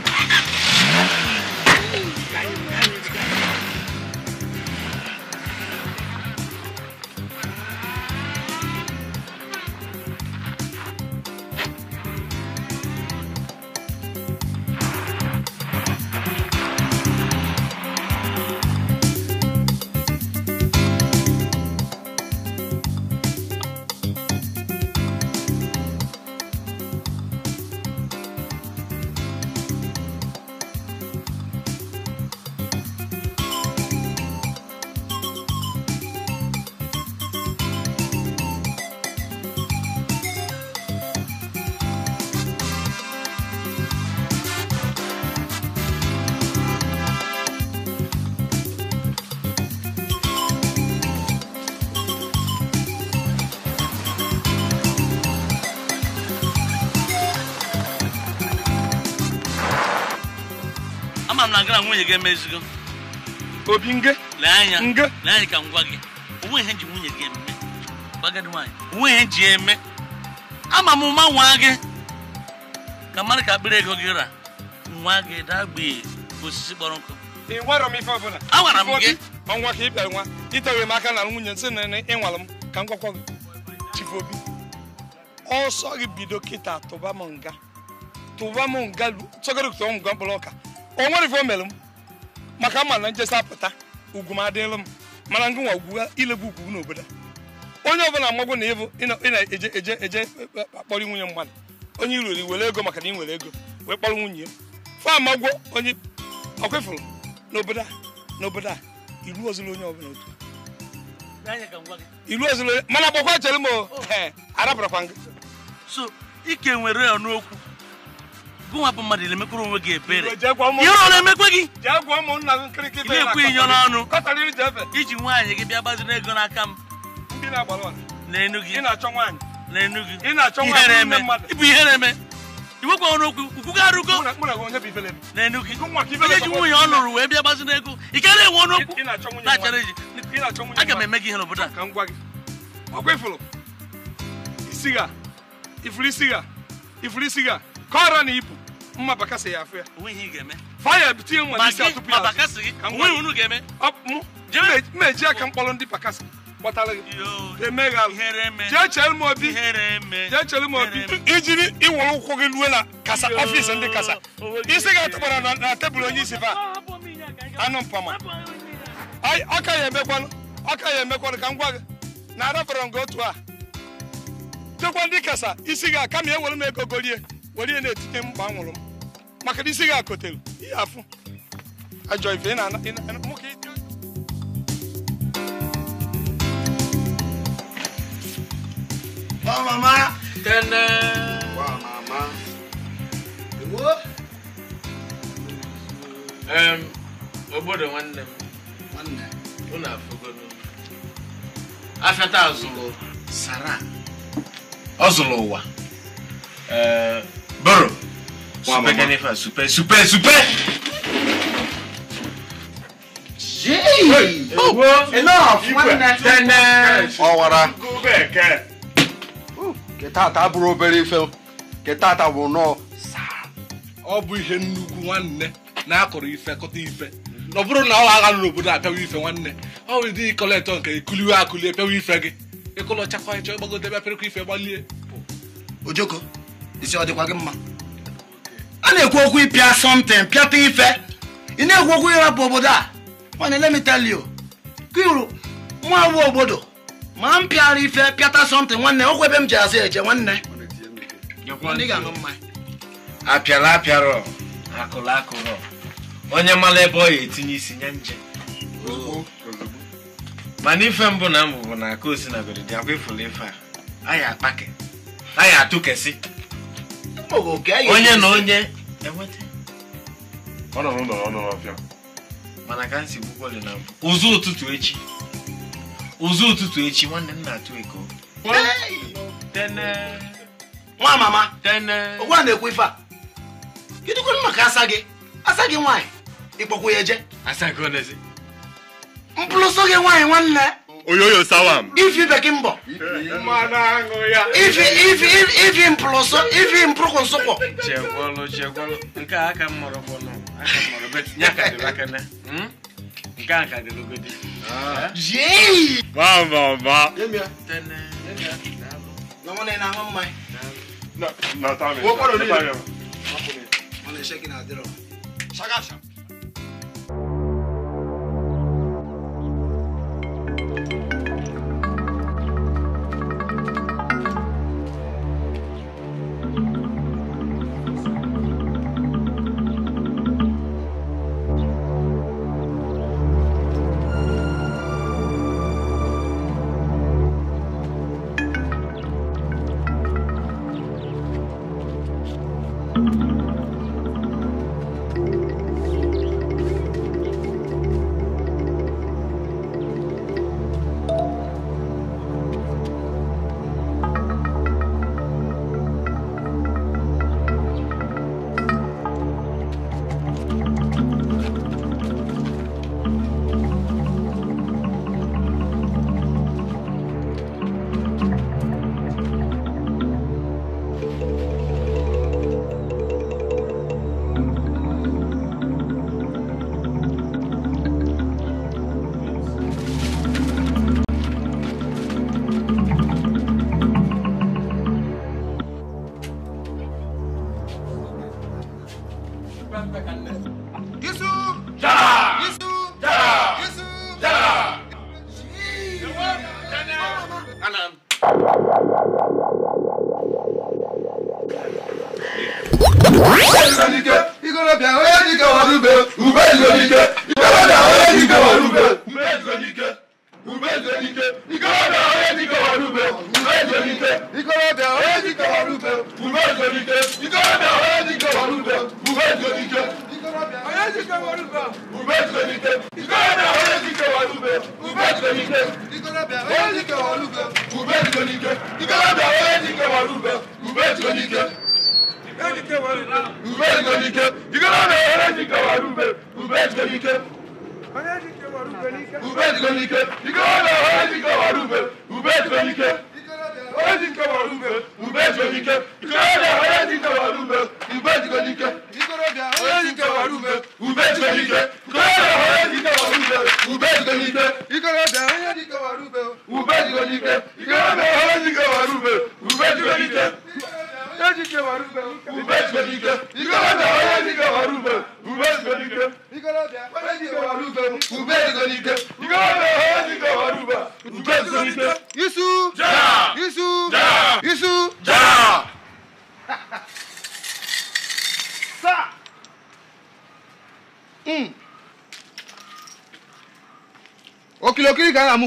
nwunye gị emezigo obi nge lee anya lee anya ka m gwa gị onwe ihe e ji nwunye gị eme gbagadi nwaanyị onwe ihe e ji eme ama m ma nwa gị ka mmadụ ka akpịrị ego gị ra nwa gị dagbee osisi kpọrọ nkụ ịgwarọ m ife ọbụla agwara m gị ọnwa ka ị bịara nwa itewere m aka na nwunye nsị na ịnwala m ka m gwakwa gị chifu obi ọsọ gị bido kịta tụba m nga tụba m nga tụgoro tụọ m nga mkpụrụ ọka o nwere ife o mere m maka mma na njesi apụta ugwu m adịlụ m mana ngị nwa ugwu ilebu ugwu n'obodo onye ọbụla amagwo na ịbụ ị na-eje eje eje akpọrọ e, e, nwunye mmadụ onye iruri were ego maka na ị nwere ego wee kpọrọ nwunye ya fa amagwo onye ọ kwefụrụ n'obodo a n'obodo a iru ozụla onye ọbụla otu iru ozụla mana gbakwa chere m oh. arapụrakwa ngị so ike nwere ya n'okwu nwa bụ mmadụ na-emekwuru onwe gị ebere ihe ọ na-emekwe gị na-ekwe inyo n'ọnụ iji nwaanyị gị bịa gbaziri ego n'aka m n'enu gị n'enu gị ịbụ ihe na-eme iwekwa ọnụ okwu ukwu ga arụgo n'enu gị ihe ji nwunye ọ lụrụ wee bịa gbaziri ego ị ka na-enwe ọnụ okwu na-achara eji aga m eme gị ihe n'obodo a ifuru isi ga ka ọra na ibu mma bakasa ya afọ ya ya mkpọrọ ndị bakasa obi ijiri ịwụrụ ụkwụ gị ruo na kasa ọfịs ndị kasa isi gị atụkpara na tebụl onye isi anụ mpama ọka ya emekwanụ ọka ya emekwanụ ka m gwa gị na arabara gị otu a chekwa ndị kasa isi gị aka ma ewere m ego golie were na-etute mkpa nwụrụ m maka isi gị akotelu ihe afụ ajọ ife ị na-ana Wa obodo nwanne m. Nwanne. Unu afụgodo. Afịata azụrụ Sara. Ọ zụrụ ụwa. Ee. Bro. Super Ganefa, super, super, super. Oh, Ọwara. bụrụ obere ife. bụ nnọọ Ọ bụ ihe nnukwu nwanne na-akọrọ ife kọta ife. Ọ bụrụ na ọ agha n'obodo a ife nwanne. Ọ bụ dị nke ikuliwe akụli e pịawa ife gị. Ịkụlọchakwa ịchọ ịgbagode ife gbalie. Ojoko. isi ọ dịkwa gị mma a na-ekwu okwu ịpịa something pịata ife ị na-ekwu okwu ịrapụ obodo a mana let me tell you kiru nwa bụ obodo ma m pịara ife pịata something nwanne okwu ebe m ji azụ eje nwanne apịara apịara akụrụ akụrụ onye mara ebe ọ ya etinye isi nye nje mana ife mbụ na mbụ bụ na aka osinagori dị akwa ifuru ife a anyị akpake anyị atụkesị onye na onye ozu ụtụtụ echi ụzụ ụtụtụ echi nwanne m na-atụ eko nwa mama ụgwa na-ekwu ife a kedụkwanụ maka asa gị asa gị nwaanyị ịkpọkwa ya eje mpụlụsọ gị nwaanyị nwanne oyoyo sawam ifi bekimbo ifi ifi ifi mploso ifi mpruko nsoko chekwolo chekwolo nke a aka mmọrọ fọnụ aka mmọrọ bet nya ka dịrị hmm? aka na nke a ka dịrị ogodi jei ba ba ba tene lọmọ na ị na-aṅụ mmanya na na tami wọkọrọ n'ihe ọ na-eshekị na adịrọ shagashag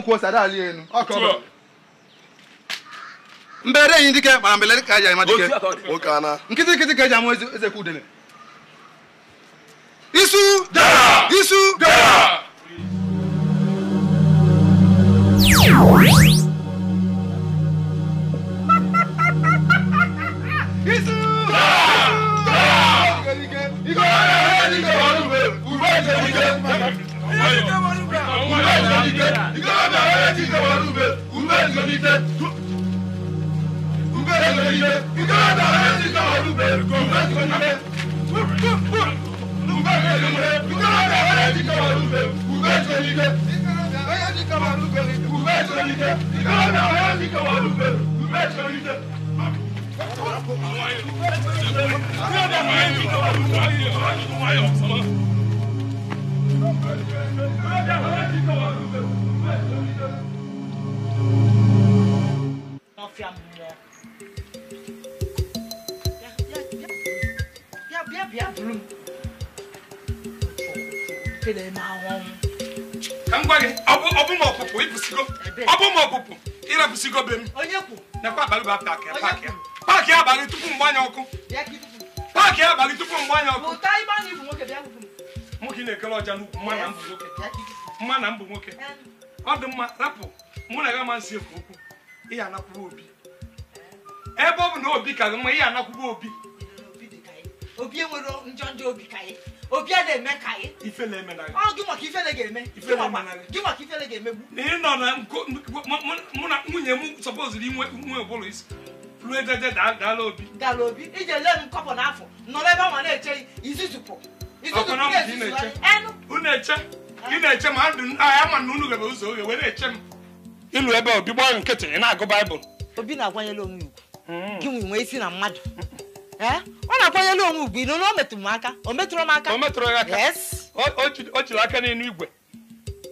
ko sada ali enu ọkọ mbere yin dike mara mbele ka ja ima dike o kana ka ja mo eze ku dene dala obi iji ele m kọpụ n'afọ nọrọ ebe ọnwa na-eche izizupụ ị na-eche ma agha ma na unu gaba ụzọ oge were eche m ịlụ ebe obi gbaa nkịtị ị na-agụ baịbụl obi na-akwanyela onwe ugwu hmm. gị nwee isi na mmadụ ọ na-akwanyela onwe ugwu ịnụ na o metụrụ m aka o metụrụ m aka o metụrụ ya aka o jiri aka n'elu igwe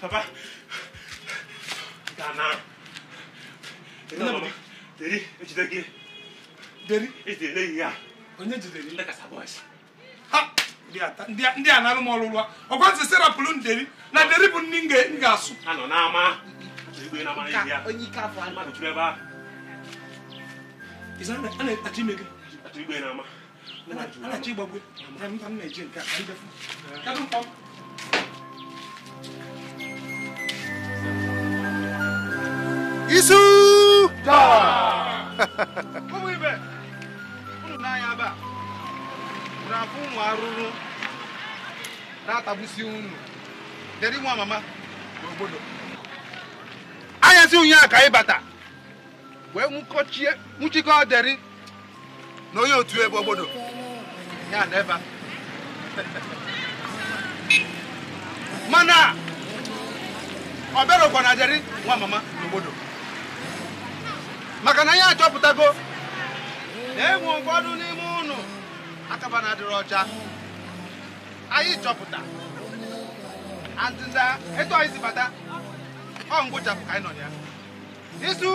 Papa. Dana. Deri, ejide gị. Deri? Ejidere gị ya. Onye jidere ndị kasa bọs. Ha! Ndị a na-arụ m ọrụ ụlọ. Ọkwa ntị serapụlụ Na deri bụ nri m asụ Anọ n'ama. Onye ike afọ Mmadụ ebe ahụ. Ịza ime gị. Igwe n'ama. A na Na nke a. isu ụmụ ibe unu n'anya ebe a unu afụ ụmụ arụrụ na-atagbusi unu nwa mama n'obodo anyasị a ka ịbata wee nwụkọchie nwụchikọ deri na onye otu ebe obodo ya na ebe mana ọ bịarokwa na nwa mama n'obodo maka na anyị achọpụtago na enwe ụfọdụ n'ime ụnụ akaba na ọcha anyị chọpụta ndịda etu anyị si bata ọ ngwụchapụ ka anyị nọ ya isu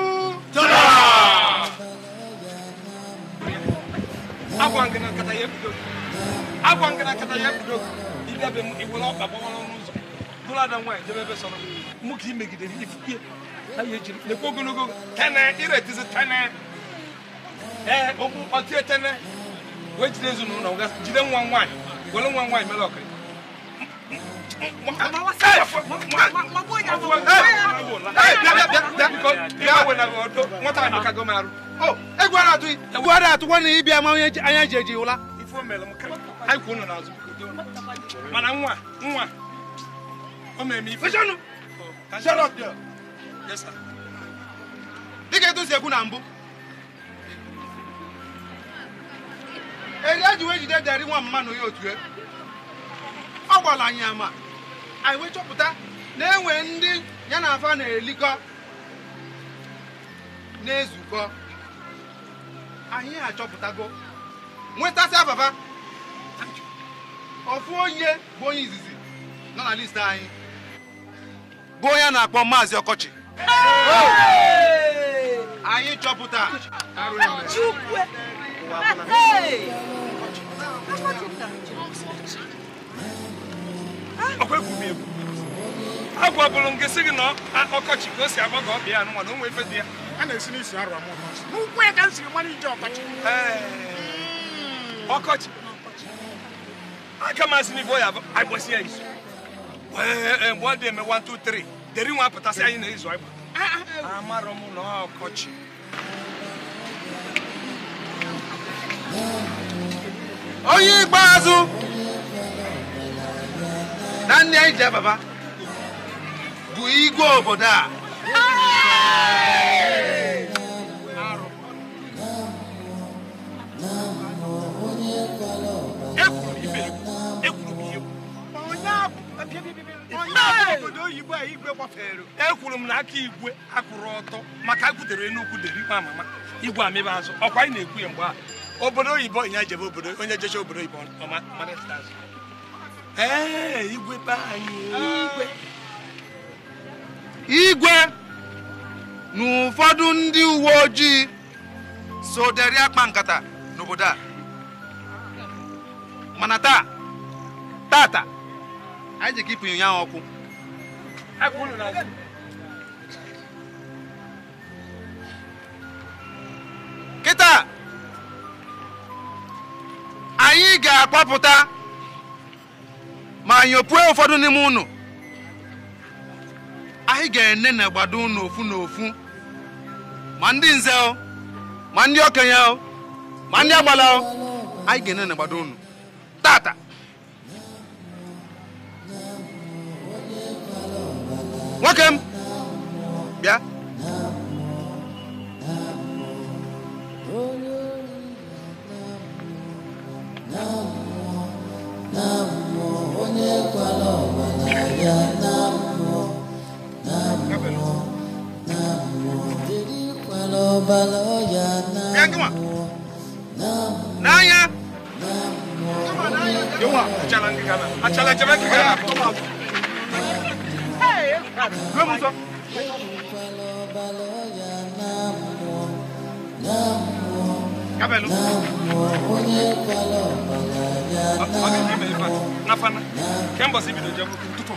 agwa ngana nkata ya ebido agwa ngana nkata ya ebido ịbịabe m iwere ọkpa gbawara n'ụzọ bụrụ ada nwaanyị jebe ebe sọrọ mụ ka imegidere ifukie ha ya ejiri na-ekwu ogologo tene iretizi tene ee okwu ọtie tene wee jide ezinụlọ ga jide nwa nwaanyị were nwa nwaanyị mere ọkara egwu ada atụkwa na ịbịa ma onye anya ji eji ụla anyị kwụ ụlọ n'azụ mana nwa nwa o mere m ife dịka etu si ekwu na mbụ eri ji wee jide nwa mma ya otu e. ọ gwara anyị ama anyị wee chọpụta na enwe ndị ya na afa na-elikọ na-ezukọ anyị achọpụtago nwetasị ababa ofu onye bụ onye izizi nọ na listi anyị bụ onye a na-akpọ maazị ọkọchị anyị chọpụta ọkwa egwu m egwu agwabụrụ m gị sị gị na ọkọchị ka o si agba ka ọ bịa anụnwa na onwe ife dị ya a na-esi n'isi arụ amụ n'ụkwụ ya ka m siri mara ije ọkọchị ọkọchị aka m asị n'ife ọ ya agbasi ya isu mgbe ọ dị eme 1 2 3 deri nwa pụtasị anyị na-ezu ịgba amarọ m na ọkọchị onye ikpeazụ na ndị anyị ji ababa bụ igwe obodo a ekwuru m ihe ekwuru m ihe onye abụ ekwuru m na aka igwe akwụrụ ọtọ maka agwutere enugwu derikwa mama igwe amịba azụ ọkwa anyị na-ekwu ya mgbe a obodo oyibo ya jebe obodo onye jecha obodo oyibo igwe anyị igwe na ụfọdụ ndị uwe ojii so deri akpa nkata n'obodo a mana taa tata anyị ji kipụ ya ọkụ kịta anyị ga akpọpụta ma nyopue ụfọdụ n'ime unu anyị ga-ene na gbado unu ofu na ofu ma ndị nze ma ndị okenye ma ndị agbala anyị ga-ene na gbado unu tata Welcome. Yeah. Đưa mông xuống. À? Kabelo. Abi kime ifat? Nafana. Kemba sibi do jamu tutu.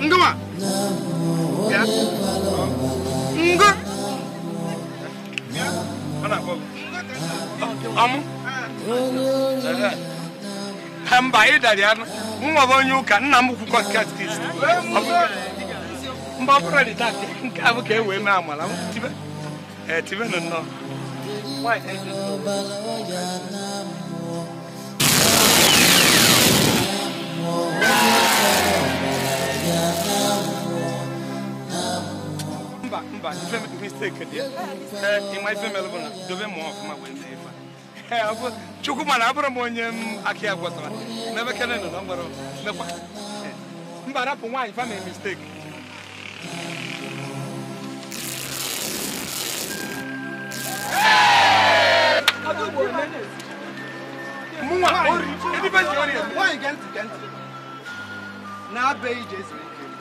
Nduma. Nduma. dara mba ịdara ya nwa bụ onye ụka nna m kwukwa katist mba ọbụrụ dị taa nke a bụ ka e wee mee amala tibenụ nnọọ mba mba ife mistake dị ịma ife mere bụ na dobe mmụọ ọfụma wee mee ife chukwuma na abụrụ m onye aki agwa n'ebe kene nọ na mgbara mekwa mba rapụ nwaanyị fa misteki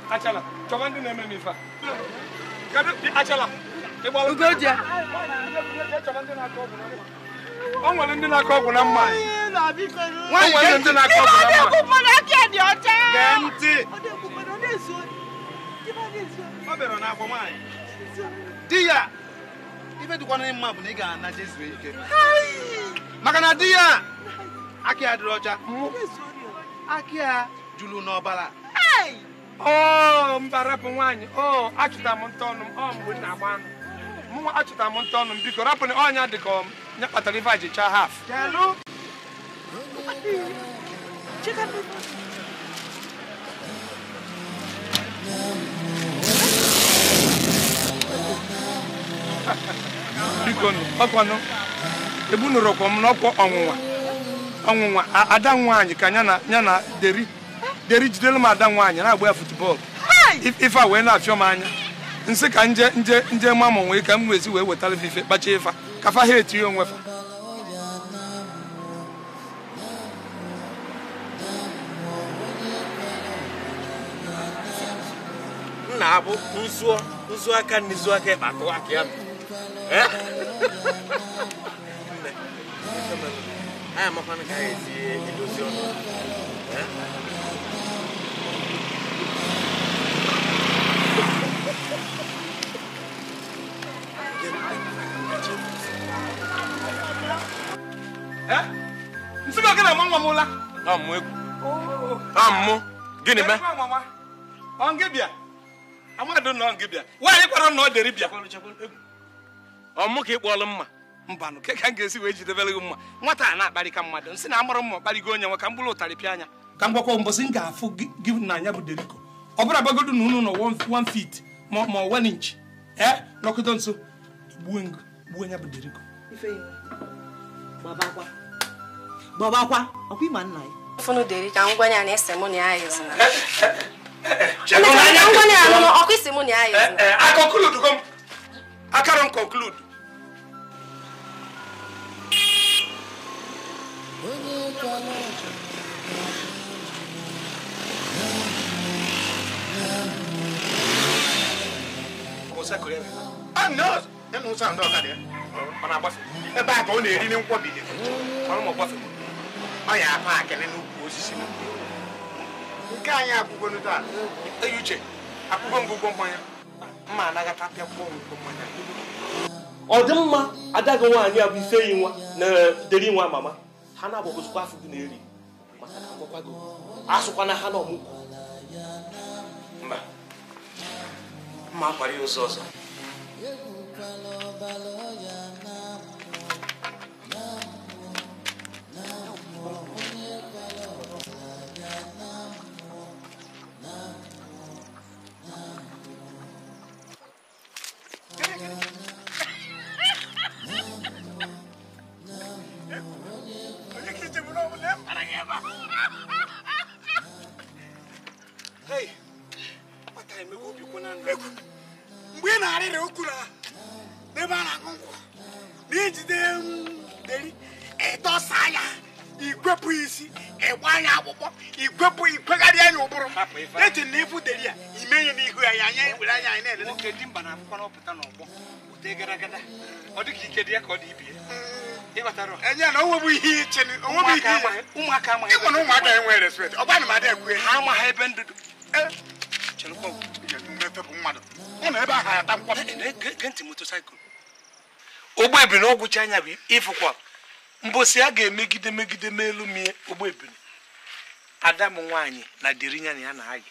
achala ndị na-eme m achala o nwere ndị na-akọ ọgwụ na mma nwere ndị na-akọ ọgwụ na mma ọ bịara nwaanyị ya ife na ị ga-ana na di ya akị ya ọcha akị ya juru n'ọbara mbara bụ nwaanyị achụta m mgbe na-agba anụ achụta m nta m biko rapụ na ọnya dị nye kpatara ife a ji chaa haf bikonu ọkwanụ ebunurokwa m n'ọkwa ọnwụnwa ọnwụnwa ada nwaanyị ka ya na deri deri jidelu m ada nwaanyị na-agba ya futbọọlụ ife a wee na-afịọ m anya nsị ka nje nje nje mamụ nwee ka m wezi wee wetara ife kpacha ifa Eh? ka fa ha não onwe fa na-abụ nzu aka na izu aka ịkpatụ aka ya anyị amakwana ka ha esi edozi ọnụ nsị gị na nwa nwa m la amụ gịnị mee ọngịbịa amadụ na ọngịbịa nwaanyị kwara na ọ dịrị bịa ọmụ ka ị kpọọlụ mma mbanụ ka m ga-esi wee jidebere gị mma nwata a na-akparị ka mmadụ nsị na amụrụ mma ọkparịgo onye nwe ka m bụrụ ụtarị pịa anya ka m gwakwa mbọsị m ga-afụ gị na anya bụ deriko ọ bụla gbagodo na unu nọ 1 feet ma ọ inch ee nọkọta nso gbuo ya bụ gbọbakwa ọkwa ịma nna ya funu deri ka ngwanye a na-ese mụ na ya yezina ngwanye a nụnụ ọkwa isi mụ na ya yezina akọkuludugo eh, eh, m akara m konkludu ebe a ka ọ na-eri nkwọbi ọrụ m ọgbafere ọ ya afọ akịlị n'ukwu osisi nke anyị akwụgonu taa eyi uche akwụgo ngwụgwọ mmanya mma anagata pịakwuo ngwụgwọ mmanya ọ dị mma adaghị nwaanyị a bụ ife yi nwa na deri nwa mama ha na-agbagozikwa afọ gị na-eri maka na agwakwago asụkwa na ha na ọmụgwọ mba mma akwara ya ụzọ ọzọ na okwuru n'ebe a na-aṅụ na ijide deri ịdọsa ikwepụ isi ịgba ya akpụkpọ ikwepụ ikwegharị anya ụbụrụ eji na ịfụ deri ya ime ihe n'ihu ya anya were anya anyị na-elele mba na akwụkwọ n'ọgbọ ụdị ọ ike dị ya ka ọ dị ibie mm. enye na onwebu ihe iche ụmụaka na ụmụaka ọ ekwe ha ebe bụ mmadụ na ebe ahụ ata nkwọ motosaịkụl ụgbọ ebiri na ọgwụcha anya bụ ịfụkwa mbosi a ga-emegide megide melu mie ụgbọ ebiri ada m nwaanyị na derinya na ya na ayị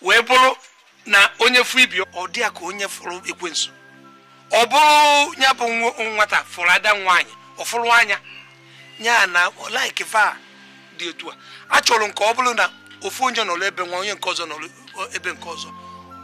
wee bụrụ na onye fụ ibi ọ dị ya ka onye fụrụ ekwensu ọ bụrụ ya bụ nwata fụrụ ada nwaanyị ọ fụrụ anya ya na laik fa dị otu a achọrọ nke ọ bụrụ na ofu onye nọrọ ebe nwa onye nke ọzọ nọrọ ebe nke ọzọ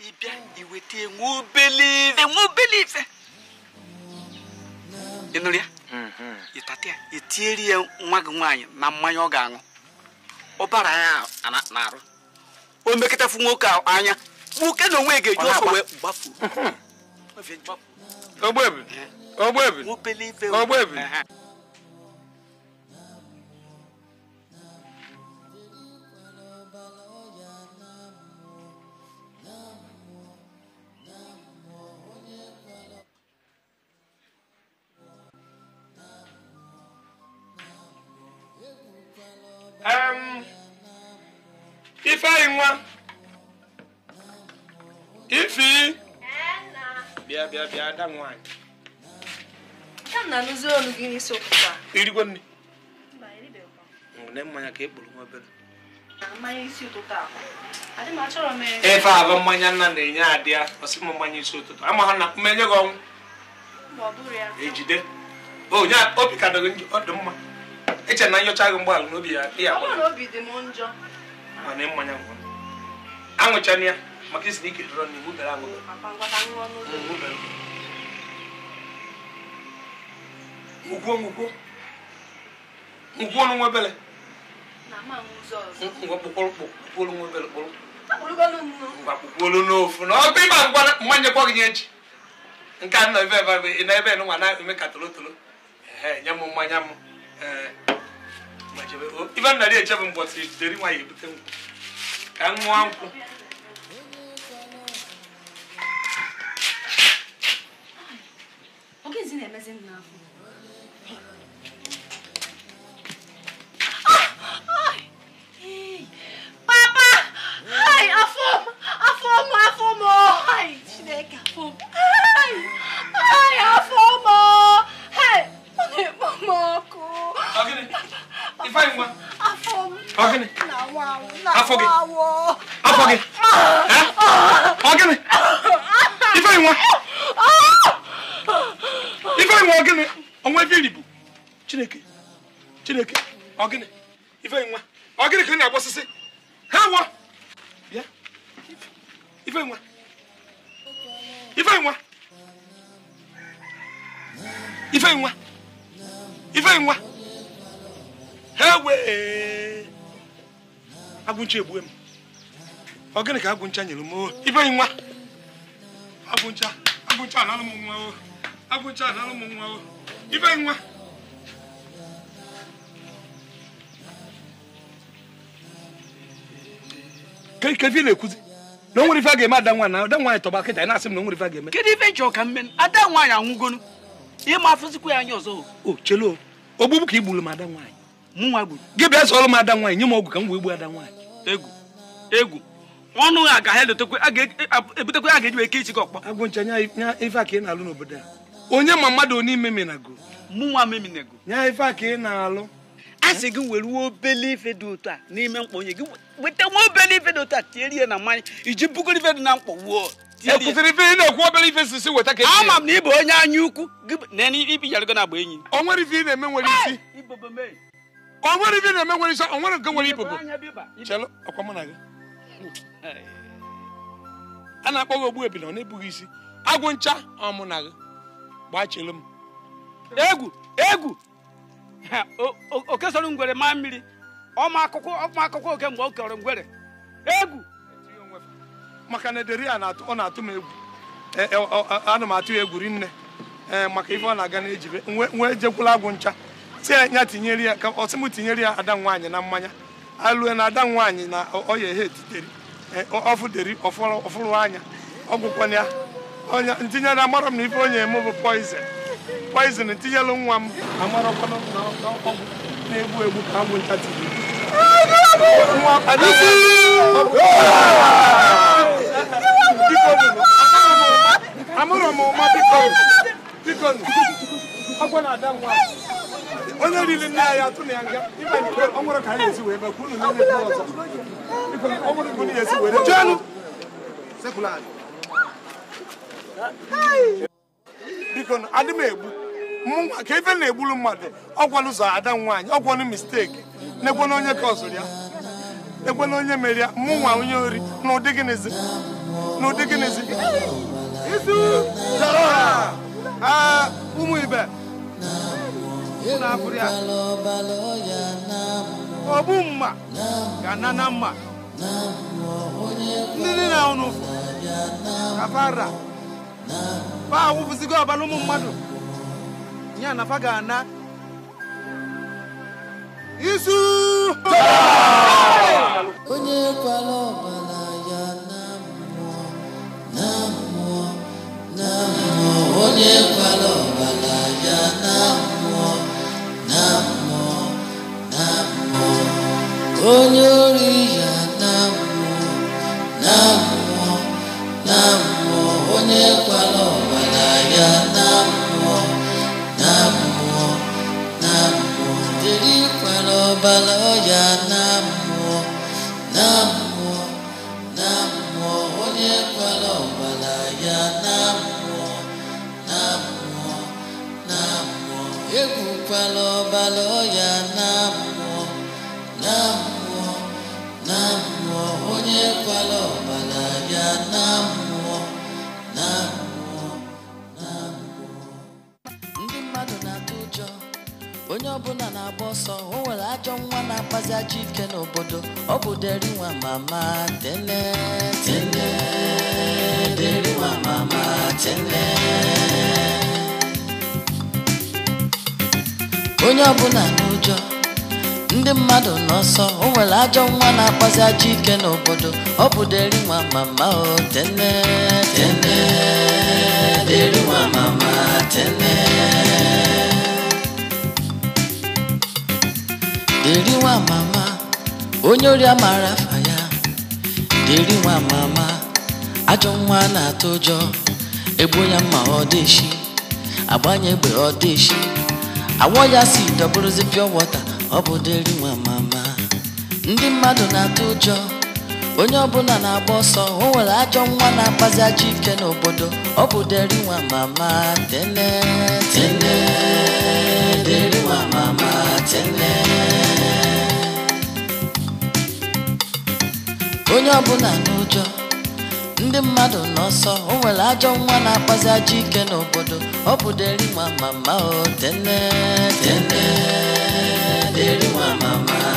ị bịa iweta enwe obele ife enwe obele ife ị ya ịtata ya etieri ya nwa gị nwaanyị na mmanya ọ ga-aṅụ ọbara ya na-arụ o mekọtafu nwoke anya nwoke na onwe ga-eji ọsọ wee gbafuo ogbebi ogbebi ogbebi ifeanyị nwa ifi bịa bịa bịa ada nwaanyị irigwe nne ngwune mmanya ka ekpuru nwa obere ife abụ mmanya nna na-enye adị ya ọsị m mmanya isi ụtụtụ ama ha na mmenye gị ọnwụ ejide e onye obi ka dịghị ọ dị mma eche na nyocha gị mgbaala n'obi ya ya mana mmanya ngwa ya maka isi na ike dọrọ n'iwu bere aṅụ ngwuo ngwuo ngwuo n'onwe ebele ngwa n'ofu na ọgụ ịba ngwa mmanya kwa gị nye echi nke a nọ ebe ebe na ebe nwa na-eme ka tolotolo nye m mmanya m ee na ife nna dị echebe mbọtị jidere nwaanyị ebute nkwụ ka m nwa nkwụ Ay, afọ m! Hey, ọ na-ekpo m ọkụ! ifa yi nwa. Afọ m. Ọ gịnị? Afọ gị. Afọ gị. Ọ gịnị? Ife yi nwa. Ife yi nwa ọ gịnị? Ọnwa ebe iri bụ Chineke. Chineke. Ọ gịnị? Ife yi nwa. Ọ gịnị ka ị na-agba osisi? Ha wọ. Bịa. Ife yi nwa. Ife yi nwa. Ife yi nwa. Ife wee agụncha egbue m ọ gịnị ka agụncha nyere m oh, ibe nwa agụncha agụncha analụ m nwa o oh. agụncha analụ m nwa o oh. ibe nwa kedu na-ekwuzi na onwere ife a ga-eme ada nwaanyị na ada nwaanyị tọba kịta na-asị m na onwere ife a ga-eme kedu ife nchọ ka mmen ada nwaanyị anwụgonu ịma afụzikwa ya anya ọzọ o chelo ogbugbu ka igburu m ada nwaanyị gị bịa sọrọ m ada nwaanyị nye m ọgwụ ka m wee gbuo ada nwaanyị egwu egwu ọnụ ha ga ha ebutekwe a ga-eji eke ichike ọkpọ agụncha nya ife a ka ị na-alụ n'obodo a onye ma mmadụ onye meminago mụnwa meminago nya ife a ka ị na-alụ a sị gị were uwe obele ife dị otu a n'ime mkpa onye gị weta nwa obele ife dị otu a tierie na mmanya iji bugoro ife dị na mkpa wuo kwụsịrị ife obere ife e ama m na ị onye anya ukwu gị na agba enyi o nwere ife ị na-eme nwere isi ka ọ nwere ibe na-eme nwere isi ọ nwere nke nwere ibubo chelụ ọkwa mụ na gị a na-akpọ gị ogbu ebila ọ na-ebughị isi agwụ ncha ọmụ na gị gbaa chelu m egwu egwu oke soro ngwere maa mmiri ọma akụkọ ọma akụkọ oke mgbe ọ kọrọ ngwere egwu maka na ederi a ọ na-atụ m egwu e, e, anụ m atụ ya egwu nne e, maka ife ọ na-aga na ejibe nwe ejekwula agwụ ncha si ya tinyere ya ka ọsị m tinyere ya ada nwaanyị na mmanya alue na ada nwaanyị na ọya ehe etiteri e, ọfụderi ọfụrụ anya ọgwụkwana ya onye ntinyere amara m na ife onye eme bụ poizin poizin tinyelụ nwa m amarakwana na ọgwụ na-egbu egbu ka amụ ncha amụrụ m ụma biko biko ọgwụ na ada onye riri nne ya ya atụ na ya nga ọ nwụrụ ka anyị esi wee mee kwuru na ihe ọzọ ọ ka bụ na esi were jenụ biko adị m egbu mụnwa ka ebe na-egburu mmadụ ọgwanụ zọ ada nwaanyị ọgwanụ misteki na-egwena onye ka ọzụrụ ya egwena onye mere ya mụnwa onye ori na ụdị gịnịzi na ụdị gịnịzi izu ụmụ ibe na-abụrụ ya ogbu mma ga-ana na mma ndị niile na ụnụ kafara fa awụpụzigo ọbara ụmụ mmadụ ya na fa ga-ana isu onye kwala ọbara ya na mmụọ na mmụọ na mmụọ onye kwala ọbala ya na mmụọ Namo, Namo, Onyoriya Namo, Namo, Namo, Onyekwala ọbara ya Namo, Namo, Namo, Jirikwala ọbara ya Namo, Namo, Namo, Onyekwala Namo, Namo, Namo. egwukwala ọbara ya na mmụọ na mmụọ na onye ọbara ya na mmụọ na mmụọ na ndị mmadụ na-atụ ụjọ onye ọbụla na-agba ọsọ o nwere ajọ nwa na-akpazi ajọ ike n'obodo ọ bụ derinwa mama tene tene mama tene onye ọbụla n'ụjọ ndị mmadụ n'ọsọ o nwere ajọ nwa na-akpazi ajọ ike n'obodo ọ bụ deri nwa mama o tene tene deri nwa mama tene deri nwa mama onye ori amara afa ya deri nwa mama ajọ nwa na-atụ ụjọ egbu ya mma ọ dịshi agbanye egbe ọ awọ ya si dọbụrụzi pịọ wọta ọ bụ deri nwa mama ndị mmadụ na-atụ ụjọ onye ọbụla na-agba ọsọ o nwere ajọ nwa na-akpazi ajọ ike n'obodo ọ bụ deri nwa mama tene tene deri nwa mama tene onye ọbụla n'ụjọ ndị mmadụ n'ọsọ o nwere ajọ nwa na-akpazi ajọ ike n'obodo ọ bụ deri nwa mama o tene tene deri nwa mama